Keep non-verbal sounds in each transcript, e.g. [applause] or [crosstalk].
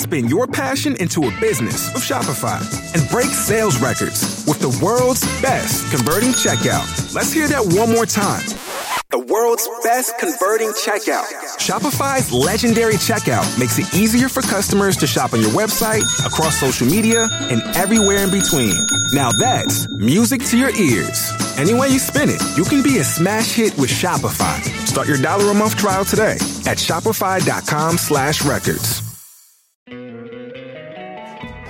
Spin your passion into a business with Shopify and break sales records with the world's best converting checkout. Let's hear that one more time. The world's best converting checkout. Shopify's legendary checkout makes it easier for customers to shop on your website, across social media, and everywhere in between. Now that's music to your ears. Any way you spin it, you can be a smash hit with Shopify. Start your dollar a month trial today at shopify.com slash records.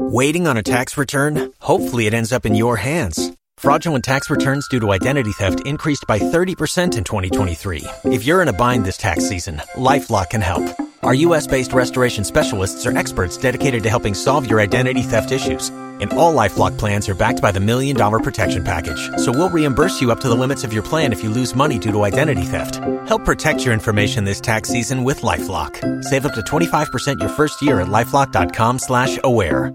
Waiting on a tax return? Hopefully, it ends up in your hands. Fraudulent tax returns due to identity theft increased by 30% in 2023. If you're in a bind this tax season, LifeLock can help. Our U.S. based restoration specialists are experts dedicated to helping solve your identity theft issues. And all LifeLock plans are backed by the Million Dollar Protection Package. So we'll reimburse you up to the limits of your plan if you lose money due to identity theft. Help protect your information this tax season with LifeLock. Save up to 25% your first year at LifeLock.com slash aware.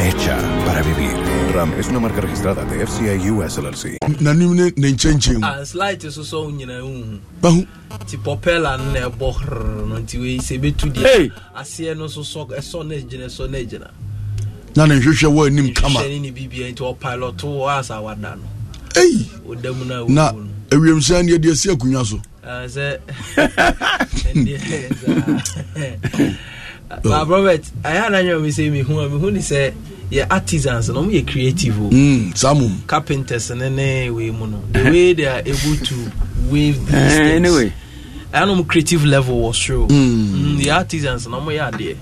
hecha para vivir. Ram es una marca registrada de FCI US LLC. Nanim ne ne nkyɛnkyɛn mu. A ah, slight soso wo nyinaa hu. Ti popela na ɛbɔ no nti wei sɛ ɛbɛtu deɛ aseɛ no so sɔ ɛsɔ eh, na gyina ɛsɔ na gyina. Na ne nhwehwɛ wɔ anim kama. Nhwehwɛ ne bibia nti ɔpilot wɔ asa wada no. Ei. Oda mu na wo. Na ewiem sɛ ne yɛde asi akonnwa so. Sɛ na robert ɛyɛ ananyɛ mi sɛ mihu a mihu ni sɛ yɛ artisans na ɔmo yɛ creative o. Oh. Mm, samum. carpenters ne ne wei mu no the way they are able to wave these eh, things anyway ɛyɛ anam creative level wɔ soro mm. mm artisans na ɔmo yɛ adeɛ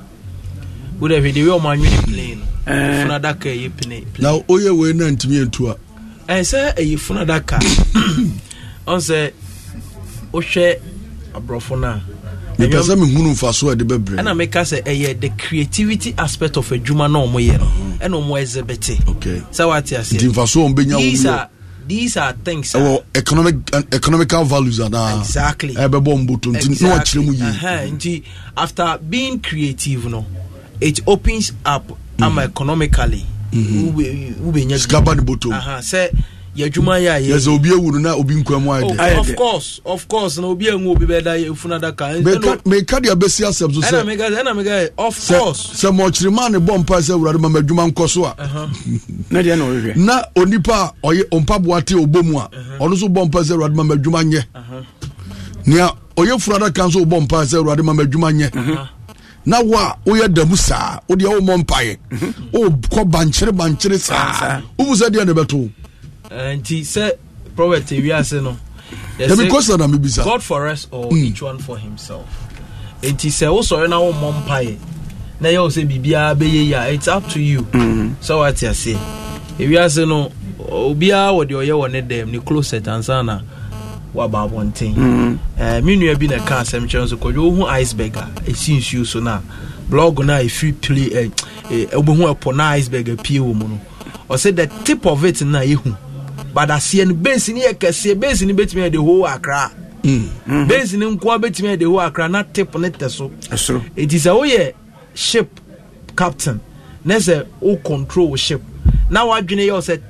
wo dɛ hwɛ de wei ɔmo anwene plane no eh. funu adaka yɛ plane. na oyɛ wei na ntumi yɛ ntua. ɛsɛ ɛyɛ funu adaka ɔn sɛ wohwɛ aborɔfo naa mepɛ sɛ mehunu mfaso a ɛde bɛbrɛ ɛna meka sɛ ɛyɛ the creativity aspect of adwuma na ɔmo yɛ no mhm. ɛna ɔmo ɛzɛbɛte sɛ wate aseɛ nti mfaso a ɔmbɛnya wo these are things ɛwɔ economic uh, economical values are anaa exactly Exactly. mboto nti na wakyerɛ mu yie nti after being creative no it opens up mm. ama mhm. economically wobɛnya mhm. sikaba ne botom sɛ yɛ adwuma yɛ a yɛsɛ obi awu no na obi nkwa mu ayɛ dɛ of course of course na obi anwu obi bɛda funu adaka meka deɛ bɛsi asɛm so sɛ of course sɛ mɔkyerema ne bɔ mpa sɛ awurade ma madwuma nkɔ so a [laughs] na deɛ na ɔhwehwɛ na onipa a ɔyɛ ɔmpaboa te ɔbɔ mu a ɔno so bɔ mpa sɛ awurade ma madwuma nyɛ nea ɔyɛ funu adaka nso bɔ mpa sɛ awurade ma madwuma nyɛ na wo a woyɛ damu saa wodeɛ womɔ mpaeɛ wokɔ bankyere bankyere saa wobu sɛ deɛ ne bɛto Eh, nti sɛ prophet ewiase no question yɛsɛ god for us or mm. each one for himself nti sɛ wosɔre na wommɔ mpaeɛ na yɛwo sɛ biribiara bɛyɛ yi a it's up to you mm-hmm. sɛ woate aseɛ ewiase no obiara wɔ deɛ ɔyɛ wɔ ne dɛm ne closet ansa na waba abɔnten mm-hmm. eh, me nua bi na ɛka asɛm kyerɛ nso kɔdwe wohu iceberg a ɛsi nsuo so no a blog no a ɛfiri pile eh, wobɛhu ɛpɔ na iceberg apue wɔ mu no ɔsɛ the tip of it na yɛhu but aseɛ no base no yɛ kɛseɛ base no bɛtumi yɛ de ho akra base no nkoa bɛtumi yɛ de ho akra na tip ne tɛ so ɛti sɛ woyɛ ship captain na sɛ wo control ship na wadwene yɛ wo sɛ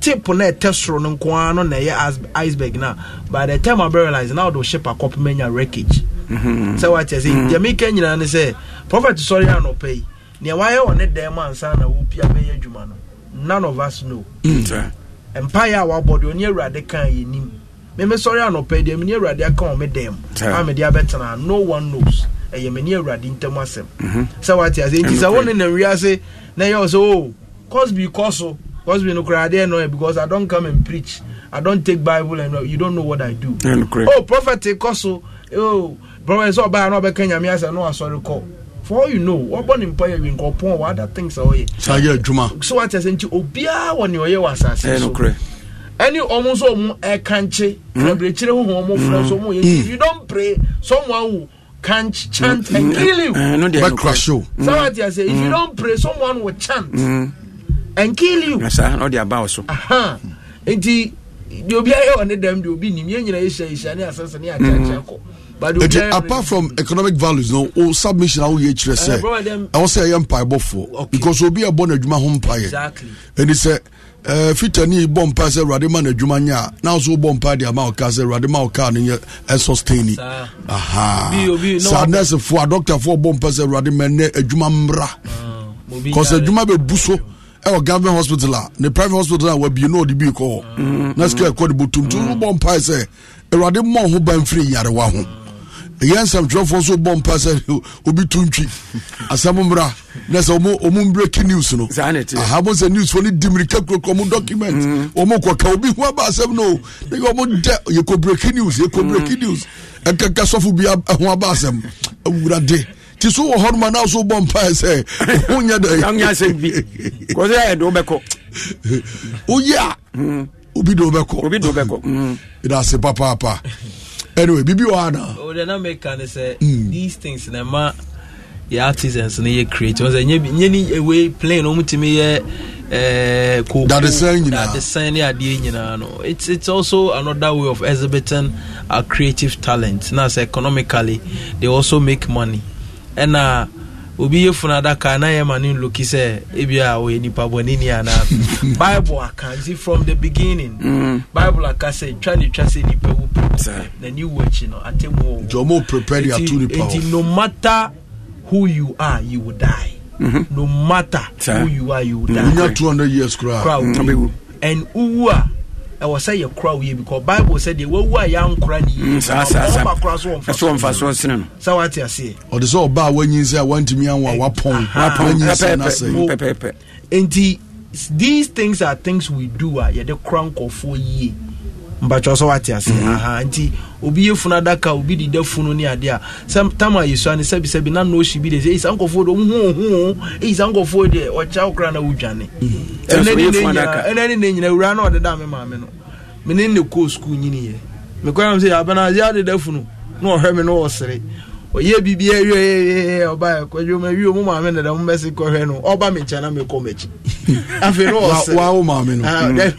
tip na ɛtɛ soro no nkoa no na ɛyɛ iceberg no by the time abɛrealise na wode ship akɔpema nya wreckage sɛ woakyɛ sɛ deɛ meka nyinaa ne sɛ prophet sɔre anɔpa yi nea wayɛ wɔ ne dan ansa na wopia bɛyɛ adwuma no none of us know mm mpaeɛ a wabɔ deɛ ɔne awurade ka yɛ nim meme sɔre anɔpɛ deɛ mene awurade aka wɔ me a mede abɛtena no one knows ɛyɛ mene awurade ntam asɛm mhm. sɛ wate ase nti sɛ wo ne nam wiase na ɛyɛ sɛ o oh, cosby kɔ so cosby no koraa adeɛ no because i don't come and preach i don't take bible and uh, you don't know what i do oh prophet kɔ so oh prophet sɛ ɔbaa na ɔbɛka nyame asɛ na wasɔre kɔ for all you know wɔbɔ ne mpa yɛ winkɔpɔn wɔ other things a ɔyɛ saa yɛ so wakyɛ sɛ nti obiaa wɔ ne ɔyɛ wɔ asase so ɛne ɔmo nso ɔmo ɛkankye hmm? abirikyire huhu ɔmo fura hmm. so ɔmo yɛ hmm. you don pray someone will can chant and kill you bɛkura so saa wakyɛ if you don pray someone will chant and kill you saa na ɔde aba wɔ so nti deɛ obiara yɛ wɔ ne dɛm deɛ obi nim yɛn nyinaa yɛ hyɛ hyɛ ne asase ne akyakya kɔ eti apart from economic values no o submission awo yɛ kyerɛ sɛ eh, ɛwɔ sɛ ɛyɛ mpaebɔfoɔ because obi ɛbɔ n'adwuma ho mpaeɛ ɛni sɛ ɛɛ eh, fitani bɔ mpae sɛ awurade ma n'adwuma nyɛ a n'aso bɔ mpae de ama ɔka sɛ awurade ma ɔka ne yɛ ɛsɔstɛni eh, saa nɛɛsifoɔ a dɔkitafoɔ bɔ mpae sɛ awurade ma ɛnɛ adwuma mmra kɔsɛ ah, adwuma bɛ bu so. ɛwɔ government hospital a ne private hospital a wabie na ɔde bii kɔ hɔ mm, na mm, sikɛ mm. ɛkɔ de bɔ tuntum bɔ mpae sɛ awurade mmɔ ho ban firi yarewa ho ɛyɛ nsɛmtwerɛfoɔ so bɔ mpa sɛ [laughs] obi to ntwi asɛm mmra na sɛ ɔmu breaking news no ahabo sɛ newsfoɔ no di mmirika kurokuro ɔmo document mhm. ɔmo kɔka obi ho aba asɛm no na yɛ ɔmo dɛ yɛkɔ breaking news yɛkɔ breaking mhm. news ɛkaka sɔfo bi ho aba asɛm awurade ti so wɔ hɔ noma na so bɔ mpa sɛ ho nyɛ dɛ [laughs] kɔsɛ ɛde wobɛkɔ woyɛ a mhm. obi de wobɛkɔ ɛda ase papaapa anyway bibi wɔ ana. o de na make kan sɛ these things na ma yɛ artisans na yɛ create wɔn sɛ nye bi nye ni ewe plane wɔn ti mi yɛ eh, koko dadesɛn nyinaa dadesɛn ne adeɛ nyinaa no it's it's also another way of exhibiting our creative talent na sɛ economically they also make money ɛna. Uh, obi yɛ funu adaka na ma ne nloki sɛ ebi a ɔyɛ nipa bɔneni anaa [laughs] bible aka nti from the beginning mm. bible aka sɛ twa ne twa sɛ nipa wu pɛ na ni wu akyi no atemu wɔ jɔnmo prepare ya tu nipa wɔ nti no matter who you are you will die mm-hmm. no matter Sir. who you are you will die. n yà two years kura. kura mm. wu and uwu a ɛwɔ sɛ yɛ kora wo yie because bible sɛ deɛ wawu a yɛankora ne yiema mm, kora so wɔmfa soɔ sene no sɛ woate aseɛ ɔde sɛ ɔba a woanyin sɛ a wantumi anwo a wapɔn wanyin sɛ no asɛe enti these things are things we do a yɛde kora nkɔfoɔ yie mpakyɛw sɛ wate ase mhm. aha nti obi yɛ funu adaka obi deda funu ne adeɛ a sɛ tam a yɛsua ne sɛbisɛbi na nɔɔsi bi de sɛ ɛyisa nkɔfoɔ deɛ ɔmuhuhu ɛyisa nkɔfoɔ deɛ ɔkyɛ wokora na wodwane ɛnɛ mhm. ne ne nyina wura na ɔdeda me maame no mene ne kɔɔ skul nyiniɛ mekɔa m sɛ abana ade adeda funu na ɔhwɛ me na ɔsere oyɛ biribi awie eh, ɔba eh, eh, kwadwo ma wie mu maame [laughs] ah, mm. na dɛm bɛsi kɔhwɛ no ɔba [laughs] me nkyɛn na mekɔ m'akyi afei Wa ɔsɛ wawo maame no ɔno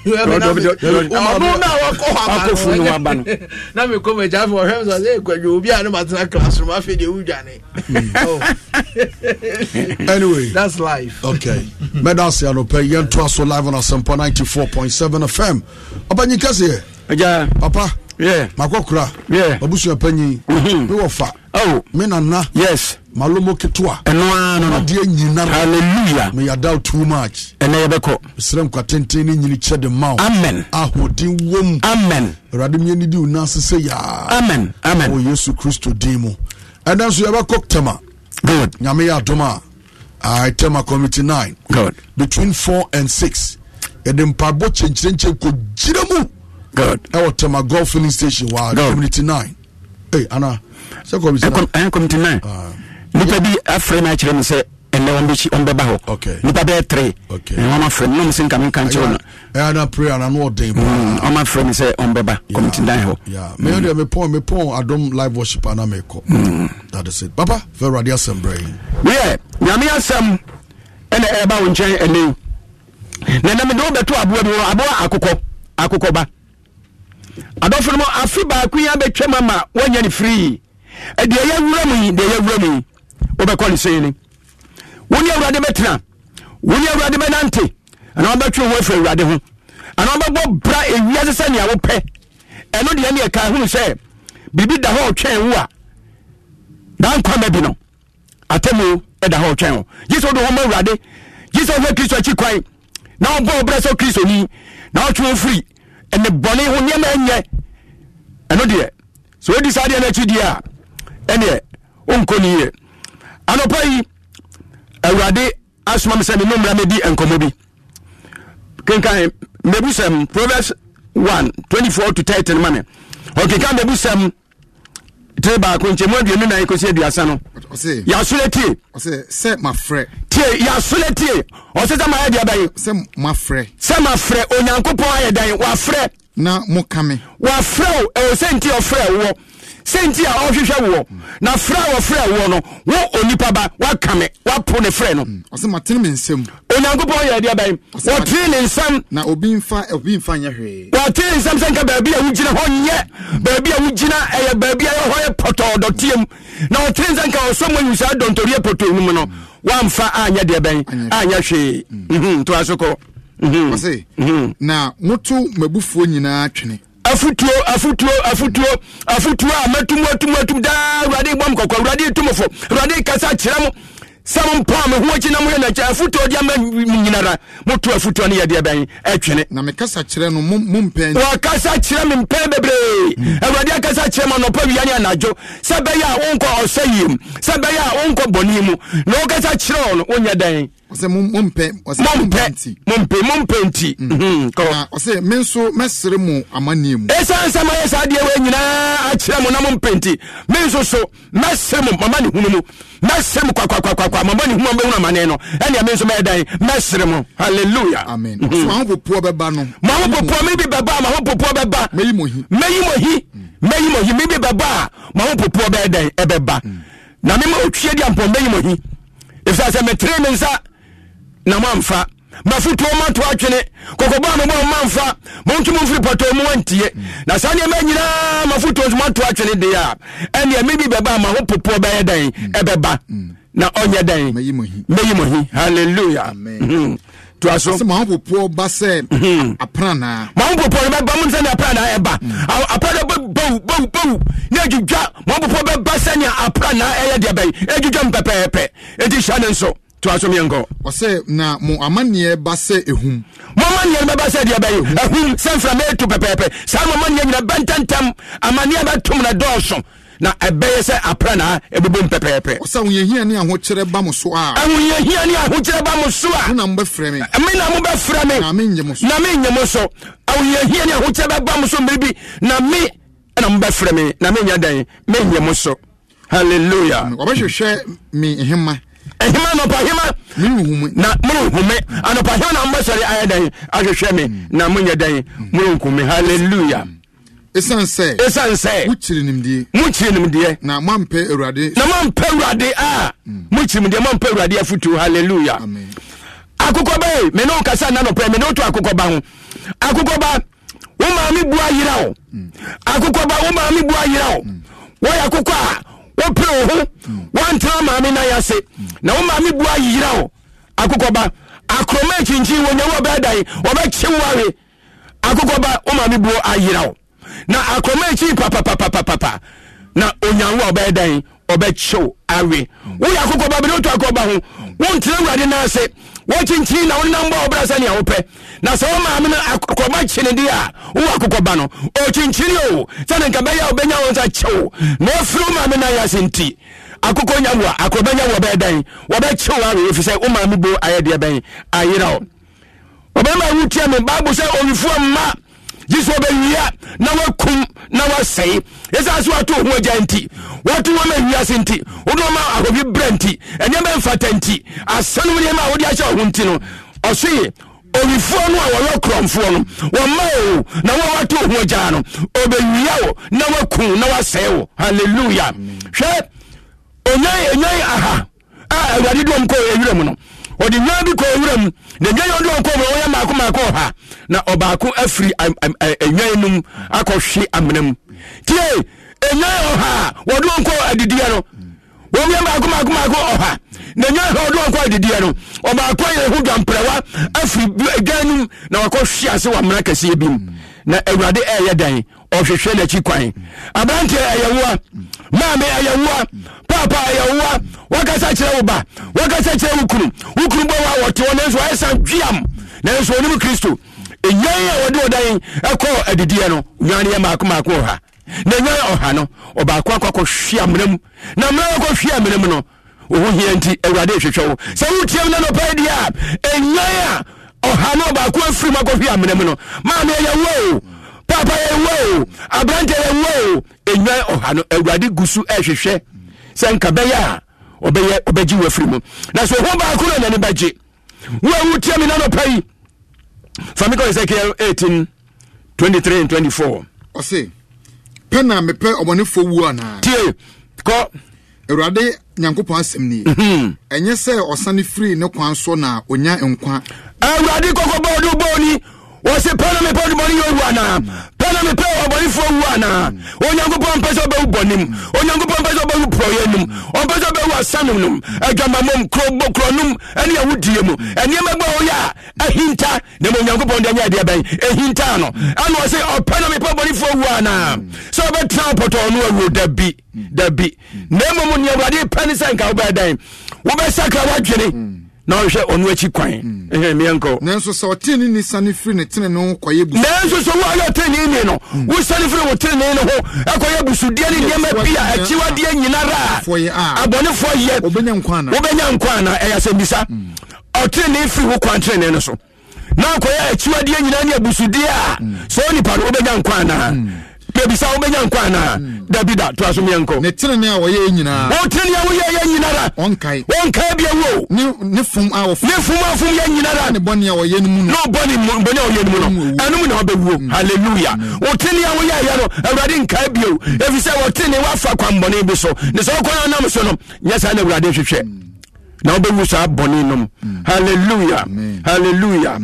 na wakɔ hɔ aba no na mekɔ m'akyi afei ɔhwɛ me sɛ ɛ kwadwo obi a ne matena classroom afei deɛ wodwane anyway that's life okay mɛda ase anɔpɛ yɛntoa so live on point seven fm ɔbanyi kɛseɛ papa yeah. makokura, yeah. abusua panyi mewɔ mm-hmm. fa oh me nana yes malomo ketewa ɛno ara no adeɛ nyinara hallelujah may i doubt too much ɛnɛ yɛbɛkɔ mesrɛ nkwa tenten ne nyini kyɛ de ma wo amen ahoɔden wɔ Amen. amen awurade mmieni di wo nan ase sɛ yaa amen amen wɔ yesu kristo din mu ɛnɛ nso yɛbɛkɔ tɛma good nyame yɛ adom a I tɛma committee nine good between four and six yɛde mpaebɔ kyɛnkyerɛnkyɛn kɔ gyina mu good ɛwɔ tɛma golf filling station wɔ community nine hey, ana committee nine nipa bi afrɛ no akyerɛ no sɛ ɛnɛ ɔmbɛba hɔ nipa bɛɛ tere ɔma frɛ no nom sɛ nka menka nkyerɛ mm, no ɔma frɛ me sɛ ɔmbɛba committee nine hɔ medeɛ mepɔn mepɔn adom live worship ana mekɔ mm. that is it papa fɛ adi asɛm brɛ yɛ nyame asɛm ɛna ɛba wo nkyɛn ɛnɛ na nam de aboa bi wɔ aboa akokɔ akokɔba adɔfo no mu baako ama deɛ yɛ wura mu yi deɛ yɛ wura mu yi wobɛkɔ ne sei ni wo ne awurade bɛtena wo ne awurade bɛnante anaa wobɛtwe wo afiri awurade ho anaa wobɛbɔ bra ewiase sɛ nea wopɛ ɛno deɛ ne ɛka hunu sɛ biribi da hɔ ɔtwɛn wo a na nkwama bi no atemu ɛda hɔ ɔtwɛn wo gye sɛ wode hɔ ma awurade gye sɛ wohwɛ kristo akyi kwan na wobɔ ɔbrɛ sɛ kristo ni na wotwe wo firi ɛne bɔne ho nneɛma ɛnyɛ ɛno deɛ sɛ wodi saa deɛ no akyi deɛ a ɛneɛ wonkɔ ni yie anɔpa yi awurade asoma me sɛ me nommra mɛdi nkɔmmɔ bi kenkan mabusɛm proverbs 1 24 to 30 ma me ɔkenkan mabusɛm tire baako nkyɛmu aduonu nan kɔsi aduasa no yasole tie sɛ mafrɛ tie yasole tie ɔsɛ sɛ mayɛ deɛ bɛyi sɛ mafrɛ sɛ mafrɛ onyankopɔn ayɛ dan wafrɛ na mokame wafrɛ o ɛwɔ sɛ nti ɔfrɛ wɔ sɛnti a ɔhwehwɛ woɔ na frɛ a wɔfrɛ woɔ no wo onipa ba woaka mm. me woapo ne frɛ no onyankopɔn yɛ adeɛ bɛn wɔtee ne nsɛm wɔtee nsɛm sɛ nka baabi a wogyina hɔ nyɛ baabi a wogyina ɛyɛ baabi a ɛhɔ yɛ pɔtɔɔ dɔteɛ mu na wɔtee nsɛm nka ɔsɔ mu awu saa dɔntoriɛ pɔtɔɔ no mu no woamfa anyɛ deɛ bɛn anyɛ hwee mm. mhm, ntoa so kɔ mhm. Mhm. na moto afutuo afutuo afutuo afutuo a mɛtum atum atum daa awurade bɔ m kɔkɔ awurade tumfo awurade kasa kyerɛ mo sɛ mompaa me ho akyi na moyɛ nakyɛ afotuo de ama nyinara moto afotuo no yɛdeɛ bɛn atwene na kasa kyerɛ no mompɛ wɔkasa kyerɛ me mpɛn bebree awurade akasa kyerɛ ma nɔpa wia ne anadwo sɛ bɛyɛ a wonkɔ ɔsɛ yie mu sɛ bɛyɛ a wonkɔ bɔne mu na wokasa kyerɛ ɔ no wonyɛ dɛn ɔsɛ mompɛ mompɛ mompɛ nti ɔsɛ mm-hmm. mhm, mm, me nso mɛsere mo amanneɛ mu ɛsiane sɛ mayɛ saa deɛ wei nyinaa akyerɛ mo na mompɛ nti me nso so mɛsere mo mama ne hunu mu mɛsere mo kwakwakwakwakwa mama ne hunu bɛhunu amane no ɛnea me nso mɛyɛ dan mɛsere mo halleluya amen ɔsɛ mhm. mahopopoɔ bɛba no mahopopoɔ me bi bɛba a mahopopoɔ bɛba mɛyi mo hi mɛyi mo hi mɛyi mm. mo hi me bi bɛba a mahopopoɔ bɛyɛ dan ɛbɛba mm. na mema otwie de ampɔmbɛyi mo hi ɛfisɛ sɛ metere me nsa na mamfa mafotuo mato atwene kɔkɔbɔ a mobɔ mamfa monto mo mfiri pɔtɔ mu wantie na saa nneɛma nyinaa mafotuo nso mato atwene deɛ a ɛneɛ me bɛba ma ho popoɔ bɛyɛ dɛn ɛbɛba na ɔnyɛ dɛn mɛyi mo hi halleluya to aso. sɛ maa popoɔ ba ba mun sɛni apranaa yɛ ba apranaa bɛ bawu bawu bawu ne edwidwa maa popoɔ bɛ ba sɛni apranaa yɛ deɛ bɛyi nso to asomiɛnkɔ ɔsɛ na mo amanneɛ ba sɛ ɛhum mo amanneɛ no bɛba sɛ deɛ bɛyɛ ɛhum sɛ mframa ɛtu pɛpɛɛpɛ saa mo amanneɛ nyina bɛntɛntɛm amanneɛ bɛtom na dɔɔso na ɛbɛyɛ sɛ Na ɛbɛbom pɛpɛɛpɛ ɔsɛ ahoyɛhia ne ahokyerɛ ba mo so a ahoyɛhia eh, ne ahokyerɛ ba mo so a na mobɛfrɛ me eh, me na mobɛfrɛ me na menyɛ mo so na menyɛ mo so ahoyɛhia eh, ne ahokyerɛ bɛba mo so mmere na me ɛna mobɛfrɛ me na menyɛ dan menyɛ mo so halleluya wɔbɛhwehwɛ mi hema ɛhema anɔpahema na morenhume anɔpahema na mobɛsɔre ayɛ dɛn ahwehwɛ me na monyɛ dɛn morenkume halleluya ɛsiane mm. sɛ ɛsiane sɛ mokyiri nimdeɛ mokyiri nimdeɛ na moampɛ awurade na moampɛ awurade a mokyiri mm. nimdeɛ moampɛ awurade afotuo halleluya akokɔ ba e me ne wokasa nna nɔpɛ me ne woto akokɔ ba ho akokɔ ba wo maame bua yera wo mm. akokɔ ba wo maame bua yera wo wɔyɛ akokɔ a wopere wo ho woantena maame no ase na wo maame bua yera wo akokɔba akoroma akyinkyin wɔnyawo ɔbɛdan wɔbɛkye wo awe akokɔba wo maame buo ayera wo na akoroma akyi papapapapapa na onyanwo a ɔbɛdan ɔbɛkye wo awe woyɛ akokɔba bɛde woto akokɔba ho wontena awurade no ase wɔkyinkyin na wonenam bɔ sɛnea wopɛ na sɛ womaame no akɔba kyene deɛ a wowɔ akokɔba no ɔkyinkyini o sɛne nka bɛyɛ a wobɛnya wo nsa kyew na ɔfiri womaame no ayɛ nti akokɔ nya wo a akɔbɛnya wɔbɛyɛ dɛn wɔbɛkyew awe ɛfiri sɛ womaame bo ayɛ deɛ bɛn ayera o ɔbɛma wotia me bible sɛ mma gye sɛ wɔbɛwia na wakum na wasɛe ɛsiane sɛ wato ho agya nti wato wɔma awiase nti wode wɔma ahɔbi berɛ nti ɛnneɛma mfata nti asanom nneɛma a wode akyɛ wo ho nti no ɔsoye owifoɔ no a wɔyɛ korɔmfoɔ no wɔma o na wɔwato ho agyaa no ɔbɛwia wo na wakum na wasɛe wo halleluya hwɛ onyan onyan aha a awurade dɔm kɔ ɛwerɛ mu no ɔde nwa bi kɔ owura mu na nwa yi ɔde ɔkɔ mu ɔyɛ mako mako ɔha na ɔbaako afiri nwa yi num akɔhwe amena mu tie nwa yi ɔha wɔde ɔkɔ adidiɛ no wɔn yɛ mako mako mako ɔha na nwa yi ɔde ɔkɔ adidiɛ no ɔbaako yɛ ho dwamprɛwa afiri nwa yi num na wakɔhwe ase wɔ amena kɛseɛ bi mu na awurade ɛɛyɛ dan ɔhwehwɛ n'akyi kwan aberanteɛ ɛyɛ woa. maame ayɛwoa papa ayɛwoa wakasa kyerɛ wo ba wakasa kyerɛ wo kunu wo kunu bɔ wa wɔte hɔ nanso ayɛ san dweam nanso onim kristo ɛnyan a wɔde ɔdan ɛkɔ adidiɛ no nwan yɛ mako mako ɔha na nwan ɔha no ɔbaako akɔkɔ hwe amena mu na mmerɛ akɔ hwe amena mu no wo ho hia nti awurade ɛhwehwɛ wo sɛ wotiam na nɔpɛ deɛ a ɛnyan a ɔha no ɔbaako efiri mu akɔhwe amena mu no maame ayɛwoa o papa yɛwɔ o ya yɛwɔ o enwa ɔha no awurade gu so sɛ nka bɛyɛ a ɔbɛyɛ ɔbɛgye afiri na so ɔho baako na n'ani bɛgye wo a wotia mi nanɔpa yi fa mi kɔ ezekiel eighteen twenty three and twenty four. pɛ na mepɛ ɔmɔnefoɔ wuo anaa. tie kɔ. awurade nyankopɔn asɛm nie mhm. ɛnyɛ sɛ ɔsane firi ne kwan so na nkwa awurade wɔsi pɛ na mepɛ ɔdubɔni yɛ owu anaa pɛ na mepɛ ɔbɔnifoɔ owu anaa onyankopɔn mpɛ sɛ ɔbɛwu bɔnim onyankopɔn mpɛ sɛ ɔbɛwu porɔyɛ num ɔmpɛ sɛ ɔbɛwu asanom nom adwamamom kurobɔ kuronom ɛne awudie mu ɛnneɛma bɛ ɔyɛ a ahinta na ma onyankopɔn deɛ nyɛ adeɛ bɛn ɛhinta no ɛna wɔsi ɔpɛ na mepɛ ɔbɔnifoɔ owu anaa sɛ ɔbɛtena ɔpɔtɔ ɔno awuo dabi dabi na mmom nea awurade pɛ ne sɛ nka wobɛɛ dɛn wobɛsakra woadwene na ɔhwɛ ɔno akyi kwan hmm. ɛhɛ meɛnkɔ nanso sɛ ɔtene ni sane firi ne tene no kɔyɛ bu nanso sɛ woayɛ ɔtene ni no hmm. wosane firi wo tene ne ho ɛkɔyɛ busudeɛ ne nneɛma bi a akyiwadeɛ nyinara a ah. abɔnefoɔ yɛ wobɛnya nkwa ana ɛyɛ sɛ bisa hmm. ɔtene firi wo kwan tene no so na akɔyɛ akyiwadeɛ nyinaa ne abusudeɛ a sɛ onipa no wobɛnya nkwa anaa bebisa wo bɛnya nkɔ anaa hmm. dabi da to aso meɛnkɔ ne tenene a wɔyɛ nyinaa wo tenene a woyɛ yɛ nyina da ɔnkae ɔnkae bia wo ne fom a wɔfom ne fom a fom yɛ nyina da ne bɔne a wɔyɛ no mu no bɔne mu bɔne a wɔyɛ no mu no ɛno mu na wɔbɛwuo hmm. hallelujah wo tenene a woyɛ yɛ no awurade nkae bio ɛfiri hmm. sɛ wɔ tenene woafa kwanbɔne bi so ne sɛ wokɔ no nam so no nyɛ saa na awurade hwehwɛ na wobɛwu saa bɔne hallelujah hallelujah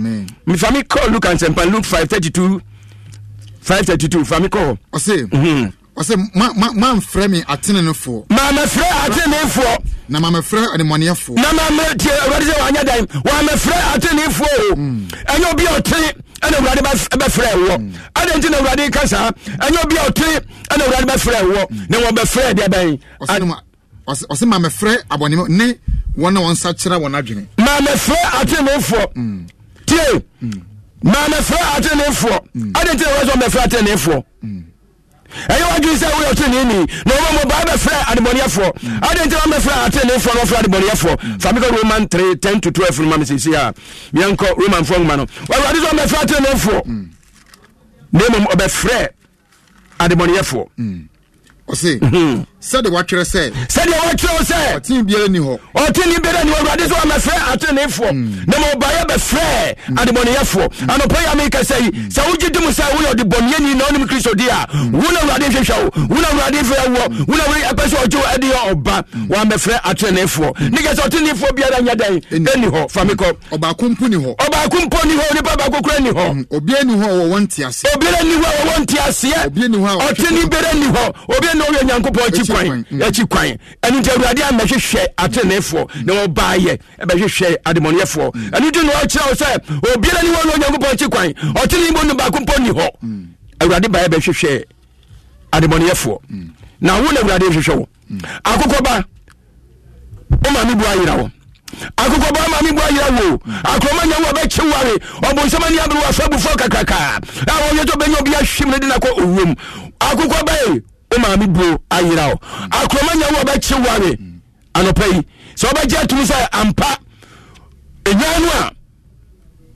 mefa me call luke ansɛmpa luke 5 32 five thirty two fami kɔ hɔ. ɔsè ɔsè ma ma ma n fɛ mi atenenefo. maame fɛ atenenefo. na maame fɛ ɛnimɔniyɛfo. na maame tie ɔlɔdi sɛ wàá nyɛ dan maame fɛ atenenefo. Mm. ɛnyɛ obi ɔtí ɛna wulade bɛ fɛ wɔ mm. ɛna nti na wulade kasa ɛnyɛ obi ɔtí ɛna wulade bɛ fɛ wɔ mm. na wɔn bɛ fɛ deɛ bɛn. ɔsè ɔsè maame fɛ abɔnimu ne wɔn na wɔn nsa kyerɛ wɔn adwene. maame fɛ atenenefo tie na mɛfrɛ atenefoɔ ade ti na wɔsɛ mɛfrɛ atenefoɔ ɛyɛ wadwi sɛ woyɛ ɔteneni na ɔma mɔbaa bɛfrɛ adebɔneɛfoɔ ade nti wamɛfrɛ atenefoɔ na wɔfrɛ adebɔneɛfoɔ fa mekɔ roman three ten to twelve. 12 no ma mesɛsi a meɛnkɔ romanfoɔ nwoma no awurade sɛ ɔmɛfrɛ atenefoɔ na mmom ɔbɛfrɛ adebɔneɛfoɔ ɔse sɛde wɔatwerɛ sɛ sɛdeɛ wɔtwerɛ wo sɛ ɔtene biara ni hɔ ɔtene biara ni hɔ awurade sɛ wɔmɛfrɛ ateneefoɔ hmm. na ma ɔbaeɛ bɛfrɛ adebɔneyɛfoɔ hmm. anɔpa yi ameka sɛ yi sɛ wogye di mu sɛ woyɛ ɔdebɔneyɛni na wonim kristo di a hmm. wo na awurade nhwehwɛ wo wo na awurade mfɛ awoɔ wo na wei ɛpɛ sɛ ɔgye wo ade yɛ ɔba wɔamɛfrɛ ateneefoɔ ne kɛ sɛ ɔteneefoɔ biara nyɛ dɛn ɛni hɔ fa me kɔ ɔbaako mpo ni hɔ ɔbaako mpo ni hɔ onipa baako kora ni hɔ obiara ni hɔ a wɔwɔ nteaseɛ obiara ni hɔ a wɔwɔ nteaseɛ ɔtene biara ni hɔ obiara ni hɔ yɛ nyankopɔn akyi kwan akyi mm. kwan ɛno nti awurade amɛhwehwɛ atenefoɔ na ayɛ yɛ ɛbɛhwehwɛ ademɔneɛfoɔ mm. ɛno nti na ɔkyerɛ wo sɛ obiara ne wɔ ne onyankopɔn akyi kwan ɔtene mu no baako mpɔ nni hɔ mm. awurade baeɛ bɛhwehwɛ ademɔneɛfoɔ na wo na awurade hwehwɛ wo akokɔ ba woma bu ayira wo akokɔ ba ma bu ayira wo akorɔma nya wo bɛkye ware ɔbonsɛm ani abere wɔ afa abufoɔ kakrakaa a wɔyɛ wo maame buo ayera o mm. akuroma nya wo ɔbɛkye ware mm. anɔpa yi sɛ ɔbɛgye atum sɛ ampa enyan no a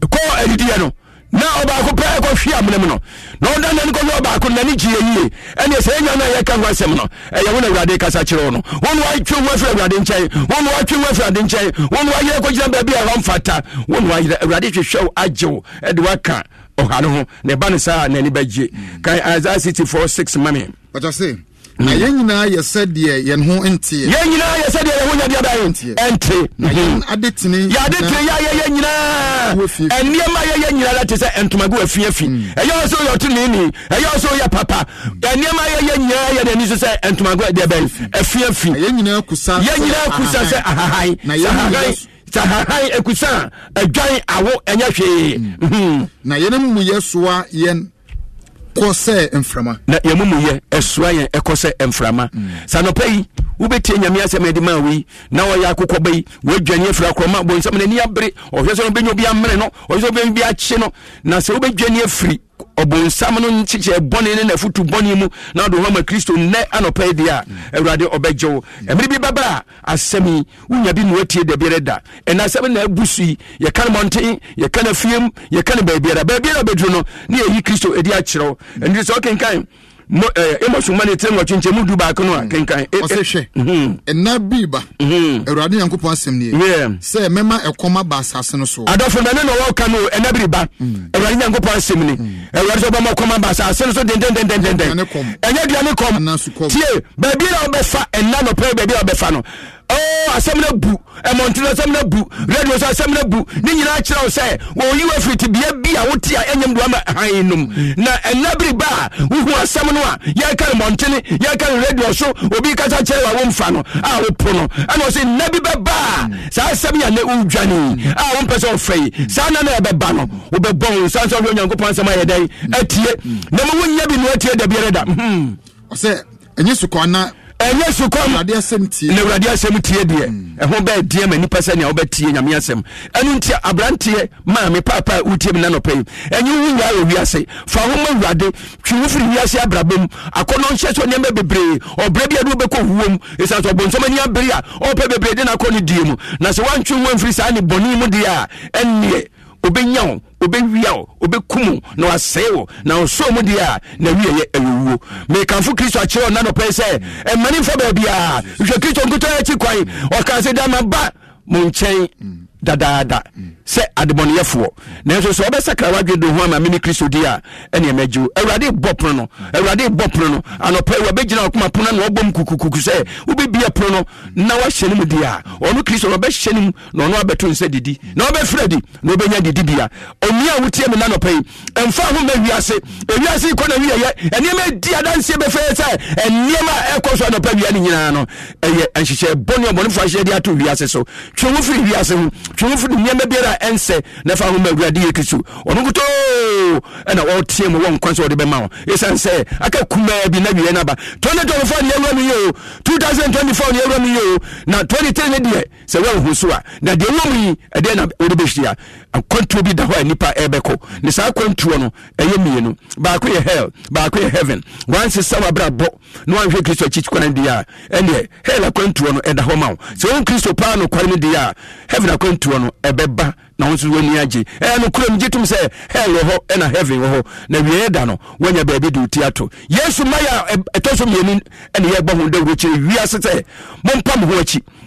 kɔ adidiɛ no na ɔbaako pɛ ɛkɔhwe amena mu no na ɔda nani kɔhwɛ ɔbaako nani gye yie ɛne sɛ ɛnya no a yɛka ho asɛm no ɛyɛ wo awurade kasa kyerɛ wo no wo ne woatwe ho afiri awurade nkyɛn wo ne woatwe ho afiri ade nkyɛn wo ne woayerɛ kɔgyina baabi a ɛhɔ mfata wo ne woayerɛ awurade hwehwɛ wo ɛde woaka ɔha no ho ne ba no saa n'ani bɛgye mm. kan isaia 64 6 mame bàtà say? na yɛn nyinaa yɛ sɛdeɛ yɛn ho nteɛ. yɛn nyinaa yɛ sɛdeɛ yɛn ho nyɛ deɛ bɛyɛ nteɛ. ɛnte. na yɛn adetini. yɛ adetini yɛ ayɛ yɛ nyinaa. ɛnneɛma yɛ yɛ nyinaa la te sɛ ntomago afiafi. Mm. ɛyɛ ɔsɛ yɛ ɔtí nìyí ɛyɛ ɔsɛ yɛ papa. ɛnneɛma mm. yɛ yɛ nyinaa yɛ deɛ nisɛ sɛ ntomago deɛ bɛyɛ na yɛn nyinaa kusa. yɛn nyinaa kusa sɛ ahahan. na yɛn nyinaa sahahan ekusa adwan awo ɛnyɛ hwee. Mm. Mhm. na yɛn mu yɛ kɔ sɛ mframa na yɛmumuyɛ ɛsoa yɛn ɛkɔ sɛ mframa mm. sanɔpɛ yi wobɛtie nyame asɛm ɛde ma wei na wɔyɛ akokɔ ba yi woadwane afiri akorɔma bonsɛm n'ani abere ɔhwɛ sɛ no bɛnya obi amene no ɔhwɛ sɛ wobɛnya bi akye no na sɛ wobɛdwane afiri ɔbonsam no nkyekyɛ bɔne ne nafotu bɔne mu na wode hɔma kristo nnɛ anɔpɛ deɛ a awurade ɔbɛgye wo ɛmere bi bɛba a asɛm yi wonya bi noatie da biara da ɛna asɛm na abu so yi yɛka no mmɔnten yɛka no afiem yɛka no baabiara baabiara bɛduru no ne yɛyi kristo ɛdi akyerɛ ɛnti sɛ wokenkan amos mane tirim wɔtwenkyɛ mu du mm. eh, eh, mm-hmm. mm-hmm. baako no a kenkan ɔsɛ hwɛ ɛna bii ba awurade nyankopɔn asɛm nie sɛ mɛma ɛkɔm aba asase no so adɔfo mɛne na wɔka no ɛna biri ba awurade nyankopɔn asɛm ni awurade sɛ ɔbɛma ɔkɔm aba asase no so dendendendenden ɛnyɛ duane kɔm tie baabi na wobɛfa ɛna nɔpɛ baabi a wobɛfa no Oh, asɛm no bu ɛmɔntene asɛm no bu radio so asɛm no bu ne nyinaa kyerɛ wo sɛ wɔyi wa firi tebea bi a wote a ɛnyam duama han nom na ɛna bere ba a wohu asɛm no a yɛka no mmɔntene yɛka so obi kasa kyerɛ wa womfa no a wopo no ɛna ɔsɛ nna bi bɛba a saa asɛm yɛ nɛ wodwane a wompɛ sɛ ɔfɛ yi saa na na ɛbɛba no wobɛbɔ wo sa sɛ wohwɛ onyankopɔn asɛm ayɛ dɛn atie na ɛnyɛ sukɔm na awurade asɛm tie deɛ hmm. ɛho bɛɛdeɛ ma nnipa sɛ nea wobɛtie nyame asɛm ɛno nti aberanteɛ maame paapa wotie me na nɔpɛ yi ɛnyɛ wo wura wɔ wiase fa ho ma awurade twe wo firi wiase abrabɔ mu akɔnɔ nhyɛ so nneɛma bebree ɔbrɛ bi ade wobɛkɔ wuo mu ɛsiane sɛ ɔbonsɔm ani abere a ɔpɛ bebree de no akɔ no die mu na sɛ woantwe wo amfiri saa ne bɔne mu deɛ a ɛnneɛ obɛnya wo obɛwia wo obɛkum na wasɛe wo na ɔsoo mu deɛ a na wieyɛ awuwuo mekamfo kristo akyerɛ ɔna nɔpɛi sɛ ɛmane mfa baabiaa hwɛ kristo nkotɔ akyi kwan ɔkaa sɛ dama ba mo nkyɛn mm. dadaada mm sɛ adebɔneyɛfoɔ nanso sɛ wɔbɛsakra wadwe do ho ama mene kristo di a ɛne magye wo awurade bɔ pono no awurade bɔ pono no anɔpɛ wɔbɛgyina ɔkoma pono na wɔbɔ m kukukuku sɛ wobɛbia pono no na wahyɛ no mu di a ɔno kristo no ɔbɛhyɛ no mu na ɔno abɛto nsɛ didi na wɔbɛfrɛ di na wɔbɛnya didibea ɔnia a wotie me na nɔpɛ yi ɛmfa ho ma wiase ewiase kɔ na wiyɛyɛ ɛnneɛma di adanseɛ bɛfɛɛ sɛ ɛnneɛma ɛkɔ so anɔpɛ wia no nyinaa no ɛyɛ nhyehyɛ bɔne ɔbɔnefoɔ ahyɛ de ato wiase so twe wo firi wiase ho twe wo firi nneɛma biara a ɛnsɛ na fa ahoma awurade yɛ kristo ɔno nkotoo ɛna wɔteɛ mu wɔn kwan sɛ wɔde bɛma wɔ ɛsiane sɛ aka kumaa bi na wiɛ no aba 2024 ne awura mu yɛ o 2024 ne awura mu yɛ o na 23 ne deɛ sɛ woanhu so a na deɛ wɔ mu yi ɛdeɛ na wode bɛhyia akwantuo bi da hɔ a nipa ɛbɛkɔ ne saa kwantuo no ɛyɛ mmienu baako yɛ hell baako yɛ heaven wansesa wabrabɔ na wanhwɛ kristo akyi kwan di a ɛneɛ hell akwantuo no ɛda hɔ ma wo sɛ wo kristo paa nokware no di a heaven akwantuo no ɛbɛba na nso agye ɛyɛ no gye sɛ hell wɔ hɔ ɛna heaven wɔ hɔ na da no baabi ti ato yesu ɛtɔ so mmienu ho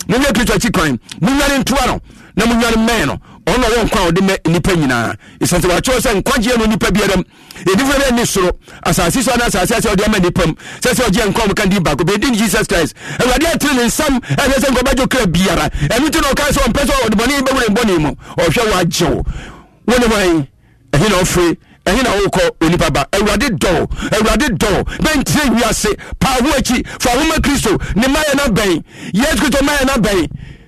mo ho akyi akyi kwan ntoa no na monwane mmɛn no ɔna wɔ nkwa a ɔde mɛ nipa nyinaa ɛsiane sɛ wakyerɛw sɛ nkwagyeɛ no nipa biara m ɛdifo bɛ ni soro asase so ana asase asɛ ɔde ama nipa m sɛ sɛ ɔgyeɛ nkwa mka di baako bɛdi ne jesus christ awurade atene ne nsam ɛsɛ sɛ nkɔbadwo kra biara ɛno nti na ɔkae sɛ ɔmpɛ sɛ ɔde bɔne bɛwure bɔne mu ɔhwɛ wɔagye wo wo ne hwan ɛhe na ɔfiri ɛhe na wokɔ onipa ba awurade dɔw awurade dɔw bɛntire wiase paa ho akyi fa homa kristo ne mayɛ no bɛn yesu kristo mayɛ no bɛn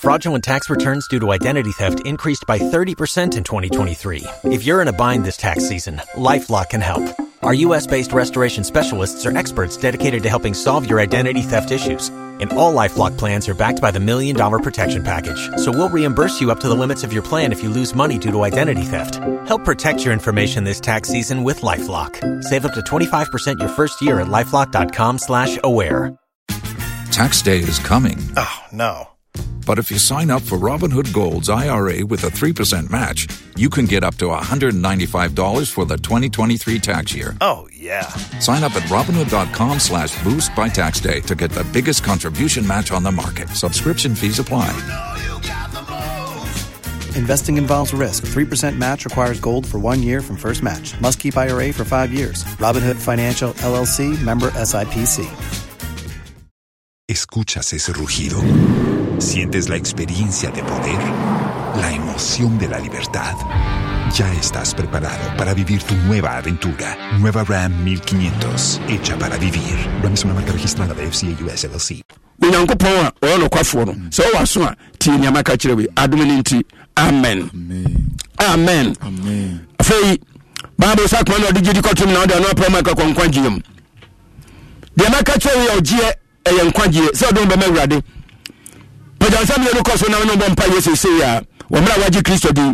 Fraudulent tax returns due to identity theft increased by 30% in 2023. If you're in a bind this tax season, LifeLock can help. Our U.S.-based restoration specialists are experts dedicated to helping solve your identity theft issues. And all LifeLock plans are backed by the Million Dollar Protection Package. So we'll reimburse you up to the limits of your plan if you lose money due to identity theft. Help protect your information this tax season with LifeLock. Save up to 25% your first year at LifeLock.com slash aware. Tax day is coming. Oh, no but if you sign up for Robinhood Gold's IRA with a 3% match, you can get up to $195 for the 2023 tax year. Oh, yeah. Sign up at Robinhood.com slash boost by tax day to get the biggest contribution match on the market. Subscription fees apply. You know you Investing involves risk. 3% match requires gold for one year from first match. Must keep IRA for five years. Robinhood Financial LLC member SIPC. ¿Escuchas ese rugido? Sientes la experiencia de poder, la emoción de la libertad. Ya estás preparado para vivir tu nueva aventura. Nueva Ram 1500, hecha para vivir. Ram es una marca registrada de FCA US LLC. onyankopɔn a ɔyɛ nokwafoɔ no mm. sɛ wowɔ so a tie nneɛma ka kyerɛ wei adom no nti amen amen afei bible sɛ akoma no ɔde gyedi kɔtom na wode ɔno aprɛ ma ɛkakɔ nkwagyeɛ mu deɛ mɛka kyerɛ wei a ɔgyeɛ ɛyɛ nkwagyeɛ sɛ ɔde wo bɛma awurade pagyansa mine no kɔ so nam no bɔ mpa yɛ seesei a wɔmmerɛ a wagye kristo din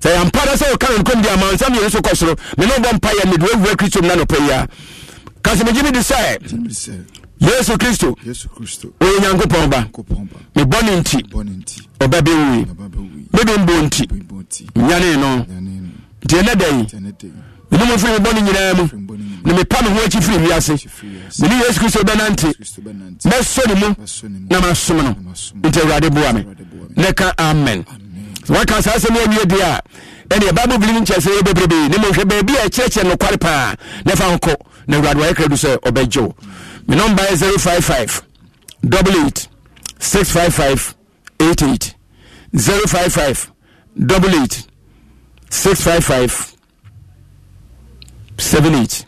sɛ yɛmpa da sɛ wɔka no nkom de amansa mmienu so kɔ soro me ne wobɔ mpa yɛ mede wawura kristo mu na nɔpɛ yi a ka sɛ megye me de sɛ yesu kristo ɔyɛ nyankopɔn ba mebɔne nti ɔba mebɛmbɔ nti nyane no nti ɛnɛ dɛn mene mo firi me bɔne nyinaa mu ne mepa me ho akyi firi wiase mene yesu kristo bɛnante mɛsɔ ne mu na masom no nti awurade boa me ne ka amen waka saa sɛ meawie deɛ a ɛneɛ bible bili no nkyerɛ sɛ yɛ bebrebee ne mohwɛ baabi a ɛkyerɛkyerɛ nokware paa na fa nkɔ na awurade wayɛ krado sɛ ɔbɛgye wo me nɔmba yɛ 055 88 655 88 055 88 655 seven eight.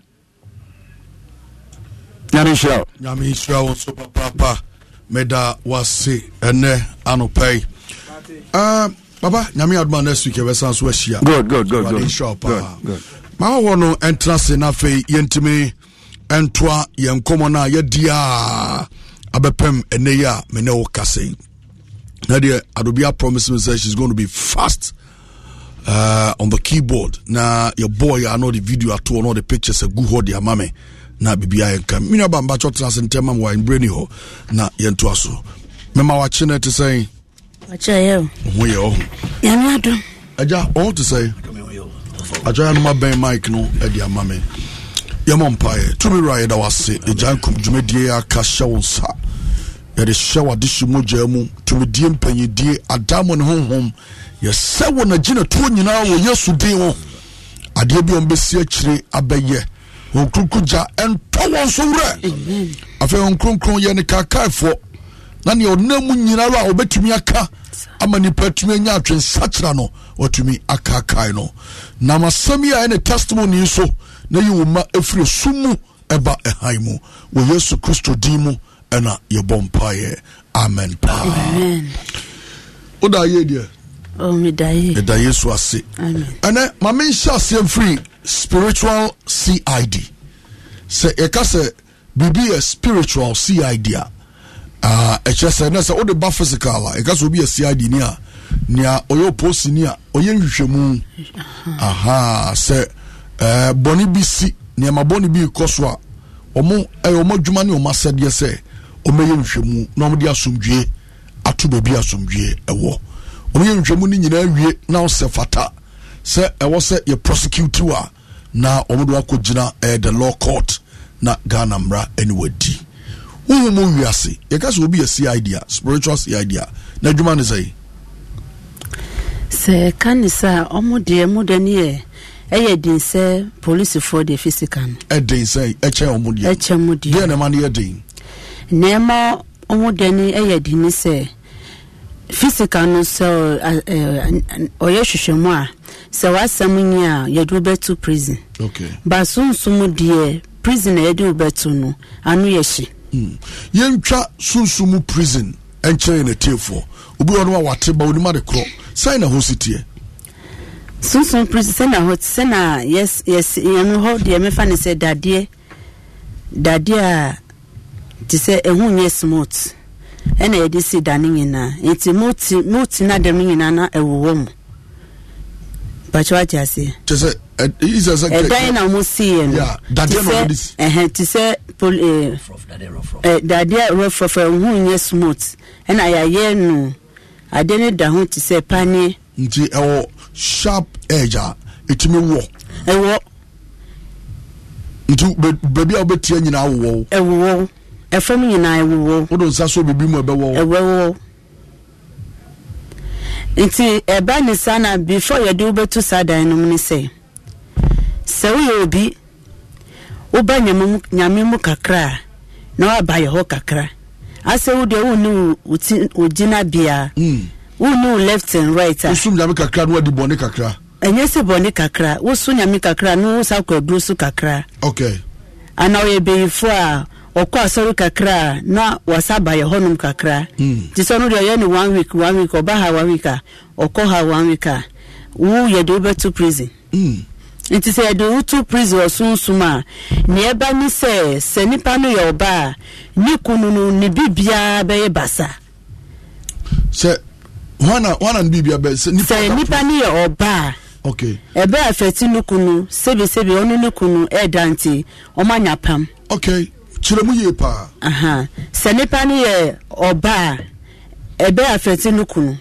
nyame nhyira wo nyame nhyira wo nso papaapa meda wase ɛnɛ anɔpa yi uh, ah, baba nyame adoma next week yɛbɛsan so ahyia ade nhyira wo paa mahɔhɔ no ɛntena se no afei yɛntimi ɛntoa yɛn nkɔmmɔ no a yɛdi a abɛpɛm ɛnɛ yi a mene wo kase na deɛ adobi promise me sɛ she's going to be fast uh, on the keyboard na your boy I know the video ato ɔno the pictures agu hɔ de ama me na biribiaa yɛnka menua ba mbakyɛ tena ase ntɛm ma me wɔabrɛ ni hɔ na yɛntoa so mema wakye no te sɛn ho yɛ ɔho agya ɔho te sɛn agya yɛnoma bɛn mike no de ama me yɛmɔ mpaeɛ tumi wura yɛda wase agya nkum dwumadie aka hyɛ wo nsa yɛde hyɛ wade hye mogya mu tumidie mpanyidie adamo ne honhom yɛsɛ wɔ nagye natuo nyinaa wɔ yesu din wo adeɛ bi a ɔmbɛsi akyire abɛyɛ wɔn kronkron gya ɛntɔ wɔn so werɛ afei wɔn kronkron yɛ ne kaakaefoɔ na nea ɔnam mu nyinaa a ɔbɛtumi aka ama nipa tumi anya atwensakyera no watumi akaakae no nam asɛm yi a ɛne testimony so na yi wo ma ɛfiri sum mu ɛba ɛhan mu wɔ yesu kristo din mu ɛna yɛbɔ mpaeɛ amen paa woda yie deɛ ɛda yesu ase ɛnɛ ma menhyɛ aseɛ mfiri spiritual cid sɛ yɛka sɛ biribi yɛ spiritual cid a ɛkyerɛ sɛ nɛ sɛ wode ba physical a yɛka sɛ obi yɛ cid ni a nea ɔyɛ oposini a ɔyɛ nhwehwɛmu aha sɛ bɔne bi si nneɛma bɔne bi kɔ so a ɔmo ɛyɛ ɔmo adwuma ne ɔmo asɛdeɛ sɛ ɔmɛyɛ nhwɛmu na ɔmde asomdwie ato baabi asomdwie ɛwɔ ɔmɛyɛ nhwɛmu no nyinaa wie na ɔsɛ fata sɛ ɛwɔ sɛ yɛ prosecute a na ɔmde wakɔgyina ɛyɛ eh, the law court na ghana mra ɛne wadi wohu mu wiase yɛka sɛ obi yɛ cid a spiritual cid a na adwuma ne sɛi sɛ ɛka ne sɛ a ɔmo deɛ mo dɛ ne yɛ ɛyɛ den sɛ polisifoɔ deɛ fisika no ɛden sɛ ɛkyɛ ɔmo deɛ ɛkyɛ mo deɛ deɛ ne ma no yɛ den nneɛma ɔmo deɛ no yɛ di ne sɛ physical no sɛ ɔyɛ hwehwɛmu a sɛ wasɛm nyi a yɛde wo bɛto prison ba sunsum deɛ prison na yɛde wo bɛto no ano yɛ hye hmm. yɛntwa sunsum prison ɛnkyɛn yɛ n'atiefoɔ obi wɔ no a wate ba onim ade korɔ sɛn na ho si teɛ sunsun prison sɛ na hɔ sɛ na yɛs yɛs yɛn hɔ deɛ mefa ne sɛ dadeɛ dadeɛ a nti sɛ ɛho nyɛ smooth ɛna yɛde si da no nyinaa nti mooti mooti no adam no nyinaa na ɛwowɔ mu bakyɛ wagye aseɛ ɛdan na ɔmo siiɛ no te sɛ eh, dadeɛ rɔfrɔfrɔ eh, ɛho nyɛ smooth ɛna yɛayɛ no adeɛ no da ho te sɛ paneɛ nti ɛwɔ sharp edge a ɛtumi wɔ ɛwɔ nti baabi a wobɛtia nyinaa wowɔ wo ɛfam nyinaa ɛwowɔ wode nsa so biribi mu ɛbɛwɔ ɛwɛwɔ nti ɛba ne saa na before yɛde wobɛtu saa dan no mu ne sɛ sɛ woyɛ obi woba nyame mu kakra na woaba yɛ hɔ kakra asɛ wo deɛ wonne wogyina biaa hmm. wonne wo left and right a wosum nyame kakra na wadi bɔne kakra ɛnyɛ sɛ bɔne kakra woso nyame kakra na wo sa kɔ aduro so kakra okay ana ɔyɛ bɛyifoɔ a ɔkɔ asɔre kakra na wasa ba yɛ hɔnom kakra nti sɛ ɔno deɛ ɔyɛ ne one week one week ɔba ha one week a ɔkɔ ha one week a wo yɛde wobɛto prison hmm. nti sɛ yɛde woto prison ɔsonsom a neɛ ɛba ne sɛ sɛ nnipa no yɛ ɔba a ne kunu no ne bibiaa bɛyɛ basa sɛ hɔna hɔna ne bibia bɛ sɛ nipa sɛ nipa no yɛ ɔba a okay ɛbɛ afɛti ne kunu sebi ɔno ne kunu ɛɛda nti ɔmo pam okay kyerɛ mu yie paa sɛ nipa ni yɛ ɔbaa ɛbɛ afɛte no kunu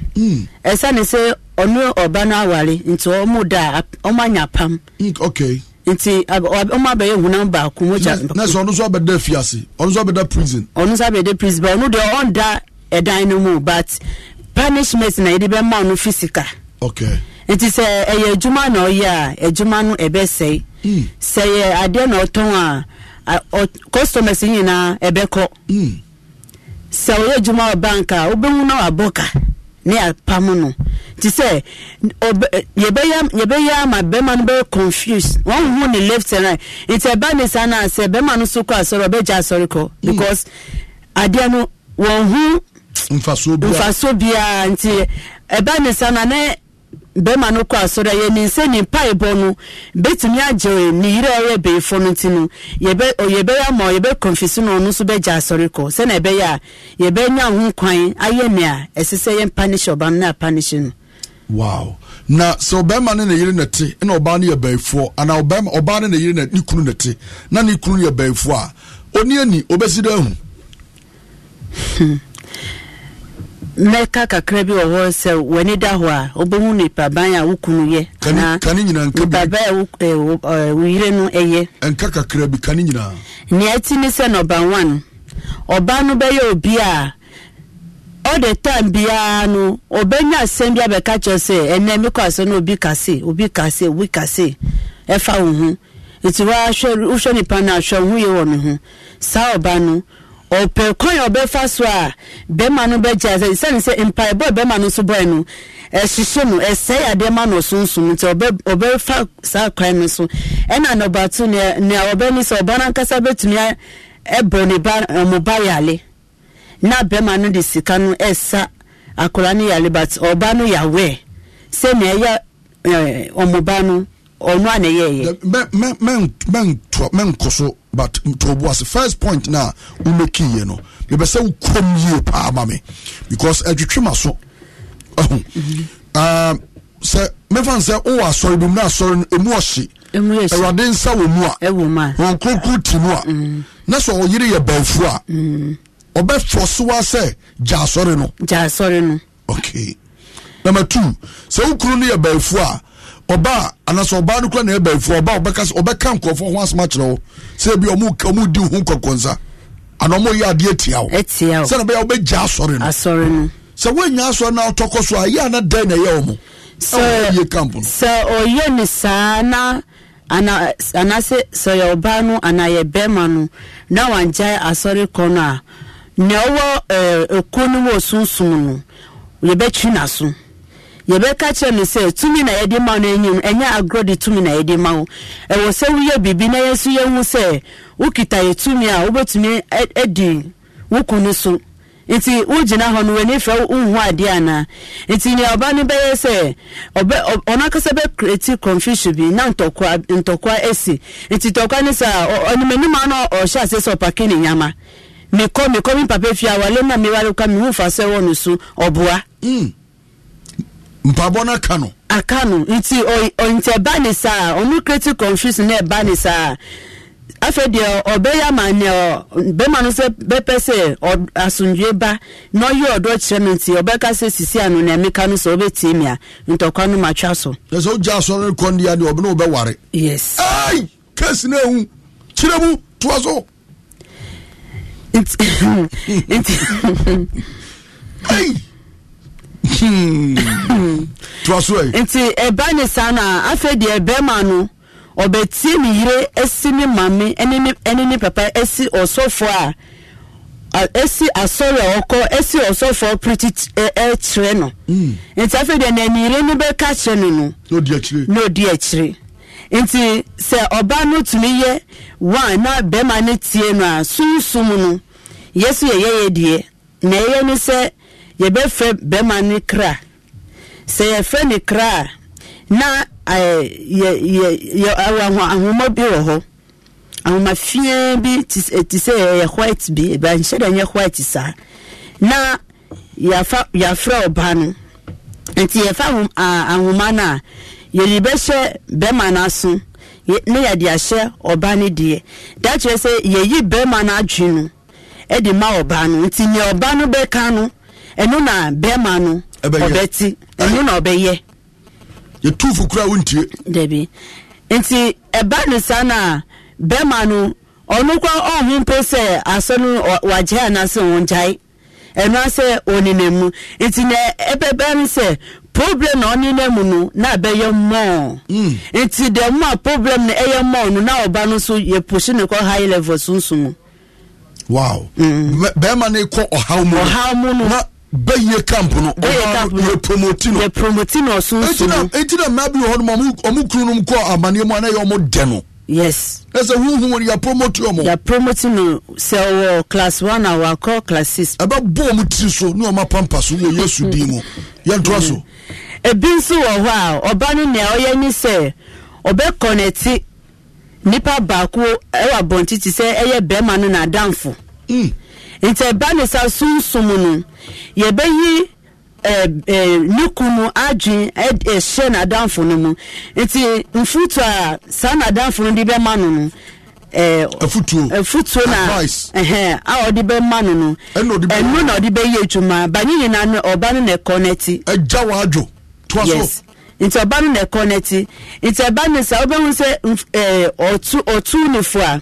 ɛsiane hmm. sɛ ɔno ɔba no aware nti ɔmo da ɔmo anya pam hmm, okay nti ɔmo abɛyɛ hunam baako mo gya na sɛ ɔno nso abɛda fiase ɔno nso abɛda prison ɔno nso abɛda prison bɛ ɔno deɛ ɔnda ɛdan no mu but punishment na yɛde bɛma ɔno fisika okay nti sɛ ɛyɛ adwuma na ɔyɛ a adwuma no ɛbɛsɛe hmm. sɛ yɛ adeɛ na ɔtɔn a customers nyinaa ɛbɛkɔ hmm. sɛ ɔyɛ adwuma wɔ bank a wobɛhu na wabɔ ka ne apam no nti sɛ yɛbɛyɛ ama bɛrima no bɛyɛ confuse wɔnhu ne left and right nti ɛba ne saa no a sɛ bɛrima no so kɔ asɔre ɔbɛgya asɔre kɔ hmm. because adeɛ no wɔnhu mfasoɔ biara nti ɛba ne saa no a ne bɛrima no kɔ asɔre a yɛ ne nsa ne mpaebɔ no bɛtumi agye ne yere a ɔyɛ no ti no yɛbɛ yɛbɛyɛ ama yɛbɛ kɔnfisi no ɔno nso bɛgye asɔre kɔ ɛbɛyɛ a yɛbɛnya ho kwan ayɛ nea ɛsɛ sɛ yɛn na panish no. wow na sɛ ɔbɛrima ne ne yere na te ɛna ɔbaa no yɛ bɛyifoɔ ana ɔbɛrima na ne kunu na te na ne kunu yɛ bɛyifoɔ a oni obɛsi [laughs] mɛka kakra bi wɔ hɔ sɛ w'ani da hɔ a wobɛhu nipaban a wo yɛ anaanipaban a wo yere no ɛyɛ bi nea ɛti ne sɛ one no bɛyɛ obi a ɔde tan biara no ɔbɛnya asɛm bi abɛka kyerɛ sɛ ɛnɛ mekɔ asɛ no obi kase obi kase obi kase ɛfa wo ho nti nipa no ahwɛ wo ho yɛ wɔ ne ho ɔpɛ kwan ọbẹ fa so e a bɛrima no bɛgya sɛ sani sɛ mpaebɔ bɛrima no nso bɔɛ no ɛhyehyɛ no ɛsɛe adeɛ ma no ɔsonsom nti ɔbɛ ɔbɛfa saa kwan no so ɛna nɔbato nea nea ọbẹ ni sɛ ɔba nankasa bɛtumi e ɛbɔ ne ba e ba yale na bɛrima no de sika no ɛsa akwadaa no yale but ɔba no yawe, sɛ na ɛyɛ ɛɛ ba ɔno a na ɛyɛ yɛ. mɛnkɔ so but tuobu ase first point na wumeki yie no yɛbɛsɛ wo kurom yie paa ma me because adwitwi ma so ɛho sɛ mefa sɛ wowɔ asɔre bi mu na asɔre no ɛmu ɔhye awurade nsa wɔ mu a wɔn kurokuro ti mu a mm-hmm. na sɛ ɔyere yɛ bɛnfu a ɔbɛfɔ mm-hmm. so wa sɛ gya asɔre no gya asɔre no okay number two sɛ wo kuro no yɛ bɛnfu a ọba anaasɛ ɔbaa na ebe efu ọba ɔbɛka ɔbɛka nkurɔfoɔ ho asoma kyerɛ wo ebi ọmụ ɔmo di ho ana ọmụ yi etia na bɛyɛ ɔbɛgya asɔre no asɔre no sɛ na ɔtɔkɔ so ana na ɛyɛ ɔmo sɛ ɔyɛ camp no sɛ na ana anaasɛ ana a yɛbɛka kyerɛ no sɛ tumi na yɛde ma no anim ɛnyɛ agorɔ de tumi na yɛde ma wo ɛwɔ sɛ woyɛ biribi na yɛso yɛhu sɛ wokita yɛ tumi a wobɛtumi adi e, wo kunu so nti wogyina hɔ no w'ani fɛ adeɛ anaa nti nea ɔba no bɛyɛ sɛ na ntɔkwa ntɔkwa asi nti ntɔkwa no ɔhyɛ ase sɛ ɔpake ne nyama na mehu mpabɔ no aka no aka no nti nti ɛba ne saa ɔmo creative confusion na ɛba ne saa afei deɛ ɔbɛyɛ ama neɛ bɛma no sɛ bɛpɛ sɛ asomdwe ba na ɔyɛ ɔdɔ kyerɛ no nti ɔbɛka sɛ sisi ano na ɛmeka no sɛ wobɛtie mi a ntɔkwa no matwa so ɛ sɛ wogya asɔre no kɔn deɛ deɛ ɔbɛne wobɛware yes ai no ahu kyerɛ mu toa so nti [laughs] Hmm. [laughs] nti ɛba ne saa na afei deɛ bɛrima no ɔbɛtie ne yere asi ne maame ɛne ne papa asi ɔsɔfoɔ a asi asɔre a ɔkɔ asi ɔsɔfoɔ piriti ɛkyerɛ no hmm. nti afei deɛ na ne yere no bɛka kyerɛ no no na odi akyire nti sɛ ɔbaa no tumi yɛ one na bɛrima no tie no a sunsun no yɛ so yɛ deɛ na ɛyɛ ne sɛ. yɛbɛfrɛ bɛrima ne kra sɛ yɛfrɛ ne kra a na ahoma bi wɔ hɔ ahoma fie bi te sɛ ɛyɛ white bi ɛbanhyɛ dɛ nyɛ white saa na yɛafrɛ ɔba no nti yɛfa ahoma no a yɛde bɛhyɛ bɛrima no aso ne yɛde ahyɛ ɔba no deɛ da kyerɛ sɛ yɛyi bɛrima no adwe no de ma ɔba no nti nea ɔba no bɛka no ɛno na bɛrima no ɔbɛti ɛno na ɔbɛyɛ yɛtumfo kora wontie dabi nti ɛba no saa na bɛrima no ɔnu kora ɔho mpo sɛ asɔ no wagyae anaasɛ ɔngyae ɛno asɛ ɔnenam mu nti na ɛbɛba no sɛ problem na ɔnenam mu no na abɛyɛ mɔɔ hmm. nti dɛ mu a problem na ɛyɛ mɔɔ no na ɔba no nso yɛposi ne kɔ high level sunsun mu hmm. bɛrima no kɔ ɔhaw mu no bɛyie camp no yɛ promoti no promoti na ɔso nso eti na mmaa bi wɔ hɔ nom ɔmo kunu nom kɔ amaneɛ mu anayɛ ɔmo dɛ no yes ɛsɛ huhu wɔn yɛ promoti ɔmo yɛ no sɛ ɔwɔ class one a wakɔ class 6 ɛbɛ ɔmo tiri so ne ɔmo apampa so wɔ yesu din mu so. Mm. ebi nso wɔ hɔ a ɔba no nea ɔyɛ ni sɛ ɔbɛ kɔnɛti nipa baako ɛwɔ abɔnti sɛ ɛyɛ bɛrima no Mm. nti ɛba ne sa sunsun no yɛbɛyi ɛɛ ɛɛ ne kunu adwin ɛhyɛ n'adanfo no mu nti a saa n'adanfo no de no no na Advice. a ɔde bɛma no no ɛnu na ɔde bɛyɛ adwuma banyi no ɔba na ɛkɔ n'akyi. ɛgya wa adwo to aso. nti ɔba no na ɛkɔ nti ɛba ne sa ɔbɛn sɛ ɛɛ ɔtu a.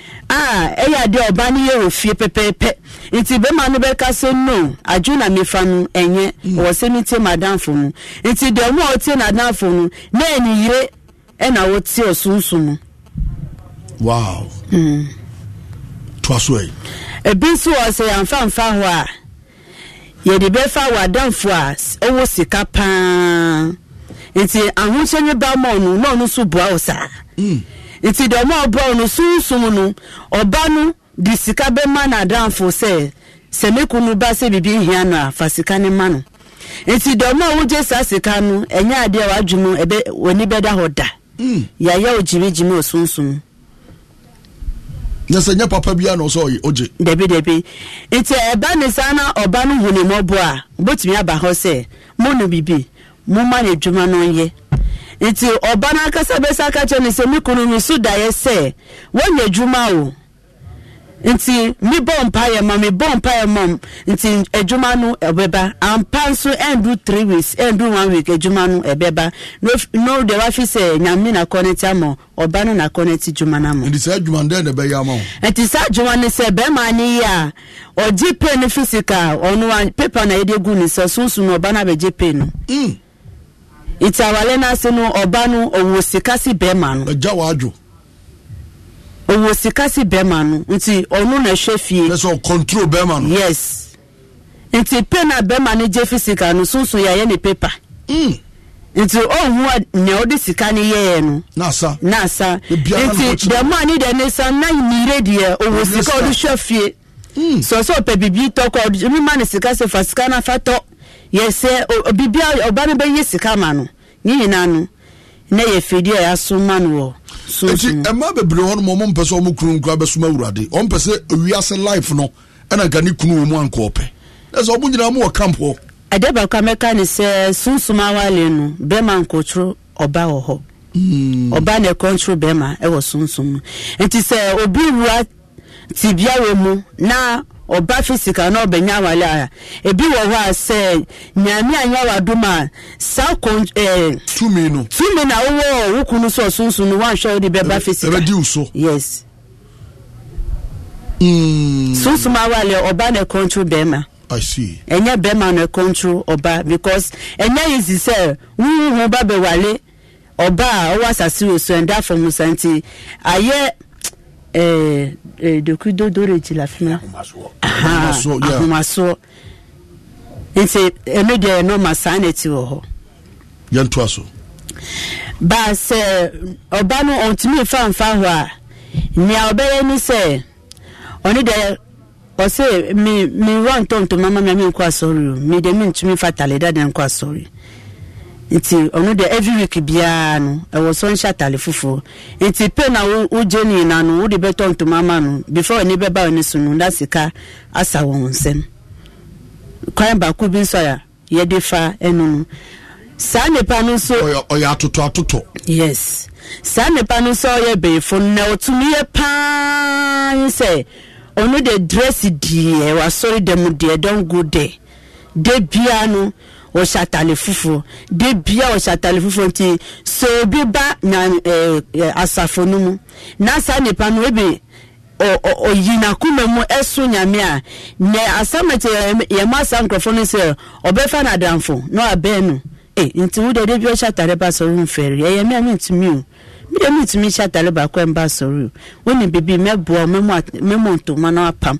a ɛyɛ adeɛ ɔba no yɛ ofie pɛpɛɛpɛ nti bɛma no bɛka sɛ no adwo na mefa no ɛnyɛ mm. wɔ sɛ no madamfo no nti deɛ ɔmo a ɔtie nadamfo na ɛniyire ɛna wɔtie ɔsonso wow mm. ebi nso wɔ sɛ hɔ a yɛde bɛfa wɔ adamfo a sika paa nti ahokyɛ ne ba ma ɔno ɔno nso boa wo mm. nti deɛ ɔmo ɔbrɔ no sunsun no ɔba no de sika bɛma n'adanfo sɛ sɛ ne kunu ba sɛ bibi hia no a fa sika ne ma no nti deɛ a wogye saa sika no ɛnyɛ adeɛ a wadwuma ɛbɛ w'ani bɛda hɔ da hmm. yɛayɛ o gyimigyimi o sunsun. nyɛ sɛ nyɛ papa bia na ɔsɛ ɔgye dabi dabi nti ɛba ne saa na ɔba no hu ne mmɔbɔ a wobɛtumi aba hɔ sɛ mo no bibi moma ne adwuma no nyɛ nti ɔba n'akasa bɛsa aka kyerɛ ne sɛ me kunu no so daeɛ sɛ wɔnyɛ adwuma o nti mebɔ mpaeɛ ma mebɔ mpaeɛ ma nti adwuma e no ɛbɛba e ampa nso e ndu three weeks ndu one week adwuma no ebeba no de wafi sɛ nyame na kɔnɛti ama ɔba no na kɔnɛti dwuma no ama nti saa adwuma no dɛn ebe ya ama wo nti saa adwuma no sɛ bɛrima ne yi a ɔgye pe no physical ɔno a pepa na yɛde gu ne sɛ sunsun na ɔba no abɛgye pe no iti awale n'ase no ɔba no ɔwɔ sika si bɛrima no. ɛja wa adwo. ɔwɔ sika si bɛrima no nti ɔno na ɛhwɛ fie. ɛsɛ ɔ control bɛrima no. yes nti pe na bɛrima no gye fi sika no sunsun yɛ ayɛ ne pepa. Mm. nti ɔhu nea ɔde sika no yɛɛ no. n'asa n'asa nti dɛm a ne deɛ ne san na nyire deɛ ɔwɔ sika ɔde hwɛ fie. sɔsɔ pɛ bibi tɔkɔ ɔde mi ma ne sika sɛ fa sika yɛsɛ biribi a ɔba no bɛyɛ sika ma no ne nyinaa no na yɛ fidi a yɛaso ma no wɔ nti ɛma bebree hɔ no ma ɔmompɛ sɛ ɔmo kunu nkura bɛsoma awurade ɔmpɛ sɛ wiase life no ɛna nka ne kunu wɔ mu anka ɔpɛ ɛ sɛ ɔmo nyinaa mowɔ camp hɔ ɛdɛ baako a mɛka ne sɛ sunsum awale no bɛrima nkotoro ɔba wɔ hɔ hmm. ɔba na ɛkɔntoro bɛrima ɛwɔ sunsum no nti sɛ obi wura tibia wɔ mu na ɔba physical na ɔbɛnya awale a ebi wɔ hɔ a sɛ nyame anya wadom a saa kon ɛɛ tumi no tumi na wowɔ wokunu so ɔsunsun no wanhwɛ wode bɛba physical ɛbɛdi wuso yes mm. sunsun awale ɔba na ɛkɔntro bɛrima ɛnyɛ bɛrima na ɛkɔntro ɔba because ɛnyɛ easy sɛ wuhu ho ba bɛwale ɔba a ɔwɔ asase wɔ so ɛnda afɔmusa nti ayɛ eh, eh, dokudodoreji la fima ahomasoɔ nti ɛno deɛ ɛno ma saa na ɛti wɔ hɔ yɛntoa so baa sɛ ɔba no ɔntumi fa mfa hɔ a nea ɔbɛyɛ ni sɛ ɔne deɛ ɔse mi mi wɔ ntɔntɔn mama mi a mi nkɔ asɔre o mi deɛ mi ntumi fa taleda de nkɔ asɔre o. nti ɔno deɛ every week biara no ɛwɔ sɔ atale fufuo nti pe na wogye ne nyina no wode bɛtɔ ntoma ama no before ɔni bɛba ɔni so no na sika asa wɔn nsɛm kwan baako bi nso a yɛde fa ɛno no saa nipa no nso ɔyɛ atoto atoto yes saa nipa no nso ɔyɛ bɛyifo na ɔtumi yɛ paa sɛ ɔno de dress deɛ wasɔre dɛm deɛ don go there de bia no. wɔhyɛ atale fufuo de bia wɔhyɛ atale fufuo nti so obi ba na ɛɛ asafo no mu na saa nipa no ebi ɔyi n'akoma mu ɛso nyame a na asamɛte yɛn mu asa nkorɔfo no sɛ ɔbɛfa n'adamfo na ɔabɛn no Ee, nti wo de de bi ɔhyɛ atale ba sɔrɔ nfɛri ɛyɛ mi a mi ntumi o mi de mi ntumi hyɛ atale baako a mba sɔrɔ o wɔn ne bibi mɛboa mɛmɔ ntoma na apam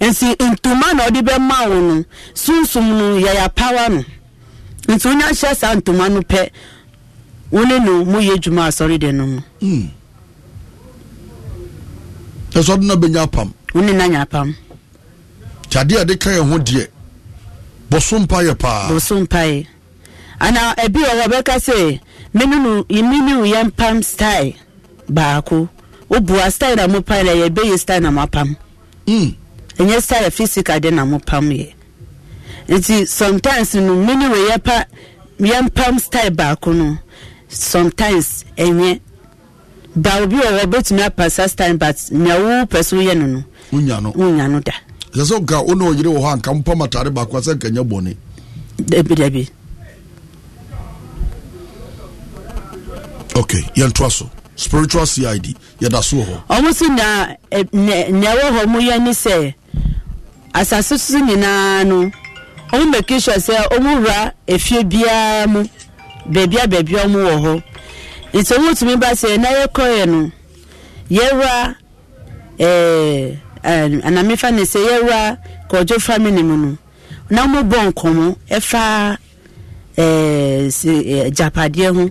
nti ntoma na ɔde bɛ ma wɔn no sunsun no yɛyɛ apawa no. nti wonye ahyɛ saa ntoma no pɛ wone no moyɛ adwuma asɔre de no mu ɛsɔde hmm. no bɛnya apam wone na nya apam nti adeɛ ɛde ka yɛ ho deɛ bɔso mpayɛ paa bɔso mpayɛ ana ebi wɔ hɔ bɛka sɛ mene no mene wo yɛ mpam style baako wobua style na mopam yɛ ɛbɛyɛ style na moapam hmm. ɛnyɛ style physical de na mopam yɛ nti sometimes no mini wɔ yɛpa yɛmpam style baako no sometimes ɛnyɛ ba obi wɔ hɔ obetumi apa saa style but nea wo pɛ so yɛ no no wonya no wonya no da ɛsɛ sɛ nka wo ne ɔyere wɔ hɔ anka mpam atare baako a sɛ nka nyɛ bɔne dabi dabi okay yɛntoa spiritual cid yɛda so wɔ hɔ ɔmo so na nea ɛwɔ hɔ mo yɛ ni sɛ asase so nyinaa no ɔmo make sure sɛ ɔmo wura efie biara mu beebi a beebi ɔmo wɔ hɔ nti ɔmo tumi ba sɛ na yɛkɔ yɛ no yɛwura ɛɛ anam anamefa ne sɛ yɛwura kɔdwo family mu no na ɔmo bɔ nkɔmɔ ɛfa ɛɛ si ɛɛ japadeɛ ho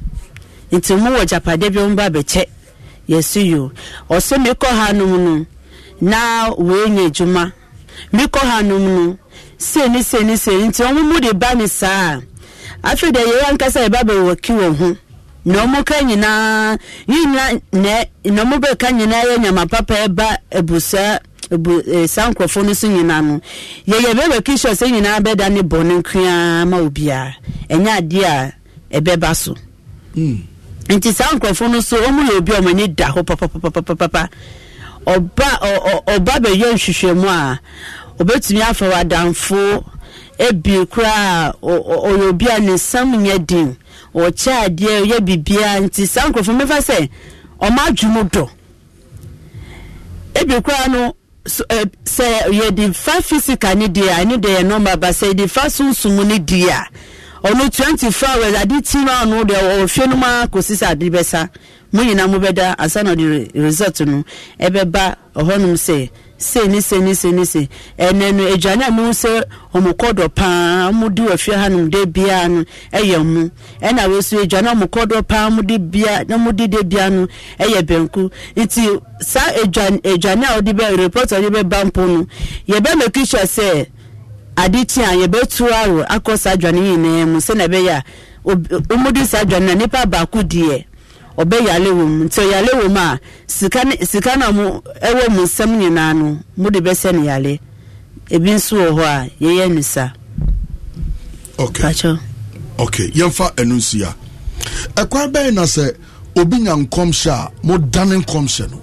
nti ɔmo wɔ japadeɛ bi ɔmo ba abɛkyɛ yɛsi yo ɔsɛ mi kɔ ha nom no na wɔn enye adwuma mi kɔ ha nom no. sei ne sei nti wɔn mu de ba ne saa afei deɛ yɛyɛ ankasa yɛ ba bɛ wɔki wɔn ho na wɔn ka nyinaa yi nyinaa na na wɔn bɛ ka nyinaa yɛ nyama papa ɛba ebusa ebu eh, sa nkurɔfoɔ no so nyinaa no yɛyɛ bɛ bɛ sɛ nyinaa bɛ da ne bɔ ne nkuyaa ma obiara ɛnyɛ adeɛ a ɛbɛba so. Hmm. nti saa nkurɔfoɔ no so wɔn yɛ obi a wɔn ani da hɔ papapapapa. ɔba ɔ ɔ ɔba bɛyɛ nhwehwɛmu a. obetumi afa wadanfo ebi koraa ɔyɛ obi a ne nsam nyɛ den ɔkyɛ adeɛ ɔyɛ bibia nti saa nkurɔfoɔ mmefa sɛ ɔmo adwo mu dɔ ebi koraa no sɛ yɛde fa fisika ne deɛ ɛne deɛ yɛ nɔɔma ba sɛ yɛde fa sunsun ne deɛ ɔno twenty four hours ade ti na ɔno deɛ ɔwɔ no mu akɔsi sɛ ade bɛsa. mo nyinaa mo bɛda ansa na ɔde result no ɛbɛba ɔhɔnom sɛ sei ne sei ne sei ne ɛnɛ no a ɔmo paa ɔmo di hanom de biara no ɛyɛ mu ɛna wei so aduane paa ɔmo de bia no ɛyɛ nti saa aduane aduane a bɛ report bɛ ba mpo no make sure aro akɔ na a ɔmo di saa aduane baako ọbẹ yàlẹ wọ mu nti yàlẹ wọ a sika ne sika na mo ɛwɔ mu nsɛm nyinaa no mo de bɛsɛ ne yàlẹ ebi nso wọ hɔ a yɛyɛ ne sa. ok Pacho. ok yɛmfa ɛnu nsi a ɛkwan bɛyɛ na sɛ obi nya nkɔmhyɛ a mo dane nkɔmhyɛ no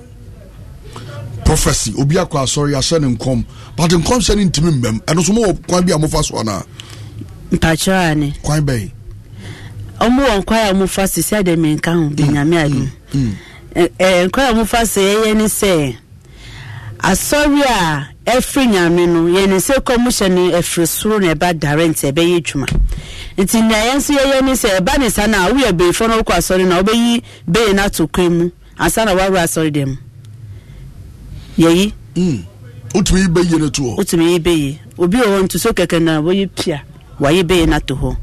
prophecy obi akɔ asɔre ahyɛ ne nkɔm but nkɔmhyɛ no ntumi mmɛm ɛno so mo wɔ kwan bi a fa so anaa. mpakyɛw ani. kwan bɛyɛ. ɔmo wɔ nkwa a ɔmo fa se sɛ ɛdɛ nka ho de mm, nyame adi ɛɛ nkwa a ɔmo fa se ɛyɛ ne sɛ asɔre a ɛfiri nyame no yɛn ne sɛ kɔn mo hyɛ no ɛfiri soro na ɛba dare nti ɛbɛyɛ adwuma nti nea yɛn nso yɛyɛ ne sɛ ɛba ne sa na awo yɛ beefo na ɔkɔ asɔre na ɔbɛyi bee na ato kwan mu ansa na wawo asɔre dɛm yɛyi. Mm. otumi yi bɛyie ne toɔ. otumi yi bɛyie obi wɔ hɔ ntuso kɛkɛ na wɔyɛ pia. wayi bɛyɛ no ato hɔ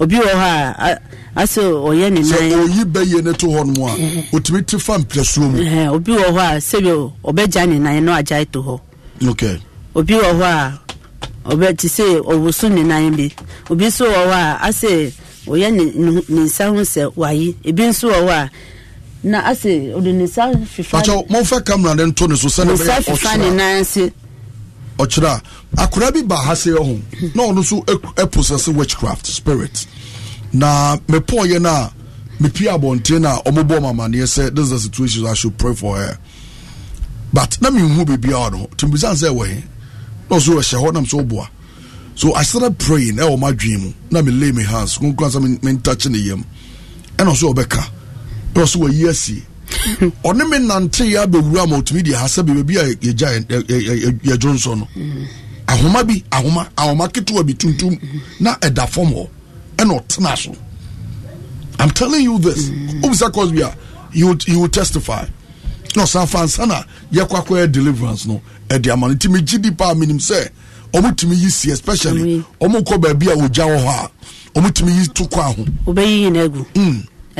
obi wɔ hɔ a asɛ ɔyɛ ne nan bɛyɛ no to hɔ no a ɔtumi eh, eh, eh. te fa mprɛsoɔ mu obi wɔ hɔ a sɛbi ɔbɛgya ne nan na agyae to hɔ obi wɔ hɔ a ɔbɛ te sɛ ɔwoso ne nan bi obi nso wɔ hɔ a asɛ ɔyɛ ne nsa ho sɛ wayi ebi nso wɔ hɔ a na asɛ ɔde ne nsa fifa ne nan ɔkyerɛ a akwadaa bi ba ha se ɛho na ɔno nso ɛposɛsɛ e, e witchcraft spirit na mepɔɔyɛ no a mepie abɔnten no a ɔmobɔ mamaneɛ sɛ this is the situation i should pray for her but na menhu biribiaa no timbisan sɛ ɛwɔ he na ɔso ɛhyɛ hɔ nam sɛ woboa so i started praying ɛwɔ e madwene mu na me lay me hands konkura sɛ mentouch ne yam ɛna ɔso ɔbɛka ɛna ɔso wayi asie ɔne me nante yɛ abɛwura ma ɔtumi deɛ ha sɛ baabi a yɛgya yɛdwo nso no ahoma bi ahoma ahoma ketewa bi tuntum na ɛda fam hɔ ɛna ɔtena so i'm telling you this mm. obisa cosby a you you will testify na ɔsan fa nsa na yɛkɔ deliverance no ɛde ama no nti megye di paa menim sɛ ɔmo tumi yi si especially ɔmo kɔ baabi a ɔgya wɔ hɔ a ɔmo tumi yi to kɔ aho. obɛyi yina egu. Mm.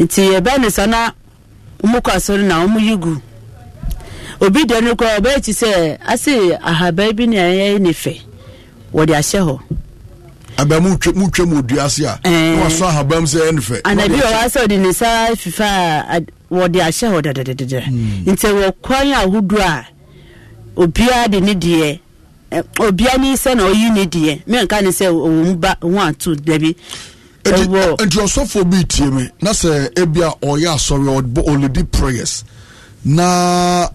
nti ebe ne sọ na ọmụkọ asọrọ na ụmụ yigu obi dị ọnụ koraa ọbaa echi sị asị ahaba ebi na ịyọ n'ife wɔde ahyɛ hɔ. abɛn mu twɛ mu twɛ mu dua ase a. ɛɛ na wasɔ ahaba mu sɛ ɛyɛ nufɛ. anabi wɔ hɔ asɛ ɔde ne nsa fifa a wɔde ahyɛ hɔ dɛdɛdɛdɛ hmm. nti wɔ kwan ahodoɔ a obiara de ne deɛ obiara ne sɛ na oyi ne deɛ mɛ nka ne sɛ ɔwɔ mu ba ɔwɔ ato dabi. nti ɔsɔfoɔ bi tie me na sɛ ebi a ɔyɛ asɔre ɔlidi prayers na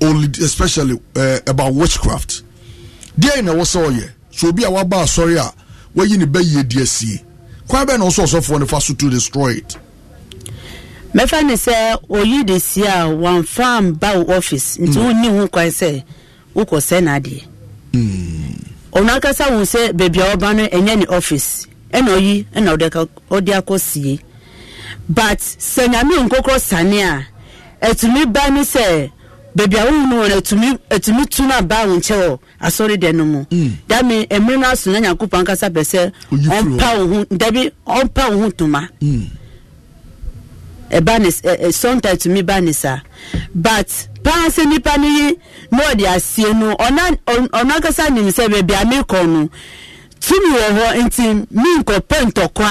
ɔlidi especially uh, about witchcraft deɛ na ɛwɔ sɛ ɔyɛ so obi a waba asɔre a wayi ne bɛyie di asie kwan bɛn na ɔsɔ ɔsɔfoɔ no fa so to destroy it. mɛfa ne sɛ oyi de si a wɔnfa mba wo office nti mm. wonni ho kwan sɛ wokɔ sɛ n'adeɛ mm. ɔno akasa wo sɛ baabi a wɔba no ɛnyɛ ne office ɛna ɔyi ɛna ɔde akɔ sie but sɛ nyame nkokorɔ sane a ɛtumi ba ne sɛ baabi a wohu no wɔ ɛtumi ɛtumi tu aba wo nkyɛ wɔ asɔre dɛ no mu dame mm. mmerɛ no aso na nyankopɔn ankasa pɛ sɛ ɔmpa wo ho dabi ɔmpa wo ho ntoma ɛba ne sɔnta tumi ba ne e, e, saa but paa sɛ nipa no yi na ɔde asie no ɔna ɔna ankasa nim sɛ baabi a mekɔ no tumi wɔ hɔ nti mi nkɔpɛ ntɔkwa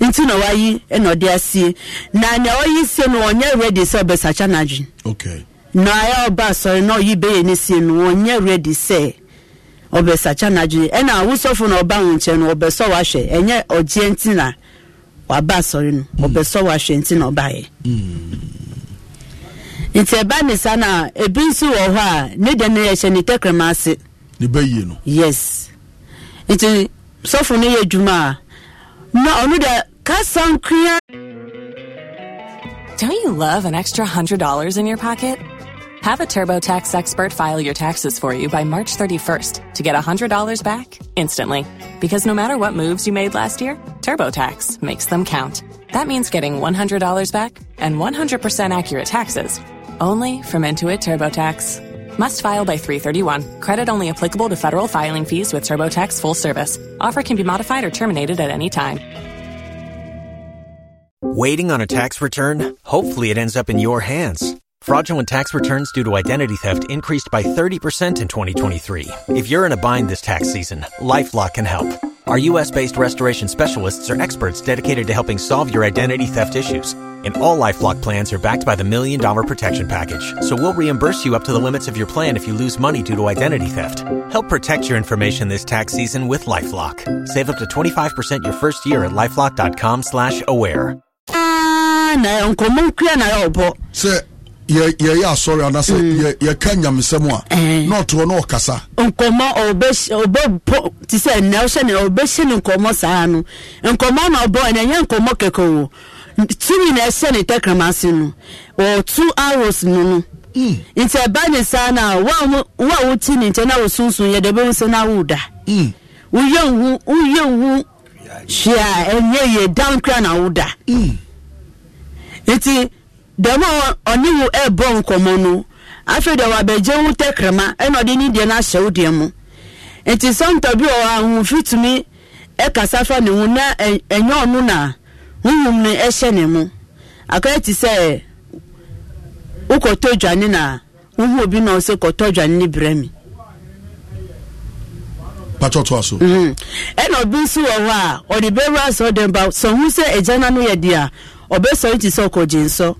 nti na wayi na ɔde asie na nea ɔyi sie no ɔnyɛ ready sɛ ɔbɛsakya n'adwene okay. na ayɛ ɔba asɔre na ɔyi bɛyɛ ne sie no ɔnyɛ ready sɛ ɔbɛsakya n'adwene ɛna awusɔfo na ɔba ho nkyɛn no ɔbɛsɔ wahwɛ ɛnyɛ ɔgyeɛ nti na waba asɔre no hmm. ɔbɛsɔ wahwɛ nti na ɔbaayɛ hmm. nti ɛba ne sa na ebi nso wɔ hɔ a ne dɛm yɛ hyɛ ne tɛkrɛma ase ne bɛyie no yes. nti sɔfo no yɛ adwuma a na ɔno da kasa nkua. don't you love an extra hundred dollars in your pocket. Have a TurboTax expert file your taxes for you by March 31st to get $100 back instantly. Because no matter what moves you made last year, TurboTax makes them count. That means getting $100 back and 100% accurate taxes only from Intuit TurboTax. Must file by 331. Credit only applicable to federal filing fees with TurboTax full service. Offer can be modified or terminated at any time. Waiting on a tax return? Hopefully, it ends up in your hands. Fraudulent tax returns due to identity theft increased by 30% in 2023. If you're in a bind this tax season, LifeLock can help. Our U.S. based restoration specialists are experts dedicated to helping solve your identity theft issues. And all Lifelock plans are backed by the Million Dollar Protection Package. So we'll reimburse you up to the limits of your plan if you lose money due to identity theft. Help protect your information this tax season with LifeLock. Save up to 25% your first year at LifeLock.com slash aware. Ah, na, yɛyɛ asɔre anasɛ yɛka nyamesɛm a na ɔtoɔ na ɔkasa nkɔmmɔ ɔbɛpo te sɛ nnɛ wohyɛ ne ɔbɛhyɛ ne nkɔmmɔ saa no nkɔmmɔ na ɔbɔ ɛnɛ ɛnyɛ nkɔmmɔ kɛkɛ o tumi na ɛhyɛ ne tɛkrama ase no ɔɔ two hours no no mm. nti ɛba ne saa no a wo a woti ne nkyɛn na wosunsun yɛ dɛ bɛhu sɛ na woda woyɛ mm. nhu woyɛ nhu hwee a ɛnyɛ yɛ dan kora na woda mm. nti dɛm a ɛbɔ nkɔmɔ no afei deɛ wabɛgye wo tɛkrɛma ɛna ɔde ne deɛ no ahyɛ wo deɛ mu nti bi ahomfi tumi ɛkasa na ɛnyɛ ɔno na honhom no ɛhyɛ ne mu akɔyɛ te sɛ wokɔtɔ na wohu obi na ɔsɛ kɔtɔ dwane ne berɛ mhm. ɛna ɔbi nso wɔ hɔ a ɔde sɛ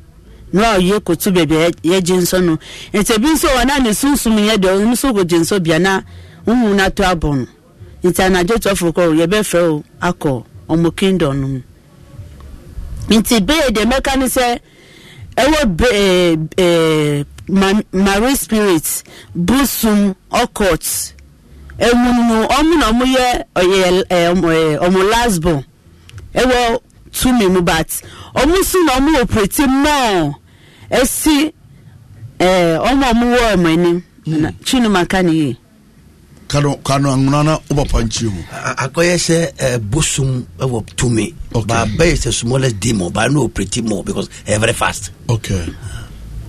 mmerɛ a ɔyɛ kɔtu baabi a yɛgye nsɔ ebi nso wɔ na ne sunsum yɛ deɛ ɔno nso na huhu no abɔ no nti anadwo tɔfo kɔ yɛbɛfrɛ o akɔ ɔmo kingdom no mu nti bee deɛ mɛka no sɛ ɛwɔ bee eh, eh, marie spirit busum ɔkɔt no ɔmo na ɔmo yɛ ɔyɛ eh, tumi hmm. mu but ɔmo so na ɔmo operate mɔɔ esi ɛɛ ɔmo ɔmo wɔ ɔmo anim na chinuma ka ne yie. kano kano anguna na o ba panchi mu. akɔyɛ sɛ ɛɛ bosom ɛwɔ tumi. okay ba bɛyɛ sɛ smallest demo ba n'o operate mɔɔ because ɛɛ very fast. okay.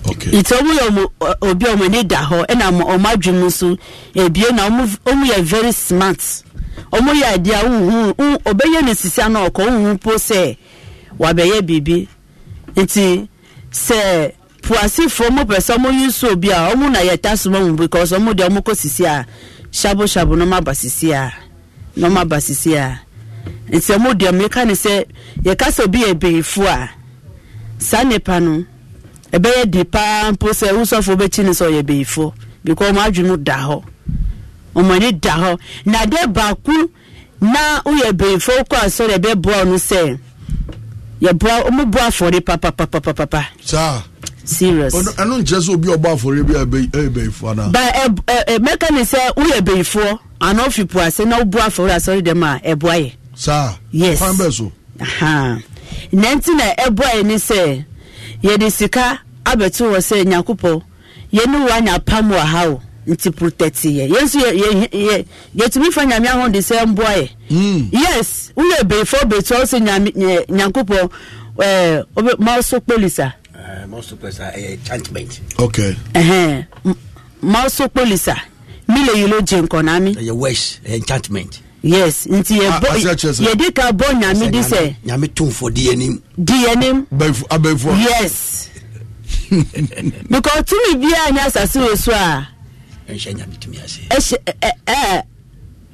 okay. nti ɔmo yɛ ɔmo obi ɔmo ani da hɔ ɛna ɔmo adwi mu nso ebie na ɔmo ɔmo yɛ very smart. ɔmo yɛ adeɛ a wohu ɔbɛyɛ ne sisia na ɔkɔ wohu po sɛ wabɛyɛ biribi nti sɛ puasifoɔ mo pɛ sɛ ɔmo yi nso obi a ɔmo na yɛ ta soma mu because ɔmo deɛ ɔmo kɔ sisi a shabu shabu na ɔmo aba sisi a na ɔmo aba sisi a nti ɔmo deɛ ɔmo yɛka ne sɛ yɛka sɛ obi yɛ bɛyifo a saa nipa no ɛbɛyɛ di paa mpo sɛ wusɔfo bɛkyi ne sɛ ɔyɛ bɛyifo because ɔmo adwi da hɔ. wɔn da hɔ na baako na woyɛ bɛnfo kɔ asɔre ɛbɛboa no sɛ yɛboa papapapapa. saa serious. obi ɔbɔ bi ɛyɛ e, ana. ba ɛ ɛ mɛka sɛ ase na asɔre dɛm a yɛ. saa yes kwan so. na e yɛ sɛ sika abɛto wɔ sɛ nyakopɔ anya pam wɔ ha o. nti protect yɛ yɛn nso yɛ yɛ yɛtumi fa nyame ahoɔ de sɛ mboa yɛ. Hmm. yes wúyɛ bèèfọ́ bèètọ́ ọ̀sẹ̀ nyame nyankopɔ ɛɛ ọbẹ mọ́ọ̀sọ polisa. Eh, mọ́ọ̀sọ polisa ɛyɛ enchantment. okay. mọ́ọ̀sọ polisa mile lè yìí ló jẹ nkànnà mi. ɛyɛ west enchantment. yes nti yɛ ah, bɔ yɛde ka bɔ nyame di sɛ. nyame tónfɔ di yɛ nim. di yɛ nim. abɛnfo yes [laughs] because tumi bi a nya asase wɔ so ɛnhyɛ nyame tumi ase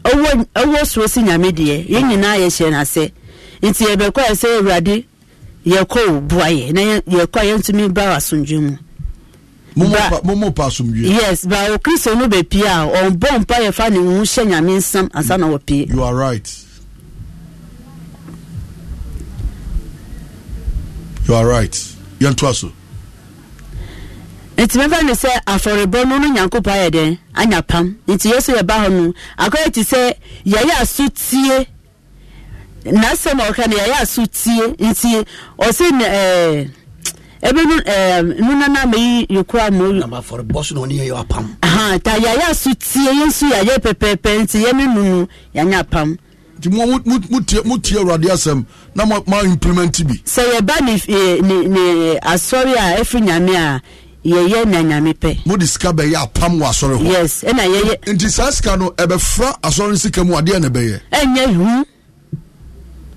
ɔwɔ soro si nyame deɛ yɛn nyinaa yɛhyɛ no ase nti yɛbɛkɔ ɛ sɛ awurade yɛkɔ wo boa yɛ na yɛkɔ a yɛntumi ba wɔ asomdwe mu momo pa asomdwe yes ba wo kristo no bɛpie a ɔmbɔ mpa yɛfa ne wu hyɛ nyame nsam ansa na wɔpie you are right you are right yɛntoa so nti mɛfɛ no sɛ afɔrebɔ no no nyankopɔn ayɛ dɛn anya pam nti yesu yɛ ba hɔ no akɔyɛ ti sɛ yɛyɛ aso tie n'asɛm a ɔka no yɛyɛ aso tie nti ɔse ɛɛ ebi nu ɛɛ nunana mɛyi yekura mu. na ma afɔrebɔ so na ɔne yɛ yɛ apam. ahan ta yɛyɛ aso tie yɛn nso yɛyɛ pɛpɛɛpɛ nti yɛn mi nunu yɛnyɛ apam. nti mo mo mo tie mo tie awurade asɛm na mo ma implement bi. sɛ yɛba ne eh, ne ne eh, asɔre a efi nyame a yɛyɛ na nyame pɛ mode sika bɛyɛ apam wɔ asɔre hɔ yes ɛna yɛyɛ nti saa sika no ɛbɛfra asɔre no sika mu adeɛ na ɛbɛyɛ ɛnyɛ hu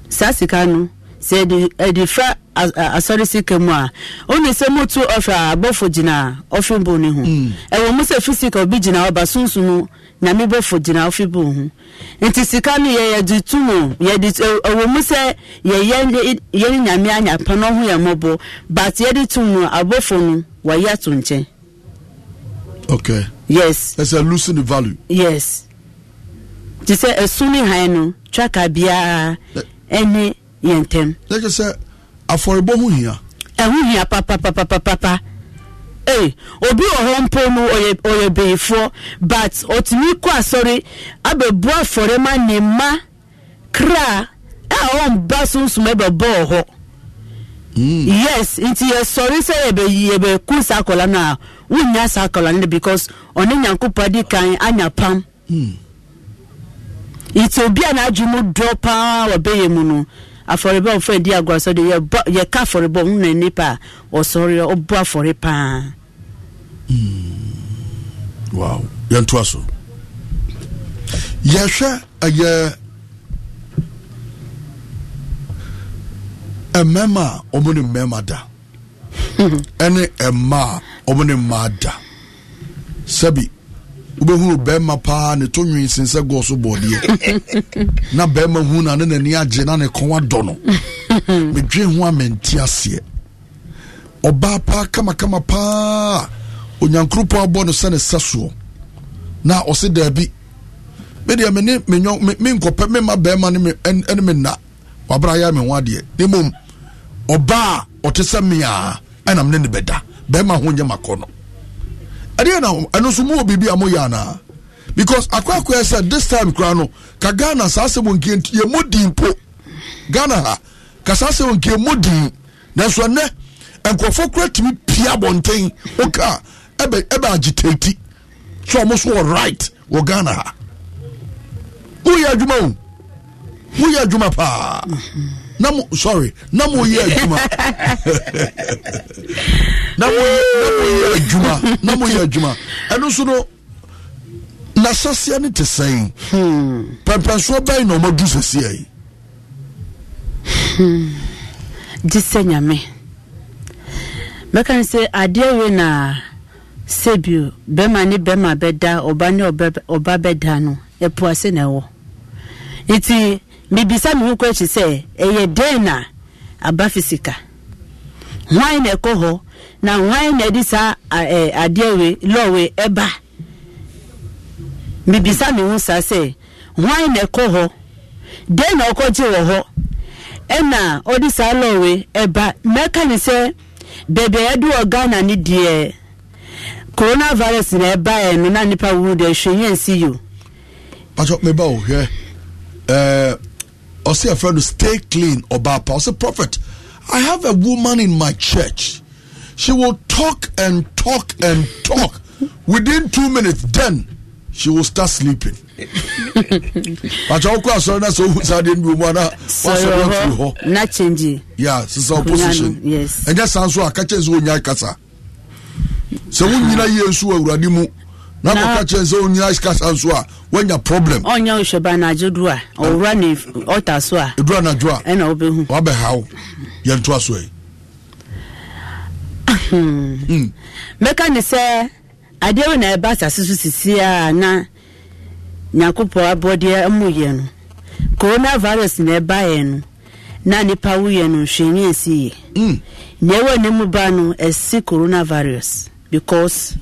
saa sika no sɛ ɛde ɛde fra asɔre sika mu a ɔne sɛ motu ɔfɛ abɔfo gyina ɔfe bo ne ho hmm. ɛwɔ mu sɛ fisika obi gyina ɔba sunsun no nyame bɔfo gyina ɔfe bo ho nti sika no yɛ yɛde tu mu yɛde ɛwɔ mu sɛ yɛyɛ yɛne nyame anyapa no ho yɛ mɔbɔ but yɛde tu mu abɔfo no wayi ato nkyɛn. okay. yes. ɛsɛ losing the value. yes. te sɛ ɛsun ne han no traka biara ɛne yɛn ntɛm. lɛkyɛ sɛ afɔrebɔ ho hia. ɛho hia papapapapapa. Hey, obi wɔ hɔ mpo mu ɔyɛ ɔyɛ bɛyifoɔ but ɔtumi kɔ asɔre abɛbu afɔre ma ne ma kra a ɔmba sunsum ɛbɛbɔ wɔ hɔ. yes nti yɛsɔre sɛ yɛbɛku saa akɔla no a wonya saa akɔla no because ɔne nyankopɔn di kan anya pam hmm. nti obi a n'adwe mu dɔ paa wɔbɛyɛ mu no afɔrebɔ ɔfɔ edi agorɔ sɔ de yɛbɔ yɛka afɔrebɔ ɔmo na nipa ɔsɔre ɔbɔ afɔre paa. Hmm. wow yɛn to aso yɛhwɛ ɛyɛ. Uh, mmarima a wɔn ne mmarima da ɛne mmaa a wɔn ne mmaa da sɛbi wobɛhunu bɛrima paa ne to nwin sen sɛ gɔɔ so bɔɔdeɛ [laughs] na bɛrima hu na ne n'ani agye na ne kɔn adɔ no [laughs] medwe ho a mente aseɛ ɔbaa paa kamakama paa onyankoropɔn abɔ no sɛ ne sɛ soɔ na ɔse daabi medeɛ mene menkɔpɛ mema bɛrima ne me na wabra yɛ me ho adeɛ ne mmom ɔbaa ɔte sɛ mmea ɛnam ne ne bɛda bɛrima ho nyɛ makɔ no ɛdeɛ na ɛno nso mowɔ biribi a moyɛ anaa because akwakoa sɛ this time koraa no ka ghana saa sɛ wɔnkie yɛ mu din po ghana ha ka saa sɛ wɔnkie mu din nanso ɛnɛ nkurɔfoɔ kora tumi pia abɔnten woka ɛbɛ agitati sɛ ɔmo so wɔ right wɔ ghana ha woyɛ adwuma o moyɛ adwuma paa na mo sorry na moyɛ adwuma na moyɛ adwuma na moyɛ adwuma ɛno so no n'ahyɛseɛ no te sɛn pɛmpɛnsoɔ bɛn na ɔmadu sɛseɛ yi gye sɛ nyame mɛka ne sɛ adeɛ wei na sɛ bio bɛma ne bɛma bɛda ɔba ne ɔba bɛda no ɛpoase na ɛwɔ nti mebisa me ho kɔ na aba fisika na ɛkɔ e, na hwan na ɛde saa adeɛ we lɔwe ɛba mebisa me ho sɛ na ɛkɔ hɔ na ɔkɔgye wɔ hɔ ɛna ɔde saa ɛba mɛka coronavirus na ɛbaeɛ no na nipa wuru deɛ or say a friend to stay clean or bad. or say prophet i have a woman in my church she will talk and talk and talk within two minutes then she will start sleeping pàtàkì [laughs] ọkọ asọrin náà sọ ohun sáadé ní omu àná wọn sọ wọn firi hɔ. na change. ya sisan opposition yes. ɛnyɛ san so a kakyɛ nso onya kasa sɛ wọn nyina yie nso wɔ awurade mu na akɔka kyerɛ sɛ ɔnua kasa nso a woanya problem ɔnyɛ ohwɛba anadwo do a ɔwura ne ɔta so a ɛduru anadwo a ɛna wobɛhu wabɛhaw yɛntoa so ɛ mɛka ne sɛ adeɛ wo na ɛba asase hmm. hmm. so sisi a na nyankopɔn abɔdeɛ muyɛ no corona virus na ɛbaeɛ no na nipa woyɛ no nhwɛni ɛsiyɛ nea hmm. ɛwɔ ne mu ba no ɛsi coronavirus because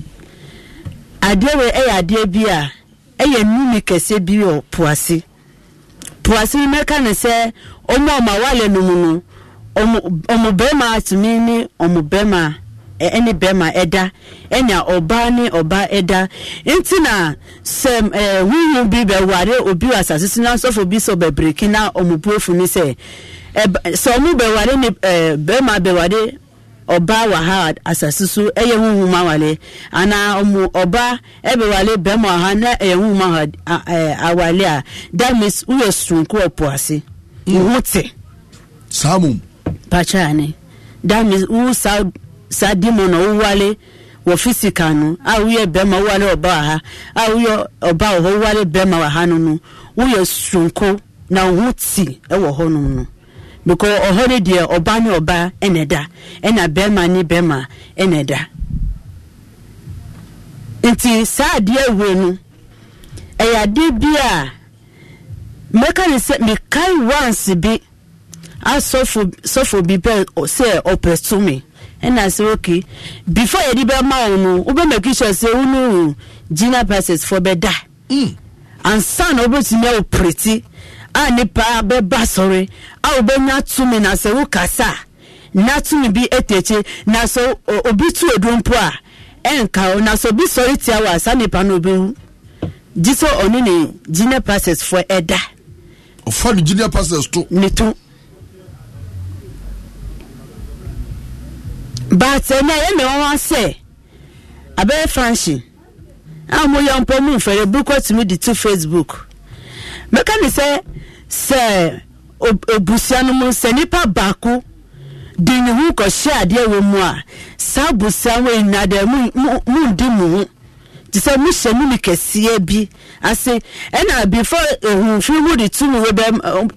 adeɛ wei yɛ adeɛ bi a ɛyɛ nnumi kɛseɛ bi wɔ poase poase yi mɛka ne sɛ ɔmo ɔmo awale no mu no ɔmo bɛrima atumi ne ɔmo bɛrima ɛne bɛrima ɛda ɛne ɔbaa ne ɔbaa ɛda nti na sɛ ɛɛ huhu bi bɛware obi wɔ asase so na ne sɛ sɛ bɛware ne ɛɛ bɛrima bɛware. ọba wɔ ha asase so ɛyɛ huhum awale anaa ɔmo ọmụ ɛbɛwale bɛrima wɔ ha na ɛyɛ huhum awale a that means woyɛ soronko wɔ ase wo te saa mom pakyɛ that means na wowale wɔ physical no a woyɛ bɛrima a woyɛ wɔ hɔ no no woyɛ na te ɛwɔ no because ọhụrụ de deɛ ɔbaa ne ɔbaa ɛna ɛda na bɛrima ne bɛrima ɛna ɛda nti saa adeɛ awuro no ɛyɛ adeɛ bi a mmeka ne sɛ mekae bi asɔfo sɔfo bi bɛ sɛ ɔpɛto me ɛna sɛ bifo before yɛde bɛma wo no wobɛmaki sure sɛ wo no gyina passes fo bɛda mm. ansa na wobɛtumi awo prɛti a nipa bɛba sɔre a wobɛnya tumi na sɛ wokasa na tumi bi etekye na sɛ obi tu edu mpo a ɛnka o na sɛ obi sɔre tia wa saa nipa no obi gyi sɛ ɔne ne junior pastors fo ɛda. ɔfa ne junior pastors to. ne to. baatɛ eh, na ɛyɛ mɛ wɔn asɛ abɛyɛ fanhyin a mo yɛ mpɔ mu nfɛrɛ bukɔ tumi di to facebook mɛka ne sɛ. sɛ obusua no mu sɛ nipa baako de ne ho kɔhyɛ adeɛ wɔ mu a saa abusua wɔ nyinaa deɛ mu ndi mu ho te sɛ mu hyɛ mu ne kɛseɛ bi ase ɛna before ehunfin mu de tum wɔ bɛ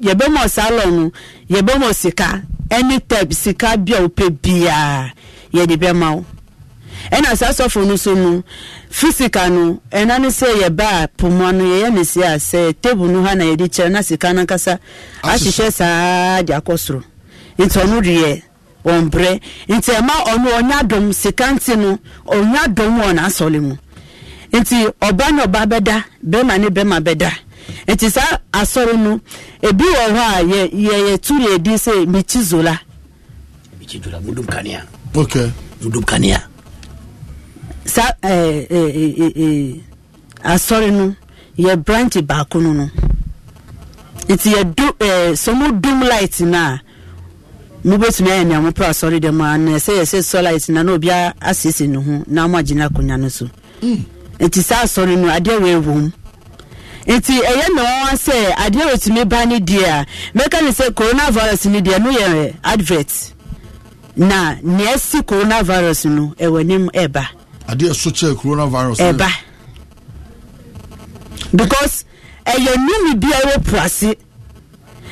yɛbɛ mɔ salon no yɛbɛ mɔ sika ɛne tɛp sika bi a wopɛ biara yɛde bɛ ma wo. ɛna saa sɔfo no so no fisika no ɛna ne sɛ yɛ ba a poma no yɛyɛ ne si a sɛ tebu no ha na yɛde kyerɛ na sika no ankasa ahyehyɛ saa de akɔ soro nti ɔno deɛ ɔmbrɛ nti ɛma ɔno ɔnya dɔm sika nti no ɔnya dɔm wɔ n'asɔle mu nti ɔba ne ɔba bɛda bɛrima ne bɛrima bɛda nti saa asɔre no ebi wɔ hɔ a yɛ yɛ yɛ tu yɛ sɛ mikyi zola. mikyi zola mudum kanea. ok mudum kanea. saa eh, eh, eh, asɔre no yɛ branch baako no no nti yɛdu ɛɛ dum light na mo bɛtumi ayɛ nea mo pɛ asɔre dɛm a na ɛsɛ yɛ sɛ sɔ light na na obiara asiesie ne ho na mo agyina akonnwa no so mm. nti sa asɔre no adeɛ wɔ ewu nti ɛyɛ na wɔn sɛ adeɛ wɔtumi ba ne deɛ a mɛka ne sɛ coronavirus ne deɛ no yɛ advert na nea ɛsi coronavirus no ɛwɔ anim E adeɛ so kyɛ coronavirus. ɛba because ɛyɛ numi bi a ɛwɔ purase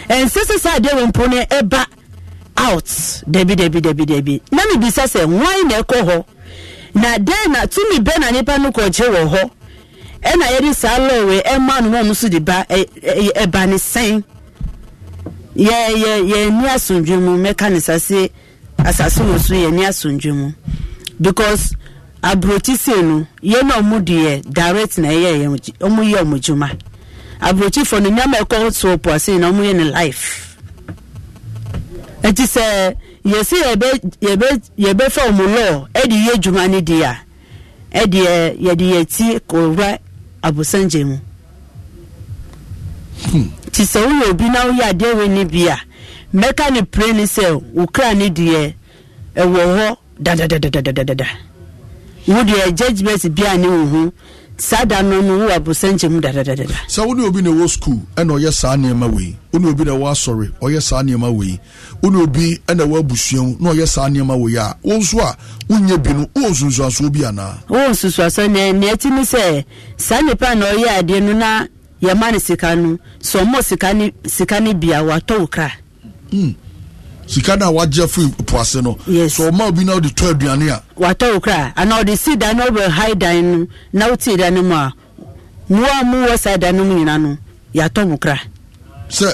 ɛnsɛ sɛ sɛ adeɛ wɔ mpo no ɛba out dabi dabi dabi dabi na mi bisa sɛ wɔn na ɛkɔ hɔ na den na tumi bɛ na nipa no kɔgye wɔ hɔ ɛna yɛde saa lɔɔre ɛma no wɔn nso de ba ɛɛ ɛba ne sɛn yɛ yɛ yɛ ni asundwe mu mɛka ne sase asase wɔ so yɛ ni asundwe mu because. aburokyi sei no na ɔmo deɛ direct na ɛyɛ yɛn ɔmo yɛ ɔmo dwuma aburokyi fo no nyama ɛkɔ so puase na ɔmo yɛ ne life eti sɛ yɛsi yɛbɛ yɛbɛ yɛbɛ fɛ ɔmo lɔɔ ɛde yɛ dwuma ne deɛ ɛdeɛ yɛde yɛ ti kɔwura abosangye mu hmm. ti sɛ woyɛ obi na woyɛ adeɛ wɔ ne bia mɛka ne pire ne sɛ ne wo deɛ judgement bi a ne wo ho saa da no no wo abosɛnkyɛ mu dadadadada sɛ wo ne obi na ɛwɔ school ɛna ɔyɛ saa nneɛma wei wo ne obi na ɛwɔ asɔre ɔyɛ saa nneɛma wei wo ne obi na ɛwɔ abusua mu na ɔyɛ saa nneɛma wei a wo nso a wonyɛ bi no wowɔ nsunsuasoɔ bi anaa wowɔ nsunsuasoɔ ne ne akyi ne sɛ saa nnipa na ɔyɛ adeɛ no na yɛma no sika no sɛ sika ne sika ne bia watɔ wo kra mm sika na wagye fi po ase no yes. so ɔma obi na ɔde tɔ aduane a watɔ wo kra anaa ɔde si dan na ɔbɛ hai dan no na wotii dan no mu a mmoa a mowɔ saa dan no mu nyina no yɛatɔ mo kra sɛ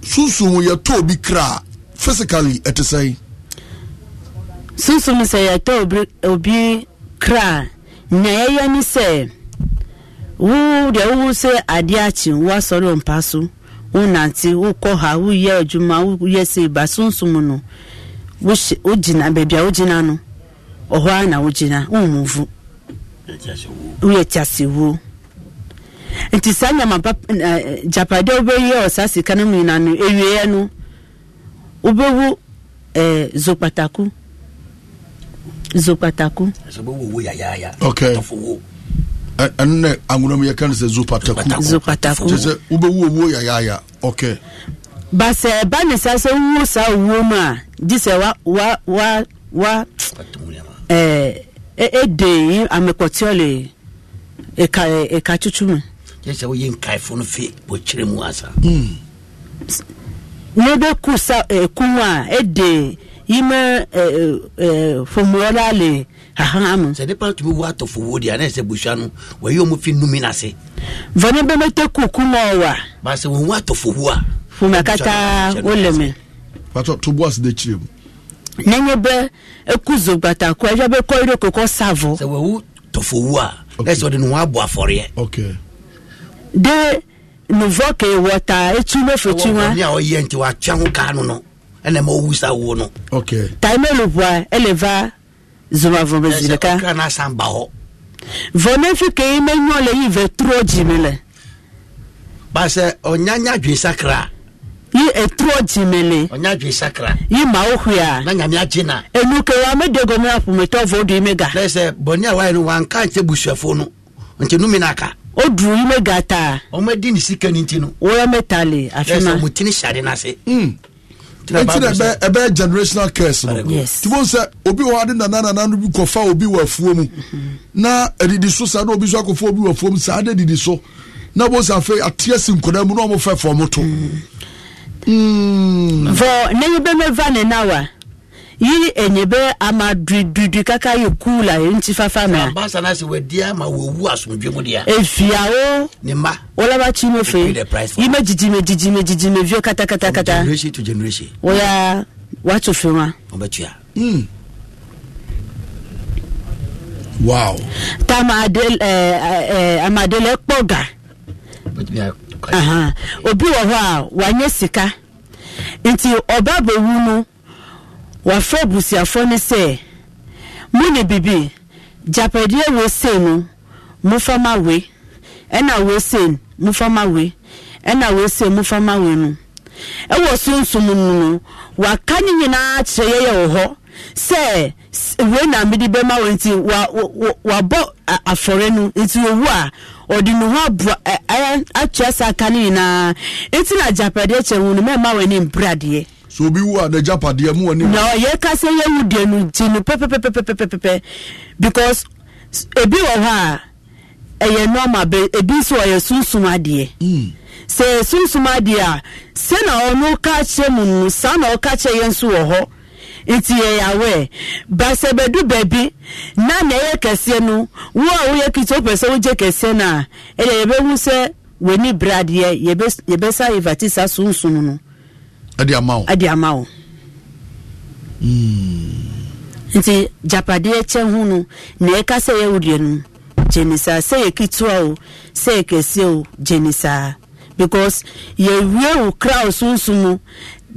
sunsum wo yɛtɔ obi kra a physically ɛte sɛn sunsum sɛ yɛtɔ obi, obi kra a nea yɛyɛ ne sɛ wo deɛ wowo sɛ adeɛ akye woasɔre ɔmpa so ntị ụkọ ha woyɛ adwuma woyɛ sei ba sonsom no wogyina beebi a wogyina no ɔhɔ ara na wogyina womuvu woyɛ tiasewuo nti saa nyama eh, eh, japade a wobɛyɛ sika no mu no no wobɛwu zokpataku zokpataku ɛno nɛ anwona mu yɛka no sɛ zopatakuɛ sɛ wobɛwu owuo yayaaya ok ba sɛ ɛba ne saa sɛ wowuo saa owuo mu a gye sɛ wa wa wa wa ɛɛ ɛde e, e amekɔtiɔle ɛka e ɛka tutu mu. yɛ sɛ woyɛ nkaefo no fe wɔkyerɛ mu asa. ne bɛ ku sa ɛkun a ɛde yimɛ ɛɛ ɛɛ fɔmuwɔla le hahan sɛ nipa tumi wo atɔfo wo deɛ anayɛ sɛ busua no wɔyɛ ɔmo fi numi n'ase. vani bɛmɛ tɛ kuku mɔ wa. baasi wɔn wo atɔfo wo a. fuma kata o lɛmɛ. patɔ to bɔ asi de kyerɛ mu. n'enye bɛ eku zo gbata kɔ ɛyɛ bɛ kɔ ire kɔkɔ savɔ. sɛ wo tɔfo wo a ɛsɛ ɔde ne ho abɔ afɔreɛ. de nuvɔ ke wɔta etu n'ofe tu wa. ɔwɔ ni a ɔyɛ nti wa tia ho kaa no no ɛna owu sa wo no. taimelu bua ɛlɛ va zoma vɔ bɛ zi ɖeka vɔ ne fi ke ye menyɔ le yi vɛ trɔ dzime le basɛ ɔnyanya dwi sakra yi etrɔ dzime le ɔnya dwi sakra yi mawo hwea na nyamia dzina enu ke wa me de gɔme aƒometɔ vɔ ɖu yi me ga lɛsɛ bɔnia wa yi no wa nka nse busuafo no nti nu mi na ka o du yi me ga taa ɔmɛ di ni sika ni ti no wɔyɔ me ta le afi ma lɛsɛ mutini sari na se. Mm nti na ɛbɛ ɛbɛ generational curse no ti sɛ obi wɔ adi nana nana no bi kɔfa obi wɔ afuo mu mm-hmm. na adidi so saa na obi so akɔfa obi wɔ afuo mu saa adi didi so na bɔ sɛ afei ateɛ si nkɔda mu na wɔn fɛ fɔm to. fɔ ne yi bɛ mɛ va ne na wa yi enyebe ama dududu kaka yi cool a nti fafa na. sábà sanna sè wà di ama wò wú asomdwe mu ya. efiawo. Eh, ne mba. wọlọba kyi mo fe yi ma jijime jijime jijime vio katakata. from generation to generation. wọ́yà wàtò fún wa. wọ́n bẹ tuya. wow. tá a ma adele pọ̀ ga. obi wọ hɔ a wànyɛ sika nti ɔbɛ abɛwu no. wɔafrɛ abusuafoɔ no sɛ mo ne bibi gyapadeɛ wosei no mofa ma we ɛna wosei mofa ma we ɛna wosei mofa ma we no ɛwɔ sunsum no no waka ne nyinaa kyerɛ yɛyɛ wɔ hɔ sɛ wei na mede bɛma wɔ nti wabɔ afɔre no nti owu a ɔde ne ho aboa akyerɛ sɛ aka no nyinaa nti na agyapadeɛ kyerɛ wo no mɛma w'ani mbradeɛ so obi wu a n'agya padeɛ mu wɔ ne na yɛ kasa yɛ wu deɛ no ti no pɛpɛpɛpɛpɛpɛ because ebi wɔ hɔ a ɛyɛ normal bɛ ebi nso ɔyɛ sunsun adeɛ. Mm. sɛ sunsun adeɛ a sɛ na ɔno ka kyerɛ mu no saa na ɔka kyerɛ yɛn nso wɔ hɔ nti yɛyɛ awɛ basabɛdu baabi na na ɛyɛ kɛseɛ no wo a woyɛ kiti wopɛ sɛ wogye kɛseɛ no a ɛdeɛ yɛbɛhu sɛ w'ani bere adeɛ yɛbɛsa yɛvati sunsun no. ɛde ama wo ɛde ama wo hmm. nti japadeɛ kyɛ ho no na ɛka sɛ yɛwodeɛ no gye ne saa sɛ yɛ ketewa o sɛ yɛ kɛseɛ o gye ne saa because yɛwie wo kra o sunsum mu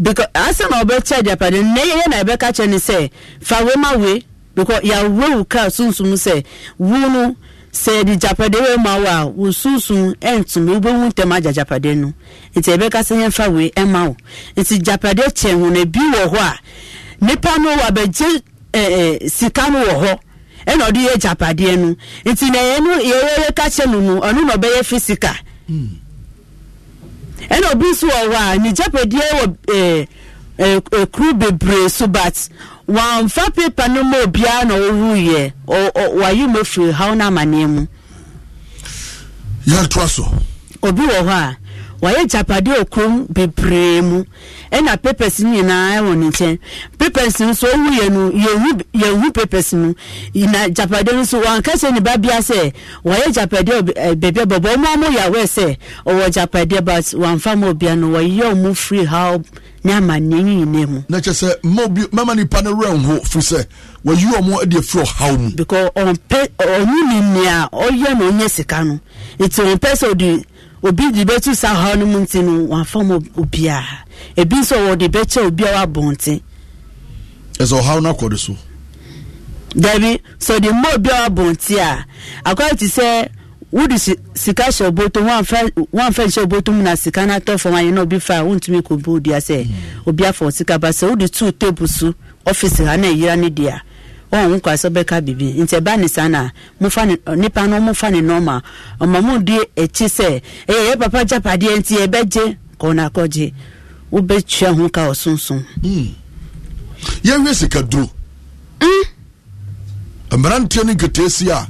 because asɛ na ɔbɛkyɛ japadeɛ no na yɛyɛ na ɛbɛka kyɛ ne sɛ fa wema we because yɛawie wo kra o sunsum sɛ wo no sɛ japade wei ma wo a wo sunsun ɛntum wobɛwu ntɛm agya japade no nti ɛbɛka sɛ yɛmfa wei ɛma wo nti japade kyɛ ho na bi wɔ hɔ a nipa no wɔ ɛɛ sika no wɔ hɔ ɛna ɔde yɛ japadeɛ no nti na yɛn no yɛyɛ ka kyɛ no no ɔno na ɔbɛyɛ fisika hmm. ɛna obi nso wɔ hɔ a ne japade wɔ ɛɛ ɛɛ kuru bebree so bat wɔnfa pepa no mu obiara na ɔwuiɛ wayi mu firi haw no amanneɛ mu yɛntoa so obi wɔ hɔ a wayɛ japadeɛ okurom bebree mu ɛna papers nyinaa ɛwɔ ne nkyɛn papers nso owu yɛ no yɛhu yɛhu papers no na japadeɛ no nso wankasa ne ba bia sɛ wayɛ japadeɛ beebi bɔbɔ ɔmo ɔmo yɛ awɛ sɛ ɔwɔ japadeɛ but wanfa mo bia no wɔyɛ ɔmo free how ne amanneɛ ne nyinaa mu. na kyerɛ sɛ mma obi mma nipa no wura nho firi sɛ wɔyi wɔn de afiri ɔhaw mu. because ɔmpɛ ɔnyi ni nea ɔyɛ na ɔnyɛ sika no nti ɔmpɛ sɛ ɔde obi de bɛtu saa haw no mu nti no wafa ma obiara ebi nso wɔde bɛkyɛ obi a wabɔnten. ɛsɛ ɔhaw no akɔde so. dabi sɛ ɔde mma obi a wabɔnten a akɔyɛ ti sɛ wodi sika hyɛ ɔbɔtɔ wɔnfɛ nhyɛ ɔbɔtɔ mu na sika no atɔ fam ayɛ na obi fa a wɔntumi kɔ bɔ odua hmm. obi afa ɔsika ba sɛ wodi tuu teepu so ɔfisi ha na eyira ne deɛ. ɔn oh, nkwa sɛ bɛka bibi nti ɛba e ne saa na mofa ne nipa no mofa ne nɔɔma ɔma di akyi sɛ ɛyɛ yɛ papa gya padeɛ nti ɛbɛgye kɔɔna akɔgye wobɛtua ho ka ɔsonson. Hmm. yɛhwɛ sika duro mmeranteɛ e ne nketeesi a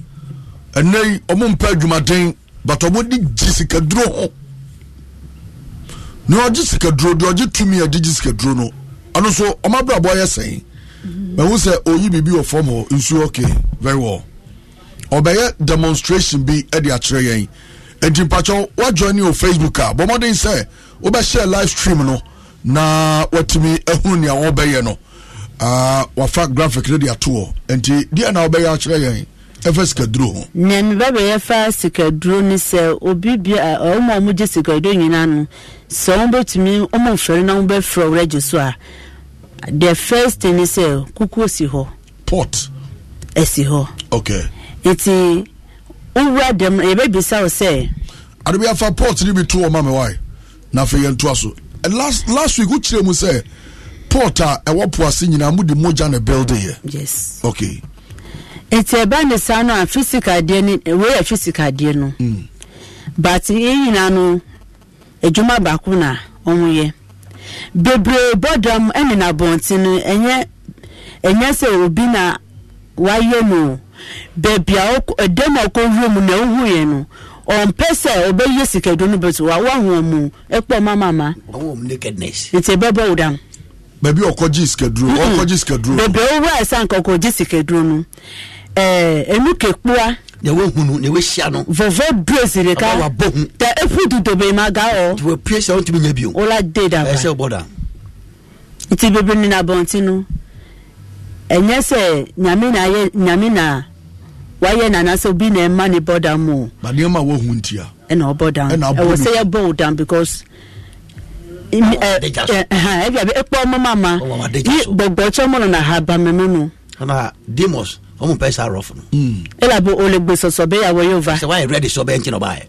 ɛnɛ yi ɔmo mpɛ adwumaden but ɔmo de gye sika duro ho na ɔgye sika duro deɛ ɔgye tumi a ɛde gye sika duro no ɔno nso ɔmo abrabɔ yɛ sɛn. mɛhu sɛ ɔyi biribi wɔ fam hɔ nsu okay very well ɔbɛyɛ demonstration bi de akyerɛ yɛn nti mpakyɛw wajoine wɔ facebook a bɔ mmɔden sɛ wobɛhyɛ live stream no na watumi ahunu eh, nea wɔbɛyɛ no uh, ah, wafa graphic no de ato hɔ nti deɛ na wobɛyɛ akyerɛ yɛn ɛfɛ sikaduro ho. Oh. nea mi ba bɛ yɛ fa sikaduro ni sɛ obi bi a ɔmo eh, eh, a ɔmo gye sikaduro nyinaa no sɛ ɔmo bɛtumi ɔmo nfɛrɛ na ɔmo bɛfrɛ ɔwura gye so a. Ah. the first thing is sɛ uh, kukuo si hɔ pot ɛsi hɔ okay nti wowura dɛm yɛbɛbisa wo sɛ ade afa pot ne bi to ɔma me wae na afei yɛntoa so last last week wokyerɛ mu sɛ pot a ɛwɔ poase nyinaa mode mogya ne buildeyɛ yes okay nti ɛba ne saa no a physical adeɛ ne wei yɛ physical adeɛ no mm. but yɛ nyinaa no edwuma baako na ɔmo yɛ bebree bɔdam ɛne n'abɔnten no ɛnyɛ ɛnyɛ sɛ obi na wayɛ no beebi a ɛdɛm a ɔkɔwura mu na ɛhu yɛ no ɔmpɛ sɛ ɔbɛyɛ sikadu no bɛtɛ wa wahu ɔmu ɛkpɔ mamama. ɔwɔ mu nakedness. nti ɛbɛbɔ wo dam. baabi ɔkɔgye sikaduro ɔkɔgye sikaduro. bebree owura ɛsan kɔkɔgye sikaduro no ɛɛ enu kekua. na wahunu na wahyia no vɔvɔ duro sirika wabɔ hu ta efu tuto bɛyi ma ga hɔ nti wapue sɛ wontumi nya bio wola de da ba ɛsɛ wobɔ da nti bebree ne na abɔnten no ɛnyɛ sɛ nyame na ayɛ nyame na wayɛ nana sɛ obi na ɛma ne bɔ dam o ba nneɛma wahu ntia ɛna ɔbɔ dam ɛwɔ sɛ yɛbɔ wo dam because ɛbi abi ekpɔ ɔmo mama yi gbɔgbɔ tsɔmɔ na ha ba mɛmɛ no. ana demos. ɔmu pɛ sa rɔfu no. ela bo olegbe sɔsɔ bɛ yà wɔ yóò va. sɛ wàá yɛ rɛdi sɔ bɛ n tí na ɔbaa yɛ.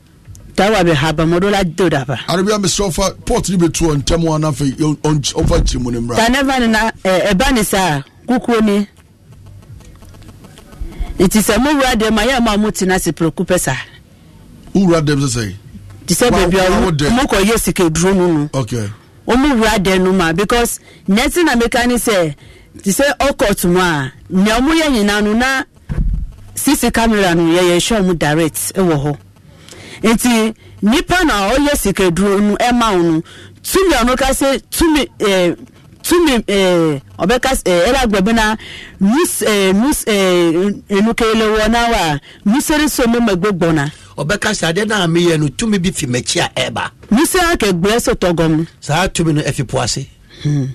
tawa bɛ ha mɔdɔ la do daba. arabiya misiri ɔfa port ni bɛ tu ɔ ntɛmu anafɛ ɔfa ti mu ni mura. tanɛfa nina ɛ ɛba ni sa kukuo ni nti sɛ mo wura dɛm a yɛ mo a mo tena se poroku pɛ sa. mo wura dɛm sisan. ti sɛ beebi a mo kɔ yɛ sike duro nunu. ok. wɔn mo wura dɛm n'uma ma because nɛɛsi na meka ni te sɛ ɔkɔt mu a nea ɔmo yɛ no na sisi kamera no yɛyɛ hwɛ ɔmo direct wɔ hɔ nti nipa na ɔyɛ sikaduro no ɛma wo no tumi ɔno ka tumi ɛɛ tumi ɛɛ ɔbɛka ɛɛ na mus ɛɛ mus ɛɛ enukele wɔ n'awa so ma na. ɔbɛka bi fi mɛkyi a ɛɛba. musere akɛgbɛ so saa tumi no e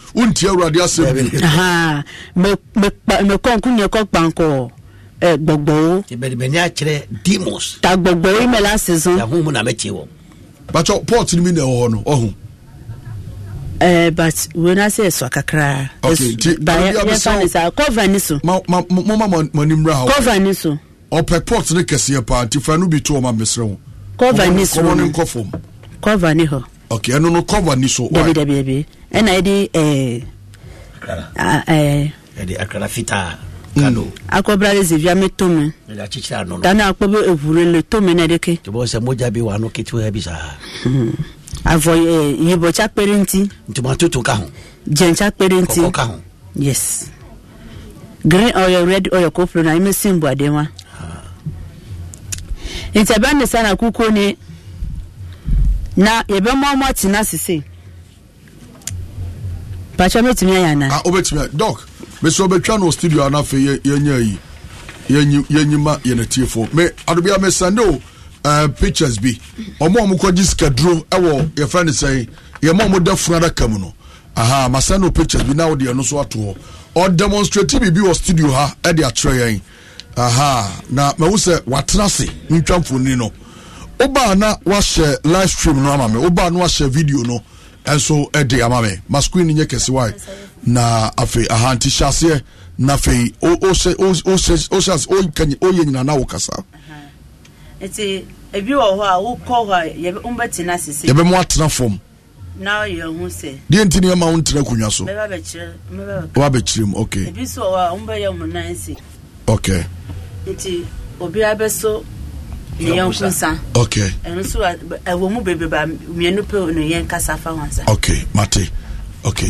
wontie awurade asɛm bi mekɔnko neɛkɔ kpankɔɔ gbɔgbɔwo ta gbɔgbɔwo imɛla sezo bakyɛ port no mi na ɛwɔ hɔ no ɔho na sɛ ɛsɔ kakraa n'ime ị na cover ni so moma manimra cover ni so ɔpɛ port ne kɛseɛ paa nti fa no bi to ɔma mesrɛ ho ni so ne nkɔ fam ɛno no cover ni so ɛna yɛde eh, akara fitaa kado akɔbra de zevia me tome tane akpɔ be eʋure le tome ne ɖeke avɔ yibɔ tsa kpe ɖe ŋuti ntumatoto ka ho dzẽ tsa kpe ɖe ŋuti ka ho yes green oil red oil ko ƒle na ime simbu ade wa ah. nti ɛbɛ ne sa na kuku ne na yɛbɛ mɔmɔ tena sese pàṣẹ mẹtìmí ẹyà náà. ah obetumi doc mesia obetwa no studio anafe yẹ yẹnyẹ yi yẹnyi yẹnyi ma yẹn ti fo me adubia me sande o eh, pictures bi ọmọ ọmọ kọ jí sikaduro ẹwọ yẹfẹ ne sẹyìn yẹmọ ọmọ dẹ funu adaka mu no aha ma sande o pictures bi náà ọdẹ ẹnu so ato hɔ ọ demonstrate biribi wɔ studio ha ɛde akyerɛ yɛn aha na mɛwu sɛ watena ase ntwa mfoni no ɔbaa na wahyɛ live stream no ama me ɔbaa na wahyɛ video no. ɛnso ɛde ama nye masqueen nyɛ kɛsewae na afei ahanti hyɛaseɛ na afei woyɛ nyina na wo kasa nti ebi wɔ hɔ a wokɔ hɔ a wombɛtena sese yɛbɛmo atena fam na ɔyɛ ho sɛ deɛ nti ne ɛma wo ntena akonnwa so wabɛkyerɛ mu ok ebi so wɔ hɔ a wombɛyɛ mo nan se ok nti obiara bɛso yɛn nkusa okay ɛno nso ɛwɔ mu a mmienu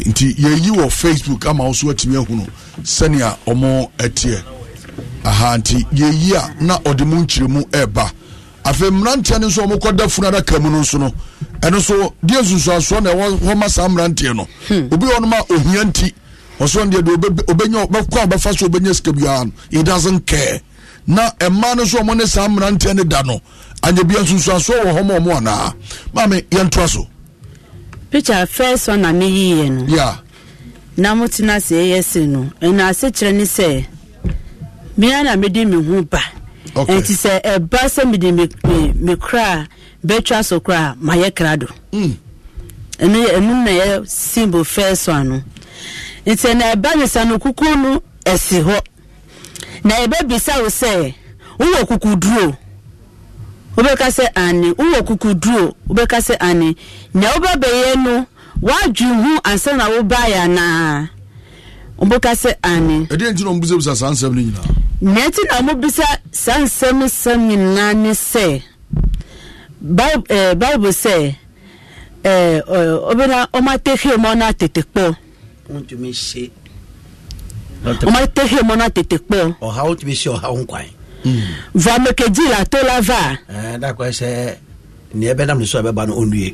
nti yɛyi wɔ facebook ama wo so atumi ahunu sɛnea ɔmo ɛteɛ aha nti yɛyi a na ɔde mu ɛɛba afei mmeranteɛ no nso funu adaka mu no nso no ɛno nso deɛ na ɛwɔ hɔ saa mmeranteɛ no hmm. obi wɔ ohia nti deɛ deɛ a ɔbɛfa so obɛnya sika biara no na mmaa no nso ɔmo ne saa mmeranteɛ no da no anyabia nsunsuansoɔ wɔ hɔ ma ɔmo anaa maame yɛntoa so Picha first one na meyiiɛ no yeah. na mote no ase ɛyɛ se no ɛna asekyerɛ ne sɛ mea na mede me ho ba okay. ɛnti sɛ ɛba sɛ mede me kora a bɛtwa so kora a mayɛ kra do mm. ɛno ɛno na ɛyɛ symbol first one no nti ɛna ɛba ne sa no kukuo no ɛsi hɔ na ebe yɛbɛbisa wo sɛ wowɔ kukuduro wobɛka sɛ ane wowɔ kukuduro wobɛka sɛ ane nea wobɛbɛyɛ no woadwen ho ansa na wobaeɛ anaa wobɛka sɛ ane ɛdeɛ nti na ɔmbisabisa saa nsɛm no nyinaa na ɛnti na mobisa saa nsɛm nsɛm nyinaa ne sɛ eh, bible sɛ eh, ɔbɛna ɔmatehwɛ ma ɔno atetekpɔ ntumi ɔmatɛhe mɔ no atetekpɛ o ɔhawo tumi si ɔhawo nkwan va mekegyi la to la va da kɔ sɛ neɛ bɛnam ne so a bɛba no ɔnnue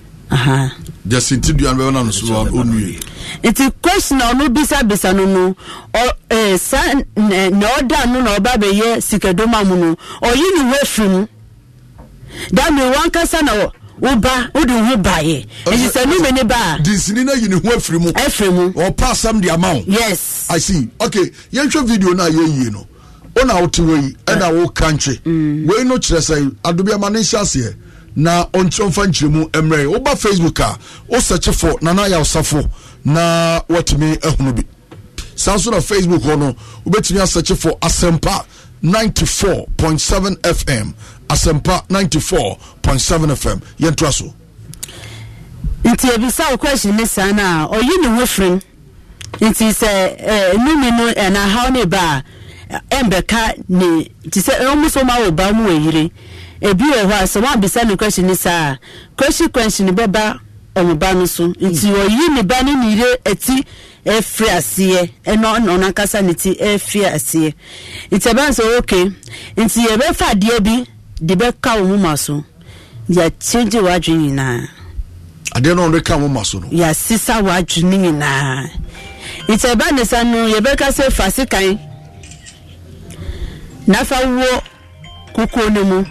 jẹsi ti dua bẹ na nusu wa o nu ye. nti question ọ̀nù bisabisa nínú ẹ sa ní ọ̀dà nínú na ọba bẹ yẹ sikẹ̀dọ́mà mu nù ọ̀yí ni wọ́n fi mu dàmí wọn kásá náà woba wode wo ho baeɛ ɛnti sɛ nome ne ba a dinsini no ayi ne ho afiri mu ɛfiri mu ɔpa asɛm de ama wo yes i see okay yɛnhwɛ video no a yɛyie no wona wote wɔ yi ɛna ah. woka nkye mm. wei no kyerɛ sɛ adobiama ne nhyɛ aseɛ na ɔnkyerɛmfa nkyerɛmu mmerɛ woba facebook a wosɛkye nana nana yɛwosafo na watumi ahunu bi saa nso na facebook hɔ no wobɛtumi asɛkye fo asɛmpa 94.7 fm Asempa 94.7 fm yɛntoa so nti ebisa wo question ne saa no a ɔyi ne ho firim nti sɛ numi eh, no ɛna eh, ne ba a ɛmbɛka eh, ne nti sɛ ɔmo so ma wɔ ba mu wɔ yire ebi wɔ hɔ a sɛ wabisa ne question ne saa a question question bɛba ɔmo ba no so nti ɔyi hmm. ne ba ne ne yire eti efiri aseɛ ɛna ɔno ankasa ne ti efiri aseɛ nti ɛbɛn sɛ okay nti yɛbɛfa adeɛ bi. de bɛka wo moma so yɛkyegye w'adwe nyinaa adeɛ no ɔde ka moma so no yɛasesa w'adwe no nyinaa nti ɛba ne sa no yɛbɛka sɛ fa sekan na fa wɔ kukuo no mu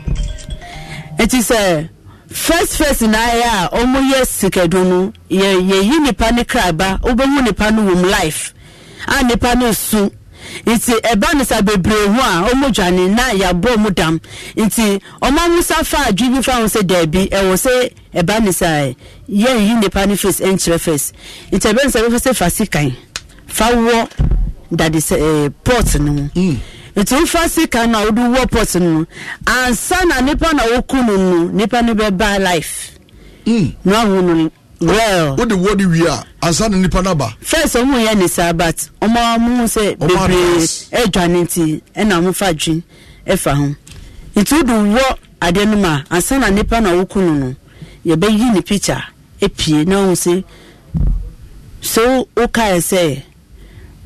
nti sɛ first first na ayɛ a ɔmo yɛ sikadu no yɛyi nipa ne kraba wobɛhu nipa no life a nipa no nti ɛba no sa bebree ho a ɔmo dwane na yabɔ ɔmo dam nti ɔmo amusa fa adwi bi fa ho sɛ daabi ɛwɔ sɛ ɛba no sa yɛn yi nipa no face ɛnkyerɛ face nti ɛbɛn sa bɛfɛ sɛ fa sikan fa wɔ dade sɛ ɛɛ pɔt no mu mm. nti wofa sika na a wode wɔ pɔt no mu ansa na nipa na woku no no nipa no bɛba life mm. na ɔmo well wọ́n di wọ́ọ̀dì wia ansa ni nipa naba. first ọmọ yẹn ni sáà but ọmọ ọmọ sẹ bebree ẹdwa ne ti ẹna ọmọ fa dwi ẹfa ho nti o de wọ adeɛ no mu a ansa na nipa na ɔwɔku no no yɛbɛyi ne picture epie na ɔmo sɛ so ɔka yɛ sɛ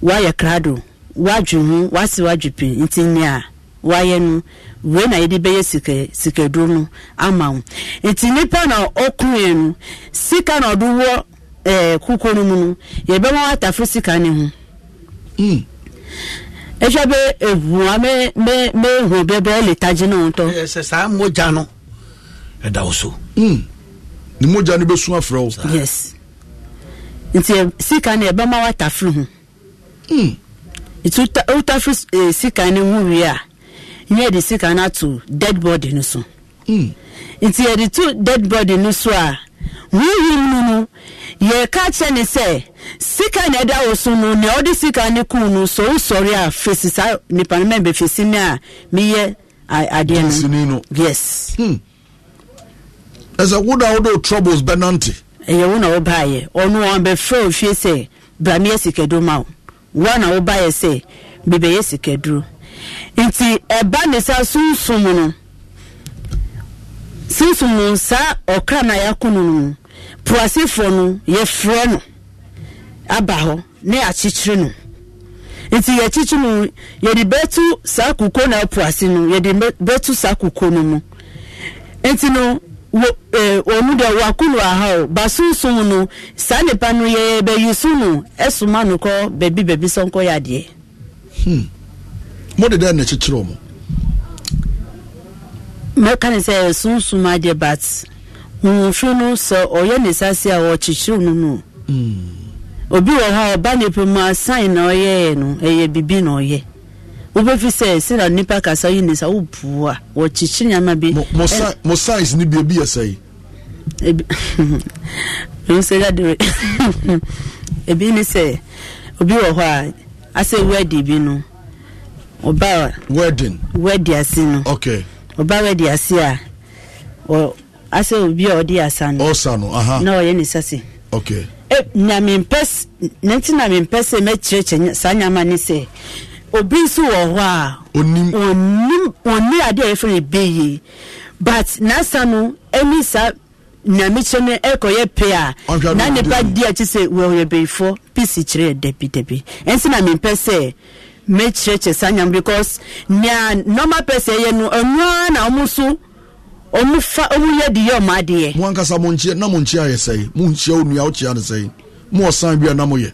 wayɛ krado wadwi ho wasi wadwi pii nti nea wayɛ no. wei na yɛde bɛyɛ sikaduro no ama wo nti nipa na ɔkuruɛ no sika na ɔde wɔ ɛɛ eh, kukuo no mu no yɛbɛma atafo sika ne ho ɛhwɛ hmm. bɛ ehu a mɛ mɛ mɛ ehu bɛ bɛ ɛlitagye ne ho ɛsɛ eh, saa mogya no ɛda wo so. Hmm. ni mogya no bɛ sun afrɛ wo. yes nti eh, sika no yɛbɛma atafo ho hmm. nti sika ne ho wie a. na yɛde sika no ato dead body no so nti yɛde to dead body no so a hmm. huhum ah, no no yɛka kyerɛ ne sɛ sika na ɛda wo so no nea ɔde sika ne kum no so wosɔre a fesi saa nipa no mɛn bɛfesi me a meyɛ adeɛ no yes ɛsɛ woda wode troubles bɛnante ɛyɛ wo na wobaeɛ ɔno ɔn bɛfrɛ ofie sɛ bra meyɛ sikaduro ma wo wo na wobaeɛ sɛ bebɛyɛ sikaduro nti ɛba ne sa sunsum no sunsum no saa ɔkra na yɛako no no puasefoɔ no yɛfrɛ no aba hɔ ne akyekyere no nti yɛkyekye no yɛde na no saa koko no mu nti no eh, deɛ no saa nipa no yɛ bɛyi ɛsoma no kɔ beebi beebi Hmm. mode dɛn na kyekyerɛ ọmụ. mɛka ne sɛ sunsum adeɛ but nwomfiri no sọ ɔyɛ ne sase a wɔkyekyere no hmm. obi wɔ hɔ a ɔba nipa mu asan na ɔyɛɛ no ɛyɛ bibi na ɔyɛ wobɛfi sɛ sena nipa kasa yi n'isa sa a wɔkyekyere nyama bi mo science ne bia bi yɛ sɛ [laughs] [laughs] ebi ne sɛ obi wɔ hɔ a asɛ wadi bi no ọba wedding wedi ase no okay ọba wedi ase a ọ ase obi a ọdi asa no ọsa no aha na ọyẹ ne sase okay e nyame mpẹs nẹti nyame mpẹs ẹ mẹkyerẹkyerẹ saa nyama ne sẹ obi nso wọ hɔ a onim onim oni ade a yɛfrɛ no beye but n'asa no ɛni saa nyamekyerɛ no ɛkɔyɛ pɛ a na nipa di akyi sɛ wɔyɛ beyifɔ pisi kyerɛ dabi dabi ɛnso na mepɛ sɛ mɛkyerɛkyerɛ saa nyam because nea normal person yɛ no ɛnoa na ɔmo so ɔmo fa ɔmo yɛ de yɛ ɔmo adeɛ. mo ankasa mo nkyia na mo nkyia yɛ sɛyi mo nkyia o nua o kyia ne sɛyi mo ɔsan bi a na mo yɛ.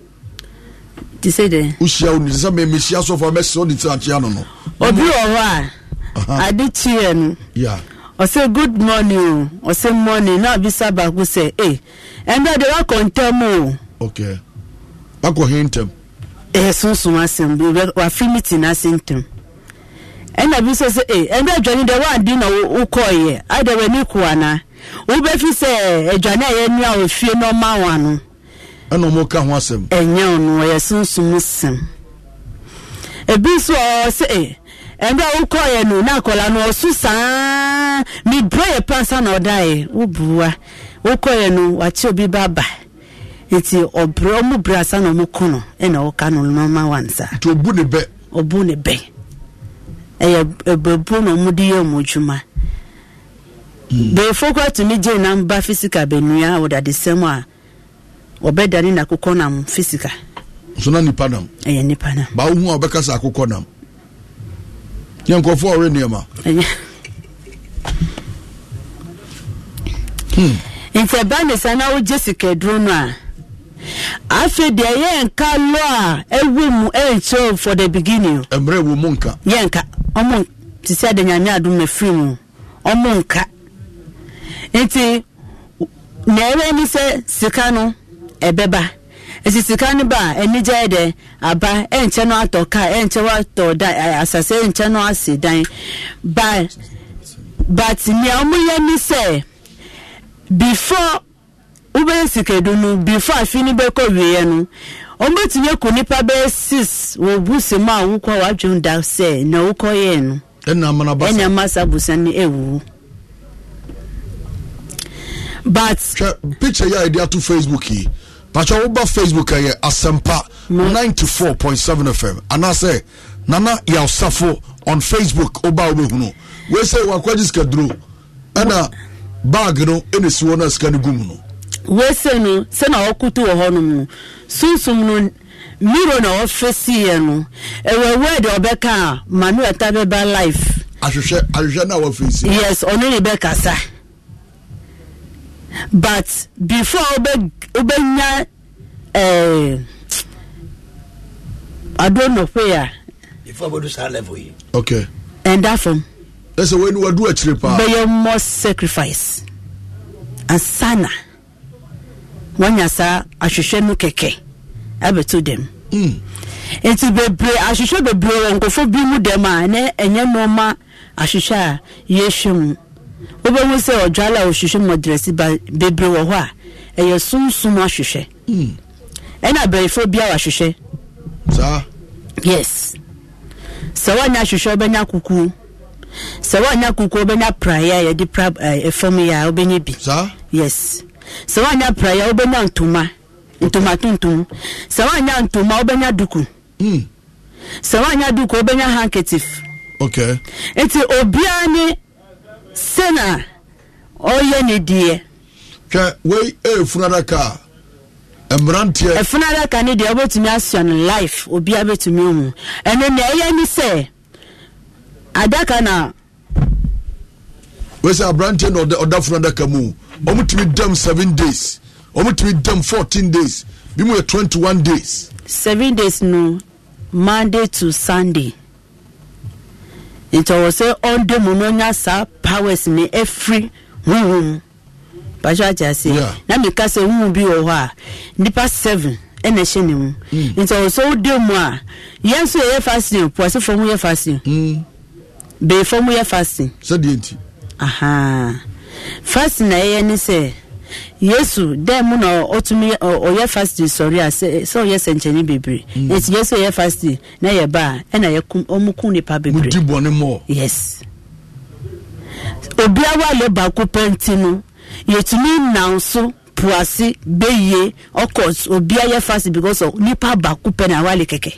ti sɛ de. o hyia o nua sɛ mɛ mɛ hyia sɔfo a mɛ sɛ o de ti a kyia no no. obi wɔ hɔ a ade kyiɛ no. ɔsɛ good morning o ɔsɛ morning na abisa baako sɛ ee eh, ɛnna de wakɔ ntɛm o. okay wakɔ hin ntɛm. ɛyɛ e sunsun asɛm wafi meeting ase ntɛm ɛna bi sɛ sɛ eh, deɛ wadi na wokɔɔyɛ ada w'ani ko ana wobɛfi sɛ adwane a yɛni a ofie na ɔma wa no. ɛna ɔmo ka ho asɛm. ɛnyɛ ɔno ɛyɛ sunsun asɛm ebi nso ɔɔ sɛ ee eh, ɛnna wokɔɔyɛ no na no ɔso saa yɛ pansa na ɔda yɛ wobua wokɔɔyɛ no wakye obi ba ba. nti ɔbrɛ ɔmo brɛ asa na ɔmo e kɔ no ɛna ɔka no nɔɔma wansa. nti obu ne bɛ. obu ne bẹ. ɛyɛ ɛbɛbu na ɔmo hmm. de yɛ ɔmo adwuma. bɛyɛfo kura tumi gye namba fisika bɛnua ɔdadesɛm a ɔbɛdane na akokɔ nam fisika. nso na nipa nam. ɛyɛ nipa nam. baa ohun a ɔbɛka sa akokɔ nam Nye nkɔfo ɔre nneɛma. ɛyɛ. Hmm. nti ɛbaa ne sa na ɔgye sika duro no a. afei deɛ yɛn nka lɔ a ɛwɔ mu ɛnkyerɛ for the beginning. mmerɛ wo mu nka. yɛn nka ɔmo te sɛ de nyame adum efiri mu ɔmo nka nti na ɛwɛ ni sɛ sika no ɛbɛba esi sika no ba anigya yɛ dɛ aba ɛnkyɛ no atɔ kaa ɛnkyɛ no atɔ dan asase ɛnkyɛ no ase dan ba but nea ɔmo yɛ ni sɛ before. wobɛyɛ sikadu no before afi no bɛkɔ wieɛ no ɔmbɛtumi akɔ nipa bɛyɛ six wɔ busa mu a wokɔ wadwen da sɛ na wokɔyɛɛ no ɛna masa busa no ɛwuwu but hwɛ picture yɛ a yɛde ato facebook yi patwa woba facebook ɛyɛ asɛmpa 94.7 fm anaasɛ nana yɛwsafo on facebook woba wobɛhunu wei sɛ wakɔgye sikaduro ɛna bag no ɛna si wɔ no a sika no gu mu no wese no sɛ na ɔkoto wɔ hɔ nom no sunsum no miro na ɔfɛsiiɛ no ɛwɔ word ɔbɛka a manuel ta bɛba life ahwehwɛ ahwehwɛ na wɔfɛsi yes ɔno ne bɛkasa but before ɔbɛ ɔbɛnya ɛɛ adonɔpe a. Ah. before ɔbɛdu saa level yi. okay. ɛnda fam. ɛsɛ wɔn ni wɔdu akyire paa. bɛyɛ more sacrifice asana. wɔnya saa ahwehwɛ no kɛkɛ abɛto dɛm mm. nti bebree ahwehwɛ bebree wɔ nkɔfo bi mu a na ɛnyɛ nneọma ahwehwɛ a yɛhwɛ mu wobɛhu sɛ ɔdwale a ɔhwehwɛ mu ɔdrɛsi ba bebree wɔ hɔ a ɛyɛ sunsun ahwehwɛ mm. ɛna abɛɛfo bi a wahwehwɛ saa yes sɛ wɔnya ahwehwɛ ɔbɛnya kukuo sɛ kukuo eh, bi sɛ woanya praya wobɛnya ntoma ntoma tuntum sɛ woanya ntoma wobɛnya duku hmm. sɛ woanya duku wobɛnya handkerchief okay. nti obiara ne sena ɔyɛ ne deɛ hwɛ wei ɛyɛ e, funadaka a mmeranteɛ ɛfunadaka ne deɛ wobɛtumi asua no life obiara bɛtumi ɔhu ɛno nea ɛyɛ ne sɛ adaka na wei sɛ aberanteɛ na ɔda funadaka mu ɔmotumi dam seven days ɔmotumi dam fourteen days bi mu yɛ twenty one days. seven days no monday to sunday nti ɔwɔ sɛ ɔnde mu no nya saa powers ne ɛfiri huhum bàtú àti ase na mìka sɛ huhum bi wɔ hɔ a nipa seven ɛna ɛhyɛ ne mu hmm. nti ɔwɔ sɛ ɔde mu a yɛn nso yɛ fasting puwasi fam yɛ fasting mm. bɛɛ fam yɛ fasting. sɛ deɛ nti. fast na ɛyɛ ne sɛ yesu dɛn mu na ɔtumi ɔyɛ fast sɔre a sɛ ɔyɛ sɛnkyɛnni bebree mm. yesu ɔyɛ fast na yɛ ba a ɛna yɛ kum ɔmo kum nipa bebree. mo di bɔnne mɔ. yes obiara alɛ baako pɛnti no yɛtumi nan so puase bɛyie ɔkɔ obi yɛ fast because of nipa baako pɛ na kɛkɛ.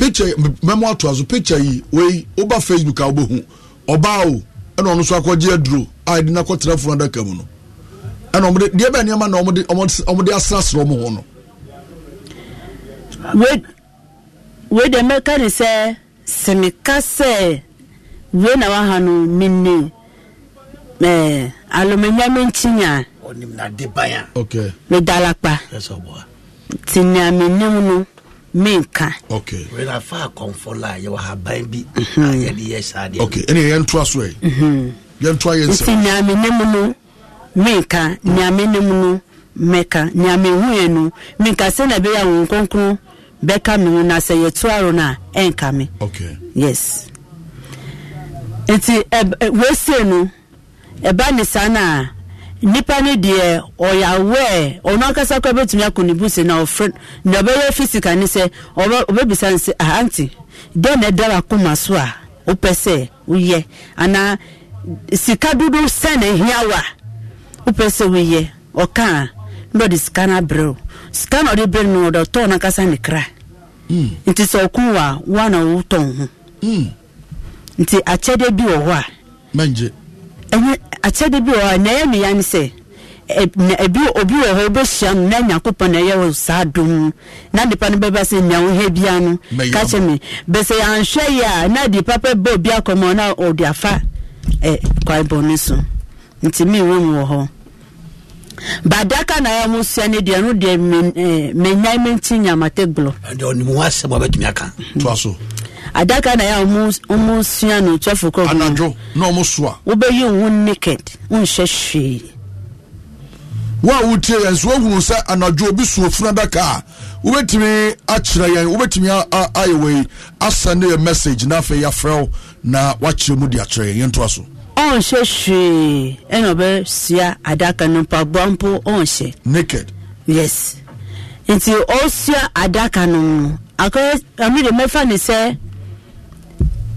picture mɛmo ato aso picture yi wei woba facebook a wobɛhu ɔbaa o ɛna ɔno nso akɔgye aduro a yɛde no akɔtena funu adaka mu no ɛna na ɔmde ɔmde asrasrɛ ɔmo ho no wei wei deɛ mɛka ne sɛ na waha no menne ɛɛ menka okay. fa akɔmfo la haban bi yɛde yɛ saa deɛ okay. ɛne so ɛ yɛntoa yɛ nsɛmnti neame ne mu no menka neame ne mu no mɛka neame huɛ no menka sɛ na ɛbɛyɛ bɛka na sɛ yes nti no ɛba ne saa no a nipa ni deɛ ɔyɛ aware ɔno ankasa kora bɛtumi akɔ ne buse na ɔfrɛ na ɔbɛyɛ physical ne sɛ ɔbɛbisa ne sɛ ahanti dɛn na ɛdara akoma so a wopɛ sɛ woyɛ anaa sika dodo sɛ na ɛhia wopɛ sɛ woyɛ ɔka a na ɔde sika na abrɛ o sika na ɔde brɛ no ɔde ɔtɔn no ne kra hmm. nti sɛ ɔko wa a woa na wotɔn ho hmm. nti akyɛdeɛ bi wɔ hɔ a ɛnyɛ akyɛde bi wɔ hɔ na ɛyɛ no ya ne sɛ ebi obi wɔ hɔ obɛhyia no na nyankopɔn na ɛyɛ wɔ saa dum na nipa no bɛba sɛ nea wohɛ bia no ka kyɛ me bɛsɛ yɛanhwɛ yɛ na de papa bɛ obi akɔmmɔ na ɔde afa kwae bɔne so nti mi mewɔ mu wɔ hɔ badaka na ɛyɛ mo sua no deɛ no deɛ menyae menti nyamatɛ gblɔ ɔnimu asɛm a bɛtumi aka mhm. toa so adaka na ya ɔmo sua no twelve Anajo anadwo na ɔmo so a. wobɛyi ohun naked nhyɛ hwee. wo a wotie yɛn so wohunu sɛ anadwo obi suo funu adaka a wobɛtumi akyerɛ yɛn wobɛtumi ayɛ wei asɛnde yɛ message na afei yɛafrɛ wo na woakyerɛ mu de akyerɛ yɛn yɛntoa so ɔnhyɛ hwee ɛna ɔbɛsua adaka no mpaboa mpo ɔnhyɛ naked yes nti ɔsua adaka no no akɔyɛ de mɛfa ne sɛ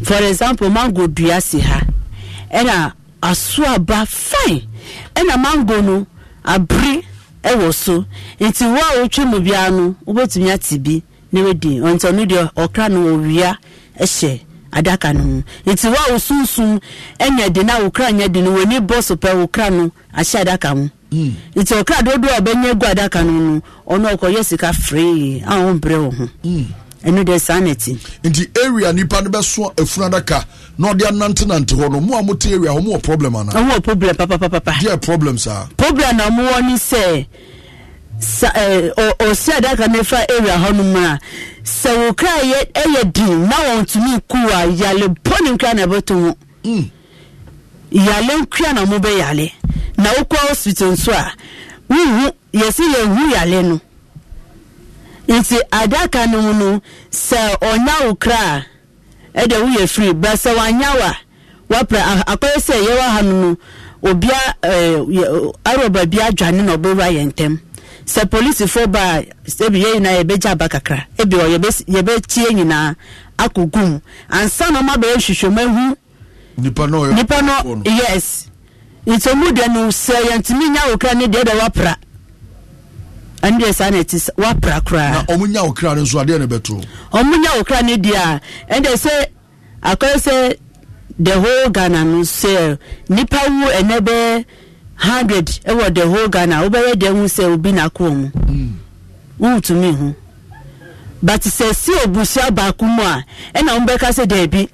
for example mango dua si ha ɛna aso aba fine ɛna mango no abiri ɛwɔ so nti wo a wotwa mu bia no wobɛtumi ate bi na wadi nti ɔno deɛ ɔkra no ɔwia ɛhyɛ adaka no mu nti wo a wosunsum ɛnya de na wokra nya de no w'ani bɔ so pɛ wokra no ahyɛ adaka mu hmm. nti ɔkra dodoɔ a ɔbɛnya gu adaka no no ɔno ɔkɔyɛ sika free a wɔmbrɛ wɔ ho hmm. ɛno deɛ saa na ti. nti area nipa no bɛso efunu adaka na ɔde anantenante hɔ no mu a mo te area wɔn wɔ problem ana. wɔn wɔ problem papapapa. deɛ problem saa. Ah. problem na wɔn wɔ ni sɛ sa ɛɛ eh, ɔ ɔsi adaka na efa area hɔ nom a sɛ wò kra yɛ ɛyɛ din na wɔn tumi ku a yale pɔni kra na ɛbɛto ho. Mm. yale kra na mo bɛ yale na okɔ hospital nso a wuhu yɛsi yɛ hu yale no. nti adaka no mu no sɛ ɔnya wo kra a ɛde woyɛ firi bra sɛ wanya wa wapra akɔyɛ sɛ yɛwɔ ha no no obia ɛɛ eh, bi adwane na ɔbɛwura yɛn ntɛm sɛ polisifoɔ baa ebi yɛ nyinaa yɛbɛgye aba kakra ebi wɔ yɛbɛtie nyinaa akogum ansa na ɔma bɛyɛ hwehwɛmu ehu nipa no yɛ nipa no yes nti ɔmu deɛ no sɛ yɛntumi nya wo kra ne deɛ deɛ wapra. ɛndeɛ saa na ɛti wapra koraa na ɔmo nya okra no nso adeɛ na ɛbɛto ɔmo nya okra no deɛ a ɛndeɛ sɛ akɔyɛ sɛ the whole ghana no sɛ nipa wu ɛnɛ bɛ hundred ɛwɔ the whole ghana wobɛyɛ deɛ ho sɛ obi na kɔn mu hmm. wɔntumi ho but sɛ si obusua baako mu a ɛna wɔn bɛka sɛ deebi.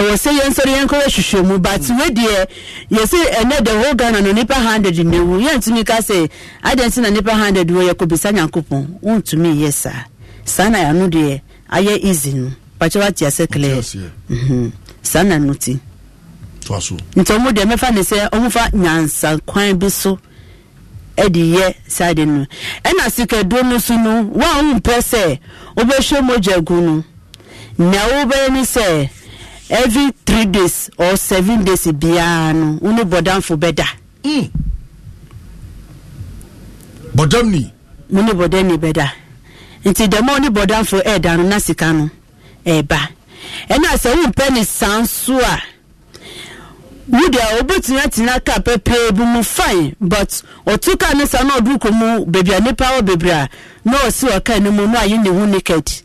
ɛwɔ sɛ yɛn nso yɛn nkɔyɛ hwehwɛmu but wedeɛ yɛsɛ ɛnɛ the whole ghana no nipa hundred na ewu yɛntumi ka sɛ adansi na nipa hundred wɔ yɛkɔbisa nyankopɔn ntumi yɛ saa saa na yɛano deɛ ayɛ easy no pakyɛ wate asɛ clear mhm. saa na no ti nti ɔmo deɛ mɛfa ne sɛ ɔmo fa nyansa bi so ɛde yɛ saa no ɛna sikaduro no so no wɔn a wɔn mpɛ sɛ wɔbɛhwɛ mogya gu no na wɔbɛyɛ ne sɛ. every three days or seven days biara no wọn bɔdanfo bɛ da. Hmm. bɔdamni. mo bɔdamni bɛ nti dɛm a ne bɔdanfo ɛɛda no na sika no ɛɛba ɛna sɛ wọn ne san so a wúdi a obetumi atena kaa pɛpɛɛ bi mu fine but ɔtu ka ne sa na ɔduru mu beebi a nipa wɔ beebi a na ɔsi ɔkaa ne mu na ayi ne ho naked.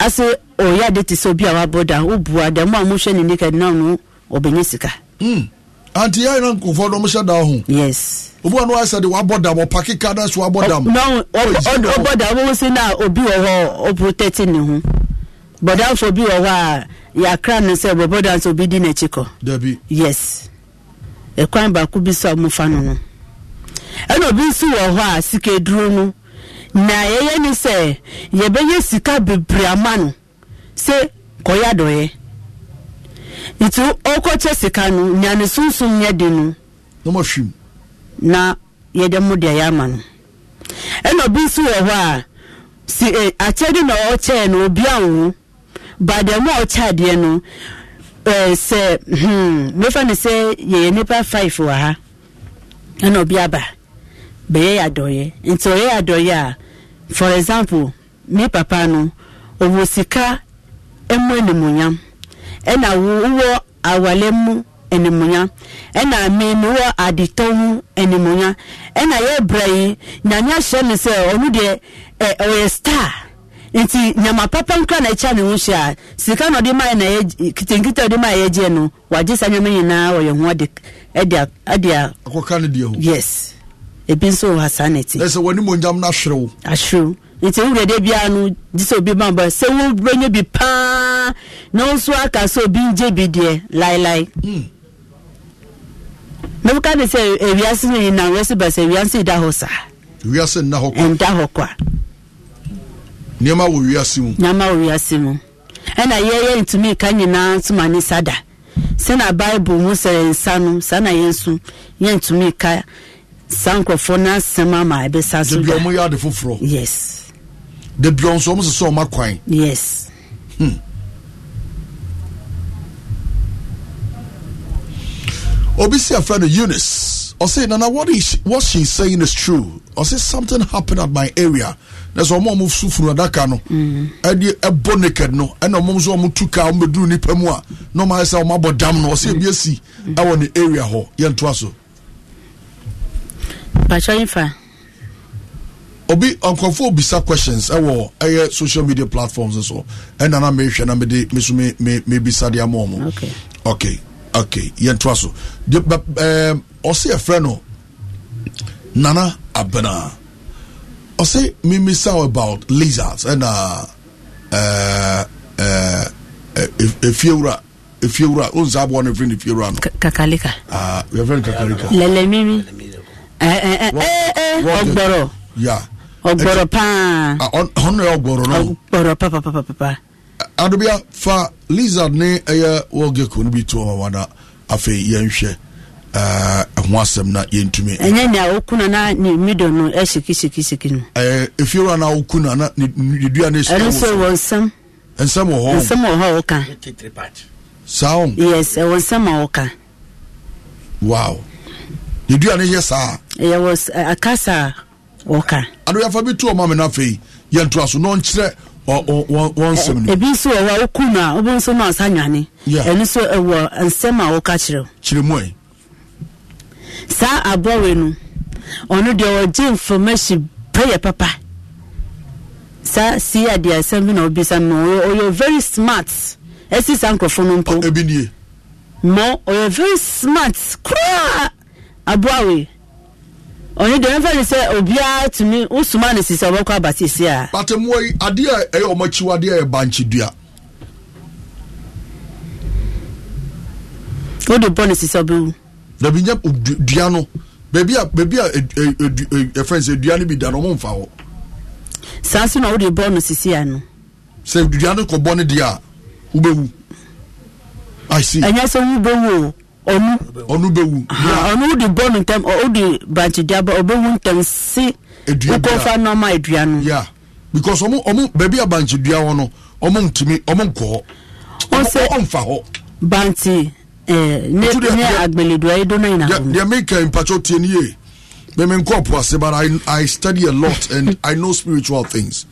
ase ɔyɛ ade te sɛ obi a wabɔ da wobua da mu a mohwɛ ne nika na no ɔbɛnya sika hmm. anti yɛn na nkurɔfoɔ dɔm hyɛ da ho yes obi wa no ayɛ sɛ de wabɔ dam ɔpaki ka na so wabɔ dam no ɔbɔ dam wɔn si na obi wɔ hɔ ɔprotɛti ne ho bɔdanfo bi wɔ hɔ a yɛakra no sɛ bɔbɔ dam sɛ obi di n'akyi kɔ dabi yes ɛkwan baako bi so a mofa no no ɛna obi nso wɔ hɔ a sika eduro no. na yɛyɛ ne sɛ yɛbɛyɛ sika bebree ama no sɛ kɔyɛ adɔyɛ nti ɔkɔkyɛ sika no nea ne sunsun yɛ di no na yɛde mu deɛ yɛ ama no ɛna obi nso wɔ hɔ a si e akyɛde na ɔkyɛɛ no obi anwo baadɛ mu a ɔkyɛ adeɛ no ɛɛ sɛ hmm mefa ne sɛ yɛyɛ nipa five wɔ ha ɛna obi aba. bɛyɛ yɛ adɔyɛ nti ɔyɛ yɛ adɔyɛ a for example me papa no ɔwɔ sika mu animuonyam ɛna wowɔ awale mu animuonyam ɛna me mewɔ adetɔ mu animuonyam ɛna yɛ bra yi nyame ahyɛ no sɛ ɔno deɛ ɛ ɔyɛ star nti nyama papa nkura na ɛkyɛ ne ho hyɛ a sika na ɔde maa na yɛ kitenkite ɔde maa yɛ gye no wagye saa nyama nyinaa ɔyɛ ho ɛde ɛde a. akɔka ne deɛ ho yes. ebi nso wɔ ha saa na ti. ɛsɛ wɔn ni mo nyam na ahyerew. ahyerew nti nwura de bi anu di sɛ obi bambɔ sɛ wo bɛnyɛ bi paa na wɔn nso aka sɛ obi ngye bi deɛ laelae. Hmm. mɛ wɔka de sɛ ewiase no na wɔsi ba sɛ ewiase da hɔ saa. ewiase nna hɔ kɔ. nda hɔ kɔ a. nneɛma wɔ wiase mu. nneɛma wɔ wiase mu ɛna yɛyɛ ntumi ka nyinaa nso ne sada sɛ na bible ho sɛ nsa no saa na yɛn nso yɛ ntumi ka. saa nkurɔfoɔ no asɛm ama ɛbɛsa so da ɔmo yɛ ade foforɔ yes da bia nso ɔmo sɛ sɛ ɔma yes hmm. obi si afra no eunice ɔse nana what, is, what she saying is true ɔse something happened at my area na sɛ ɔmo a ɔmo so funu adaka no mm. ɛde ɛbɔ naked no ɛna ɔmo nso ɔmo tu kaa ɔmo bɛduru nipa mu a na ɔmo ayɛ sɛ ɔmo abɔ dam no ɔse mm. ebi esi ɛwɔ ne area hɔ yɛntoa so mpatsɔ nfa. obi nkurɔfoɔ bisa questions ɛwɔ ɛyɛ social media platforms so ɛna na mehwɛ na mede me so mebisa de ama ɔmo okay okay yɛntoa so ɔse ɛfrɛ no nana abena ɔse memisa about lizards ɛna efiewura efiewura o nsa aboɔ no firi ne fiewura no kakalika ah, yɛfrɛ no kakalika lɛlɛmimi ọgbọrọ eh, eh, eh, ọgbọrọ paa ọgbọrọ ọgbọrọ papapapa. fa lizard ne ɛyɛ wɔgeko no bi to ɔma wada afei yɛnhwɛ ɛho asɛm na yɛntumi ɛnyɛ nea nọ na ne nọ no ɛsikisikisiki nọ. ɛfiewura na na ne dua no ɛsɛno so wɔ nsɛm nsɛm wɔ wọ nsɛm wɔ a ne dua no yɛ saa akasa wɔka adoyɛfa bi to ɔma me no afei yɛntoa so na ɔnkyerɛ wɔnsɛm no ebi nso wɔ hɔ a woku no a wobɛ nso na ɔsa nwane ɛno nso ɛwɔ nsɛm a woka kyerɛw kyerɛ ɛ saa abɔwe no ɔno deɛ ɔgye information pɛyɛ papa saa sii adeɛ asɛm bi na obisa no ɔyɛ very smart ɛsi saa nkurɔfoɔ no mpo ebi nie mo ɔyɛ very smart koraa aboawe ɔne deɛ e, e, e, mfa ne sɛ obiara tumi wosoma ne sisi ɔbɛkɔ aba sisi a. patemuwa yi adeɛ a ɛyɛ ɔmo akyiwa adeɛ a yɛ bankye dua. wode bɔ ne sisi ɔbɛwu. dabi nyɛ dua no beebi a beebi a ɛfɛn sɛ dua no bi da no ɔmo nfa hɔ. saa so na wode bɔ no sisi ano. sɛ dua no kɔ bɔ ne deɛ a wobɛwu. i see. ɛnyɛ sɛ wobɛwu o ɔnu ɔnu bɛ wu ɔnu di bɔ ne ntɛm wò di branche di aba ɔbɛ wu ntɛm si wokɔ fa nɔɔma edua no. ya because ɔmu ɔmu baabi a branche dua hɔ no ɔmu ntumi ɔmu nkɔ hɔ ɔmu nfa hɔ. branche ɛɛ ne ne agbeledua yi dɔnna yina hɔ. deɛ mi kɛ mpatsɔ tie ni ye mɛmi nkɔ po ase but i i study a lot and i know spiritual things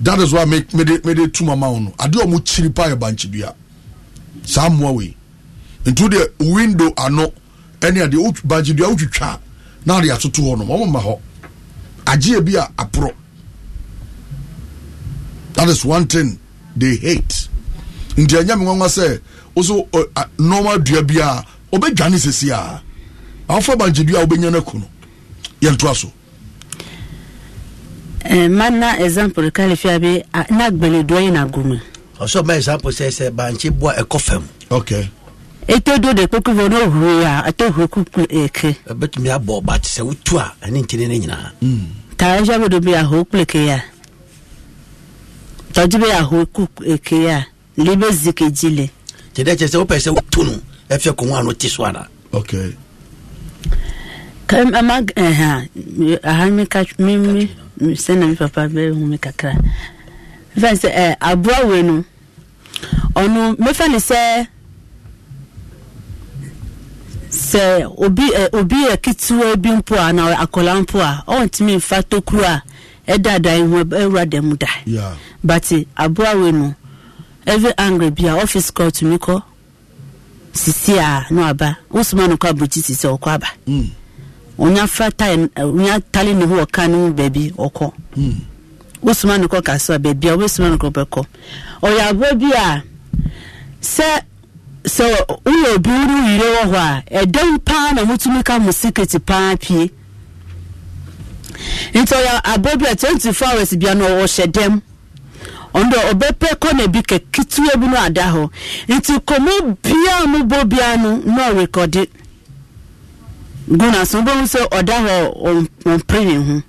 that is why me me de me de tu mama wɔn no adeɛ ɔmu kyiri pa yɛ branche dua saa mua wei ntu deɛ window ano ɛne adeɛ bagyedua wotwitwa na ade atoto hɔ nom ɔmoma hɔ agyeɛ bi a aporɔ that is one thing they hate nti ɛnyɛ me nwanwa sɛ woso normal dua bi a ɔbɛdwane sesi a awofa bagyedua a wobɛnya no aku no yɛntoa so mana example kalifia bi na gbɛlɛdua yi na gome ɔsɔ ma example sɛ sɛ bankye boa ɛkɔ fam okay eto do de kpekpe bɔ no huri a ato huri kuku eke. ɛbɛtumi abɔ ɔba te sɛ wotu a ɛne nkyɛn ne nyinaa. taa ɛhyɛ bodo bi ahoro kuku eke ya tɔdzi bi ahoro kuku eke ya libe zike dzi le. tẹ̀lé kyerɛ sɛ wopɛ sɛ wotu no ɛfɛ kɔn a no ti so ara. ok. kɛmɛ ɛhɛn aha mi ka mi mi sɛnɛ mi papa bɛ hu mi kakra fɛn sɛ ɛ aboa wɛ no ɔno mɛfɛ ni sɛ. sɛ obi ɛ obi yɛ ketewa bi mpo a na akɔla mpo a ɔntumi nfa tokuro a ɛda dan ho ɛwura dɛm mu da bati eh, aboawe no every angry bi a ɔfis kɔ tumi kɔ sisi a na aba wosoma no kɔ abirikyi sisi ɔkɔ aba mm. onya fra tae onya tali ne ho ɔka ne mu baabi ɔkɔ mm. wosoma no kɔ kaso a baabi a wosoma no kɔ bɛkɔ ɔyɛ aboa bi a sɛ. sɛ woyɛ obi wo no yire wɔ hɔ a ɛdɛm paa na motumi ka mo secret paa pie nti ɔyɛ abɔ bi a 24 hours bia no ɔhyɛ dɛm ɔno deɛ ɔbɛpɛ kɔna bi kɛketewa bi no ada hɔ nti kɔmɔ biaa mobɔ bia no na ɔrekɔde gu naso wobɛhu sɛ ɔda hɔ ɔmpere ne ho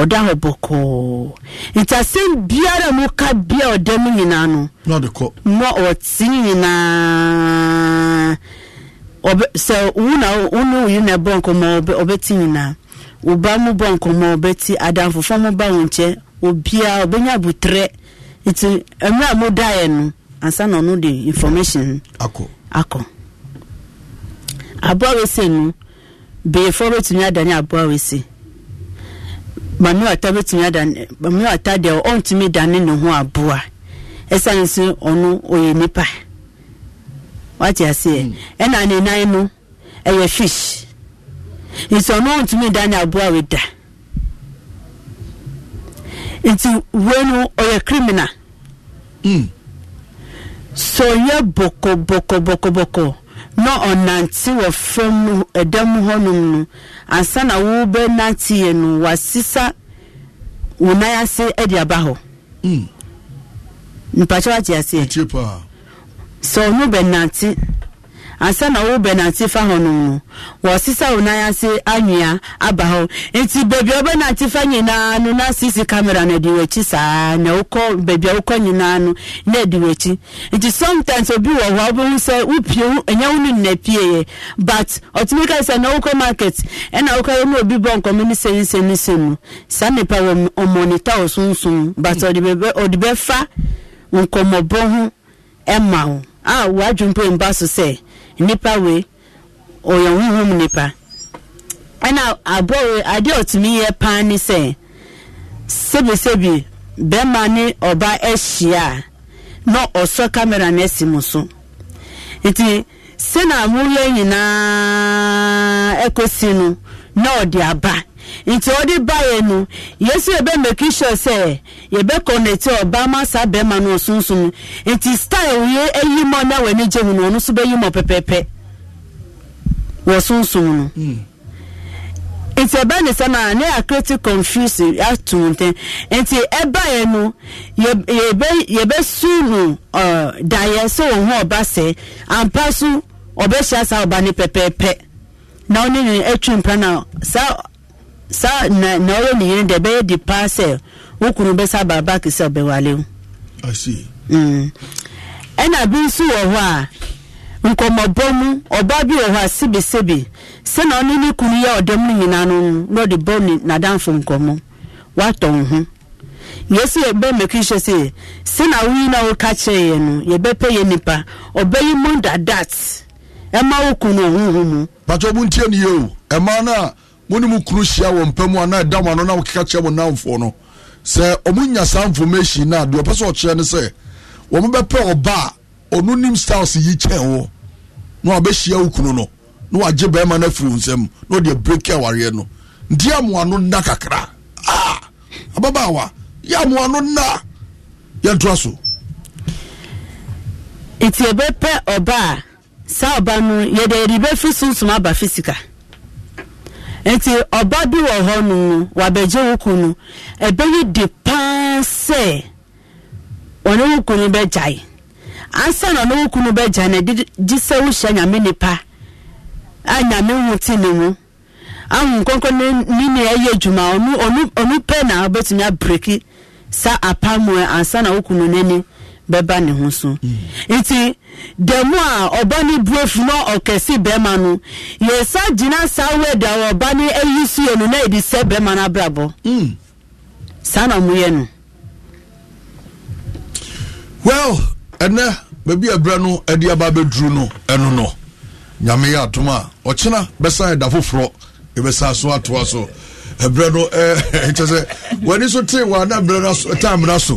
ɔda hɔ bɔkɔɔ nti asɛm biara mu ka bia ɔda mu nyinaa no ma ɔte nyinaa sɛ wona wone na ɛbɔ nkɔmmɔ ɔbɛte nyinaa woba mu bɔ nkɔmmɔ ɔbɛte adamfofa mu ba wo nkyɛ obiaa ɔbɛnya abotrɛ nti mmerɛ a modaeɛ no ansa na ɔno de information akɔ akɔ aboa wese no beefoɔ bɛtumi adane aboa wese maame wata bɛtumi ada maame wata deɛ ɔntumi dane ne ho aboa ɛsiane so ɔno ɔyɛ nipa wate aseɛ hmm. ɛna ne nan no ɛyɛ fish nti ɔno ɔntumi dane aboa weda nti no ɔyɛ criminal hmm. so ɔyɛ bɔkɔbɔkɔbɔkɔbɔkɔ na ɔnante wɔ fam ɛdɛm hɔnom no ansa na nante yɛ no wasesa wo nan ase de aba hɔ hmm. mpakyɛ wate sɛ ɔno ansa na ɔwɔ bɛn nante fa hɔ nom no wɔsesa wo nan ase anwea aba hɔ nti beebi a ɔbɛ nante fa nyinaa no na sisi kamera na ɛdi wɔkyi saa na wokɔ beebi a wokɔ nyinaa no na ɛdi wɔkyi nti sometimes obi wɔ hɔ a wobɛhu sɛ wopie ɛnyɛ wo no nna pie yɛ but ɔtumi ka sɛ na wokɔ market ɛna wokɔ yɛ na obi bɔ nkɔmɔ ne sɛn sɛn ne sɛn no saa nipa wɔ ɔmɔnita ɔsonson but ɔde bɛfa nkɔmɔbɔ ho ɛma wo a wadwompo mba so sɛ nnipa wee ɔyɛ honhom nnipa ɛna aboɔ ade adeɛ ɔtumi yɛ paa ne sɛ sebisebi bɛrima ne ɔba ahyia a na ɔsɔ kamera no asi mu so nti sena amoyɛ nyinaa ɛkɔsi no na ɔde aba nti ọ dị baeɛ no yesu ebe meki sure ebe yɛbɛ ọba, masa-bema bɛrima no ɔsunsun nti style yɛ eyi mɔ na w'ani gye mu no ɔno nso bɛyi mɔ pɛpɛpɛ wɔ sunsun no hmm. nti ɛbɛ ne sɛm a ne akreti confuse ato ntɛn nti ɛbaeɛ no yɛbɛ yɛbɛ su no ɔɔ daeɛ sɛ wɔn ho ɔba sɛ ampa so ɔbɛhyia saa ɔba ne na ɔne ne atwi mpa na saa. saa na na ɔyɛ ne yere deɛ ɛbɛyɛ di paa sɛ wo kunu bɛsa baaba ɛna bi nso wɔ hɔ a nkɔmmɔbɔ mu ɔbaa bi wɔ hɔ a sebesebi sɛna ɔne ne kunu yɛ ɔdɛm no nyinaa no na ɔde bɔ ne nadamfo nkɔmmɔ watɔ wo ho yɛsi yɛbɛ mɛki hyɛ sɛ sɛna woyi na woka kyerɛ yɛ no yɛbɛpɛ yɛ nipa ɔbɛyi mu dadat ɛma wo kunu ɔhoho mu patɔ mu ntie ne o ẹ no a mone mu kunu hyia wɔ mpa mu ɛda ano na wokeka kyerɛ mo namfoɔ no sɛ ɔmo nya saa information naa a deɛ ɔpɛ sɛ ɔkyerɛ no sɛ wɔmo bɛpɛ ɔba a ɔno nim styles yi kyɛn wɔ na wabɛhyia wo kunu no na wagye bɛrima no afiri wo nsam na ɔde break awareɛ no nti amoa no nna kakra a ah! ababaawa yɛ amoa no nna yɛntoa so nti ɛbɛpɛ ɔba a saa ɔba no yɛde yɛde bɛfiri sunsum aba fisika nti ọba bi wọ wɔ hɔ no wabɛgye nu ebe yi di paa sɛ ɔne wo kunu bɛgyae ansa na ɔne wo kunu bɛgyae na ɛde gye sɛ wohyɛ nyame nipa a nyame ho te ne mu ahu nkɔnkɔ ne ne ne ɛyɛ adwuma ɔno ɔno ɔno pɛ na ɔbɛtumi abreki sa apamoɛ ansa na wo kunu n'ani bɛba ne ho so nti da a ɔba ne na ɔkɛse bɛrima no yɛsa gyina saa wɛdi a ɔba ne ayi so yɛ no na yɛde sɛ no abrabɔ hmm. saa na ɔmo yɛ no. well ɛnɛ baabi abira no ɛde aba abɛduru no ɛno no nyame yɛ atom a ɔkyena bɛsa ɛda foforɔ ɛbɛsa so atoa so no ɛɛ [laughs] sɛ so ana so so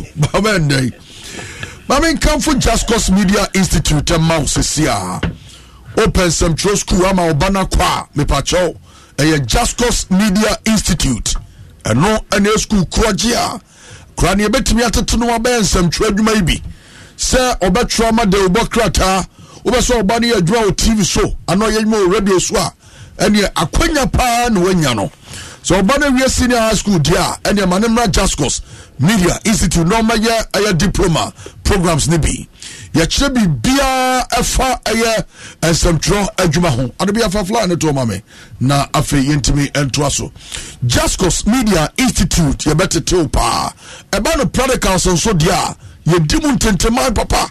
maame nkanfo just cause media institute ɛma wo sisi a open sɛmtwerɛ school ama ɔba no kɔ a mepakyɛw ɛyɛ just cause media institute ɛno ɛne school korɔgye a kora ne yɛbɛtumi atete no wabɛyɛ nsɛmtwerɛ adwuma yi bi sɛ ɔbɛtwerɛ ma de wobɔ krataa wobɛsɛ ɔba no yɛ adwuma wɔ tv so anaa ɔyɛ adwuma wɔ radio so a ɛneɛ akwanya paa na woanya no so ɔba no wie senior high school di a ɛneɛma ne mmra jascos media institute na ɔmayɛ ɛyɛ diploma programs no bi yɛkyerɛ biribiaa ɛfa ɛyɛ nsɛmtwerɛ adwuma ho ade bi afa fly ne toɔma me na afei yɛntumi ntoa so jascos media institute yɛbɛtetew paa ɛba no pradicals nso deɛ a yɛdi mu ntenteman papa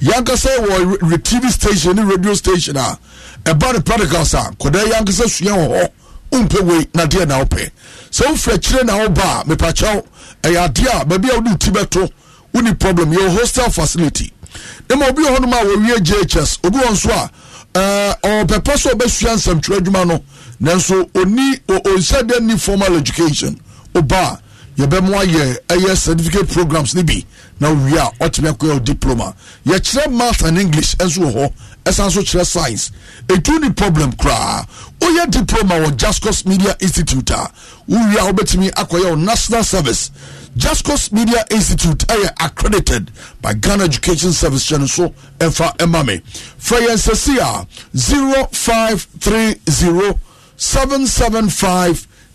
yankasa wɔ tv station ne radio station a ɛba no pradicals a kɔdaa yankasa sua wɔ hɔ wompɛ wei na deɛ na wopɛ sɛ wofiri akyire na woba a mepakyɛw ɛyɛ adeɛ a baabi a wode ti bɛto woni problem yɛwɔ hostel facility ne ma obi wɔ hɔnom a wɔwie ghs obi wɔ nso a ɔpɛpɛ sɛ ɔbɛsua nsɛmtwerɛ adwuma no nanso ɔni ni formal education ɔba yɛbɛmo ayɛ ɛyɛ certificate programs no bi na wie a ɔtumi akɔyɛ wo diploma yɛkyerɛ math and english nso wɔ hɔ ɛsan nso kyerɛ science ɛtu ne problem koraa woyɛ diploma wɔ jascos media institute a wowie a wobɛtumi akɔyɛ wo national service jascos media institute ɛyɛ accredited by ghana education service hyɛ no so ɛmfa ɛma me frɛ yɛn sɛsi a 0530 775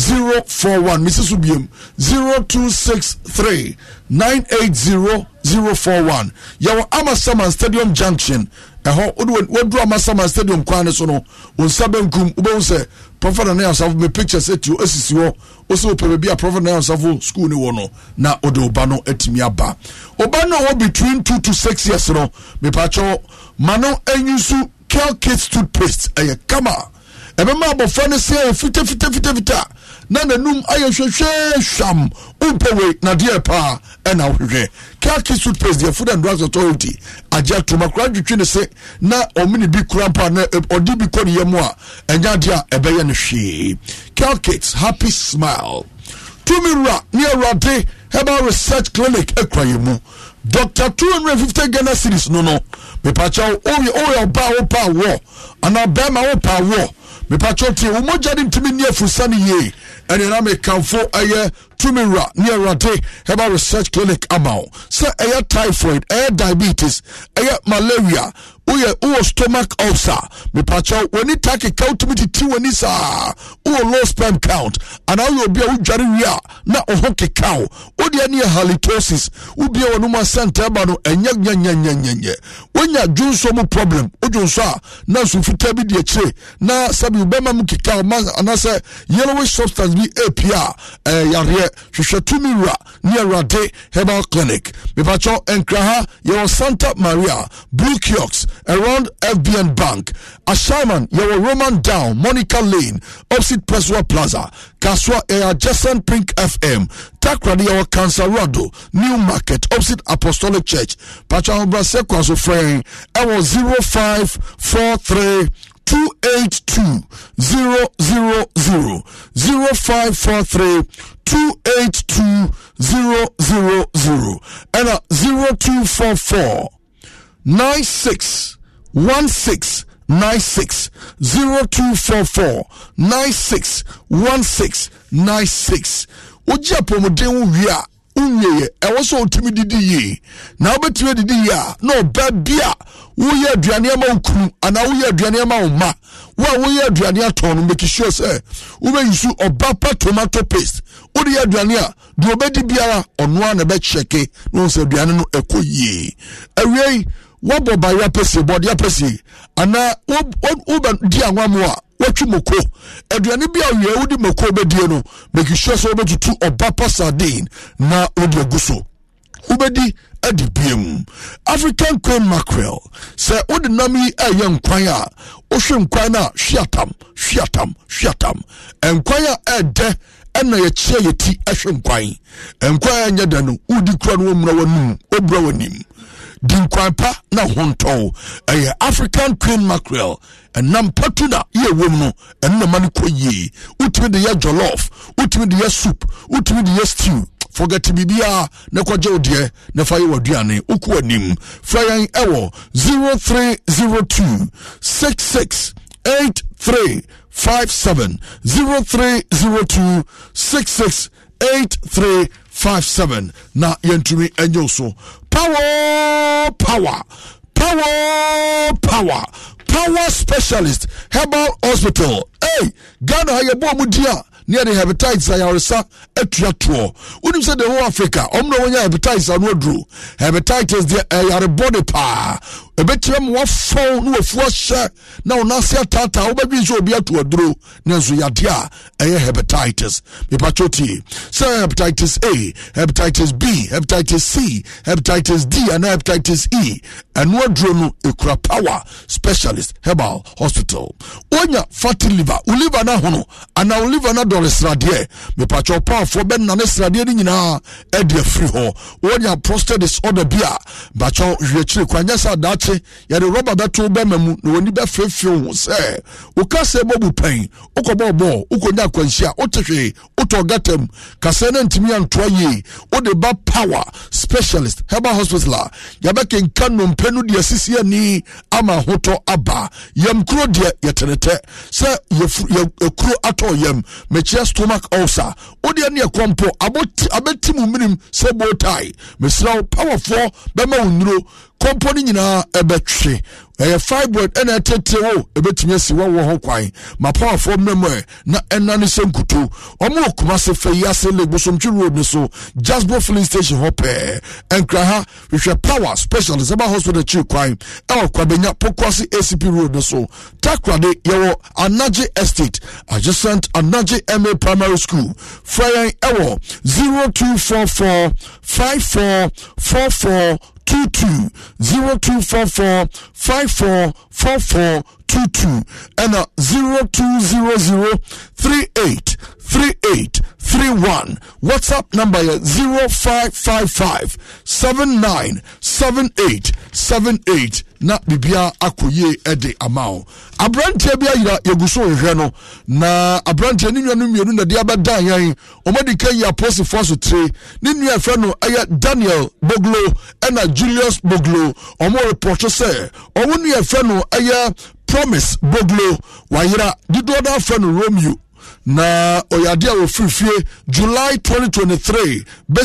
zero four one mrs subiem zero two six three nine eight zero zero four one yɛwɔ amasaman stadium junction ɛhɔ wode waduru amasaman stadium kwan ne so no wo nsa benkum wobɛhu sɛ prɔfɛt na nayasafo me pictures atio asisi hɔ wo sɛ wopɛ baabi a prɔfɛt na nayasafo school ni wɔ no na wode woba no atumi aba ɔba no a between two to six years no mepakyɛw ma no anyi so kel kit toothpaste ɛyɛ kama ɛbɛma abɔfra no sɛ fitafitafitafita na nanum ayɛ hwehwɛ hwam wompɛ wei nadeɛ paa ɛna wohwehwɛ kaki suitpase deɛ food and drugs authority agye atoma kora dwetwe ne se na ɔmene bi kora mpa na ɔde bi kɔ ne yɛ mu a ɛnya adeɛ a ɛbɛyɛ no hwee calcate happy smile tumi wura ne awurade herbal research clinic akura yɛ mu dr 250 ghana series no no mepakyɛw woyɛ ɔba wo pa wɔ anaa bɛrima wo pa wɔ mepatwɛ tie wo mogya ne ntumi nni afursa no yie ɛne na mekamfo ɛyɛ Tumira, wura ne herbal research clinic ama wo sɛ ɛyɛ typhoid ɛyɛ diabetes ɛyɛ malaria woyɛ wowɔ stomach ulcer mepakyɛw w'ani takeka wotumi titi w'ani saa wowɔ low sperm count anaa woyɛ bi a wodware wie a na wo ho keka wo wodeɛ ne yɛ halitosis wobie a no mu asɛnta ba no ɛnyɛ nyanyanyanyanyɛ wonya dwonso mu problem wodwonso a na nsumfitaa bi de akyire na sɛbi wobɛma mu keka wo anaasɛ yellowish substance bi apia ɛɛ eh, yareɛ hwehwɛ tumi wura ne awurade herbal clinic mepakyɛw nkra ha yɛwɔ santa maria blue kiox around fbn bank asharman yɛwɔ roman down monica lane opposite peswa plaza kaswa ɛyɛ adjacent pink fm takrade yɛwɔ Cansarado, new market opposite apostolic church pakyɛ ahobrɛsɛ kwa so frɛn ɛwɔ 0543 282 000 0543 two eight two zero zero zero ɛna zero two four four nine six one six nine six zero two four four nine six one six nine six wogye apɔmuden wo wie a wonwieɛ ɛwɔ sɛ wotumi didi yie na wobɛtumi adidi yie a na ɔba bi a woyɛ aduane ama wo kunu anaa woyɛ aduane ama wo ma wo a woyɛ aduane atɔn no make sɛ wobɛyi so ɔba pa tomato paste wode yɛ aduane a deɛ ɔbɛdi biara ɔnoa na ɛbɛkyɛke na ɔhu sɛ aduane no ɛkɔ yie awiei wabɔ baeɛ apɛsie bɔde apɛsie anaa wobɛdi anwa mu a wɔtwe moko aduane bi a wie wode moko bɛdie no make sure sɛ wobɛtutu ɔba pa sardine na wode agu so wobɛdi adi biem african queen mackerel sɛ wode nam yi ɛyɛ nkwan a wohwe nkwan no a hwe atam hwe nkwan a ɛɛdɛ ɛna yɛkyia yɛ ti ɛhwɛ nkwan nkwan a ɛnyɛ da no wodi kura no wɔmmra w'anim wɔbura w'anim di nkwan pa na hontɔn ɛyɛ e african queen mackerel ɛnam patu na yɛ wom no ɛno na ma no kɔ yie wotumi de yɛ jollof wotumi de yɛ soup wotumi de yɛ stew forget biribiara na kɔgye wo deɛ na fa yɛ w'aduane woku w'anim fra yɛn ɛwɔ 0302 66 83 57 0302 668357 na and you so power power power power power specialist herbal hospital hey ghana how you mu Nia the ne yɛde hepatitis a yɛaresa say toɔ wonim the whole africa ɔm na wɔnya hepatitis ano aduro hepatitis deɛ ɛyarebɔ de ɛbɛkyerɛ ma wafɔn na wafuo ahyɛ na wɔn ase ataataa wɔbɛdwi nso obi ato aduro ne nso yadeɛ a ɛyɛ hepatitis mipatsɔ tie sɛ hepatitis a hepatitis b hepatitis c hepatitis d ana hepatitis e ɛno aduro no ekura power specialist herbal hospital wonya fatty liver wo liver no ahono anaa wo liver no adɔre sradeɛ mipatsɔ paafoɔ bɛnane sradeɛ no nyinaa ɛde afiri hɔ wonya prostate disorder bi a bakyɛ wiakyire kwa nyɛ sɛ adaa akye yɛde rɔba bɛto bɛma mu na wɔni bɛfeefee ho sɛ wokasɛ bɔbu pɛn wokɔbɔɔ bɔɔ wokɔnya akwanhyia wote hwee wotɔ gata mu kasɛ no antumi antoa yie wode ba power specialist herbal hospital a yɛbɛkenka nnompe no deɛ asisi ani ama ahotɔ aba yam kuro deɛ yɛtenetɛ sɛ yɛkuro atɔ yam mekyia stomach ulcer wodeɛ ne yɛkɔmpo abɛti mu mmirim sɛ botae mesrɛ wo powerfoɔ bɛma wo nnuro kɔmpɔ no nyinaa ɛbɛtwe ɛyɛ fibroid ɛna ɛtɛtɛ wo ɛbɛtumi asi wɔwɔ ho kwan mapawafoɔ mmɛmɔ ɛ na ɛnane sɛ nkuto ɔmo okuma se fɛ yi ase le gbosomtwi road ne so jasbo filling station hɔ pɛɛ ɛnkra ha hwehwɛ power specialist ɛba hospital akyi kwan ɛwɔ kwabenya pokwase acp road ne so takrade yɛwɔ anagye estate adjacent anagye ma primary school fra yɛn ɛwɔ four four two two zero two four four five four four four two two and a zero two zero zero three eight three eight three one. WhatsApp number is zero five five five seven nine seven eight seven eight. Na bibia akoye ɛde ama wo aberanteɛ bi ayira yɛgu so hwehwɛ no na aberanteɛ ne nua no mmienu na de abɛda yɛn ɔmɔde ka yi aposifoɔ so tire ne nua ɛfrɛ no ɛyɛ daniel boglo ɛna julius boglo ɔmo repɔtwe sɛ ɔmo nua ɛfrɛ no ɛyɛ promise boglo wayera dodoɔ no romeo na ɔyɛ adeɛ a wɔfiri fie july 2023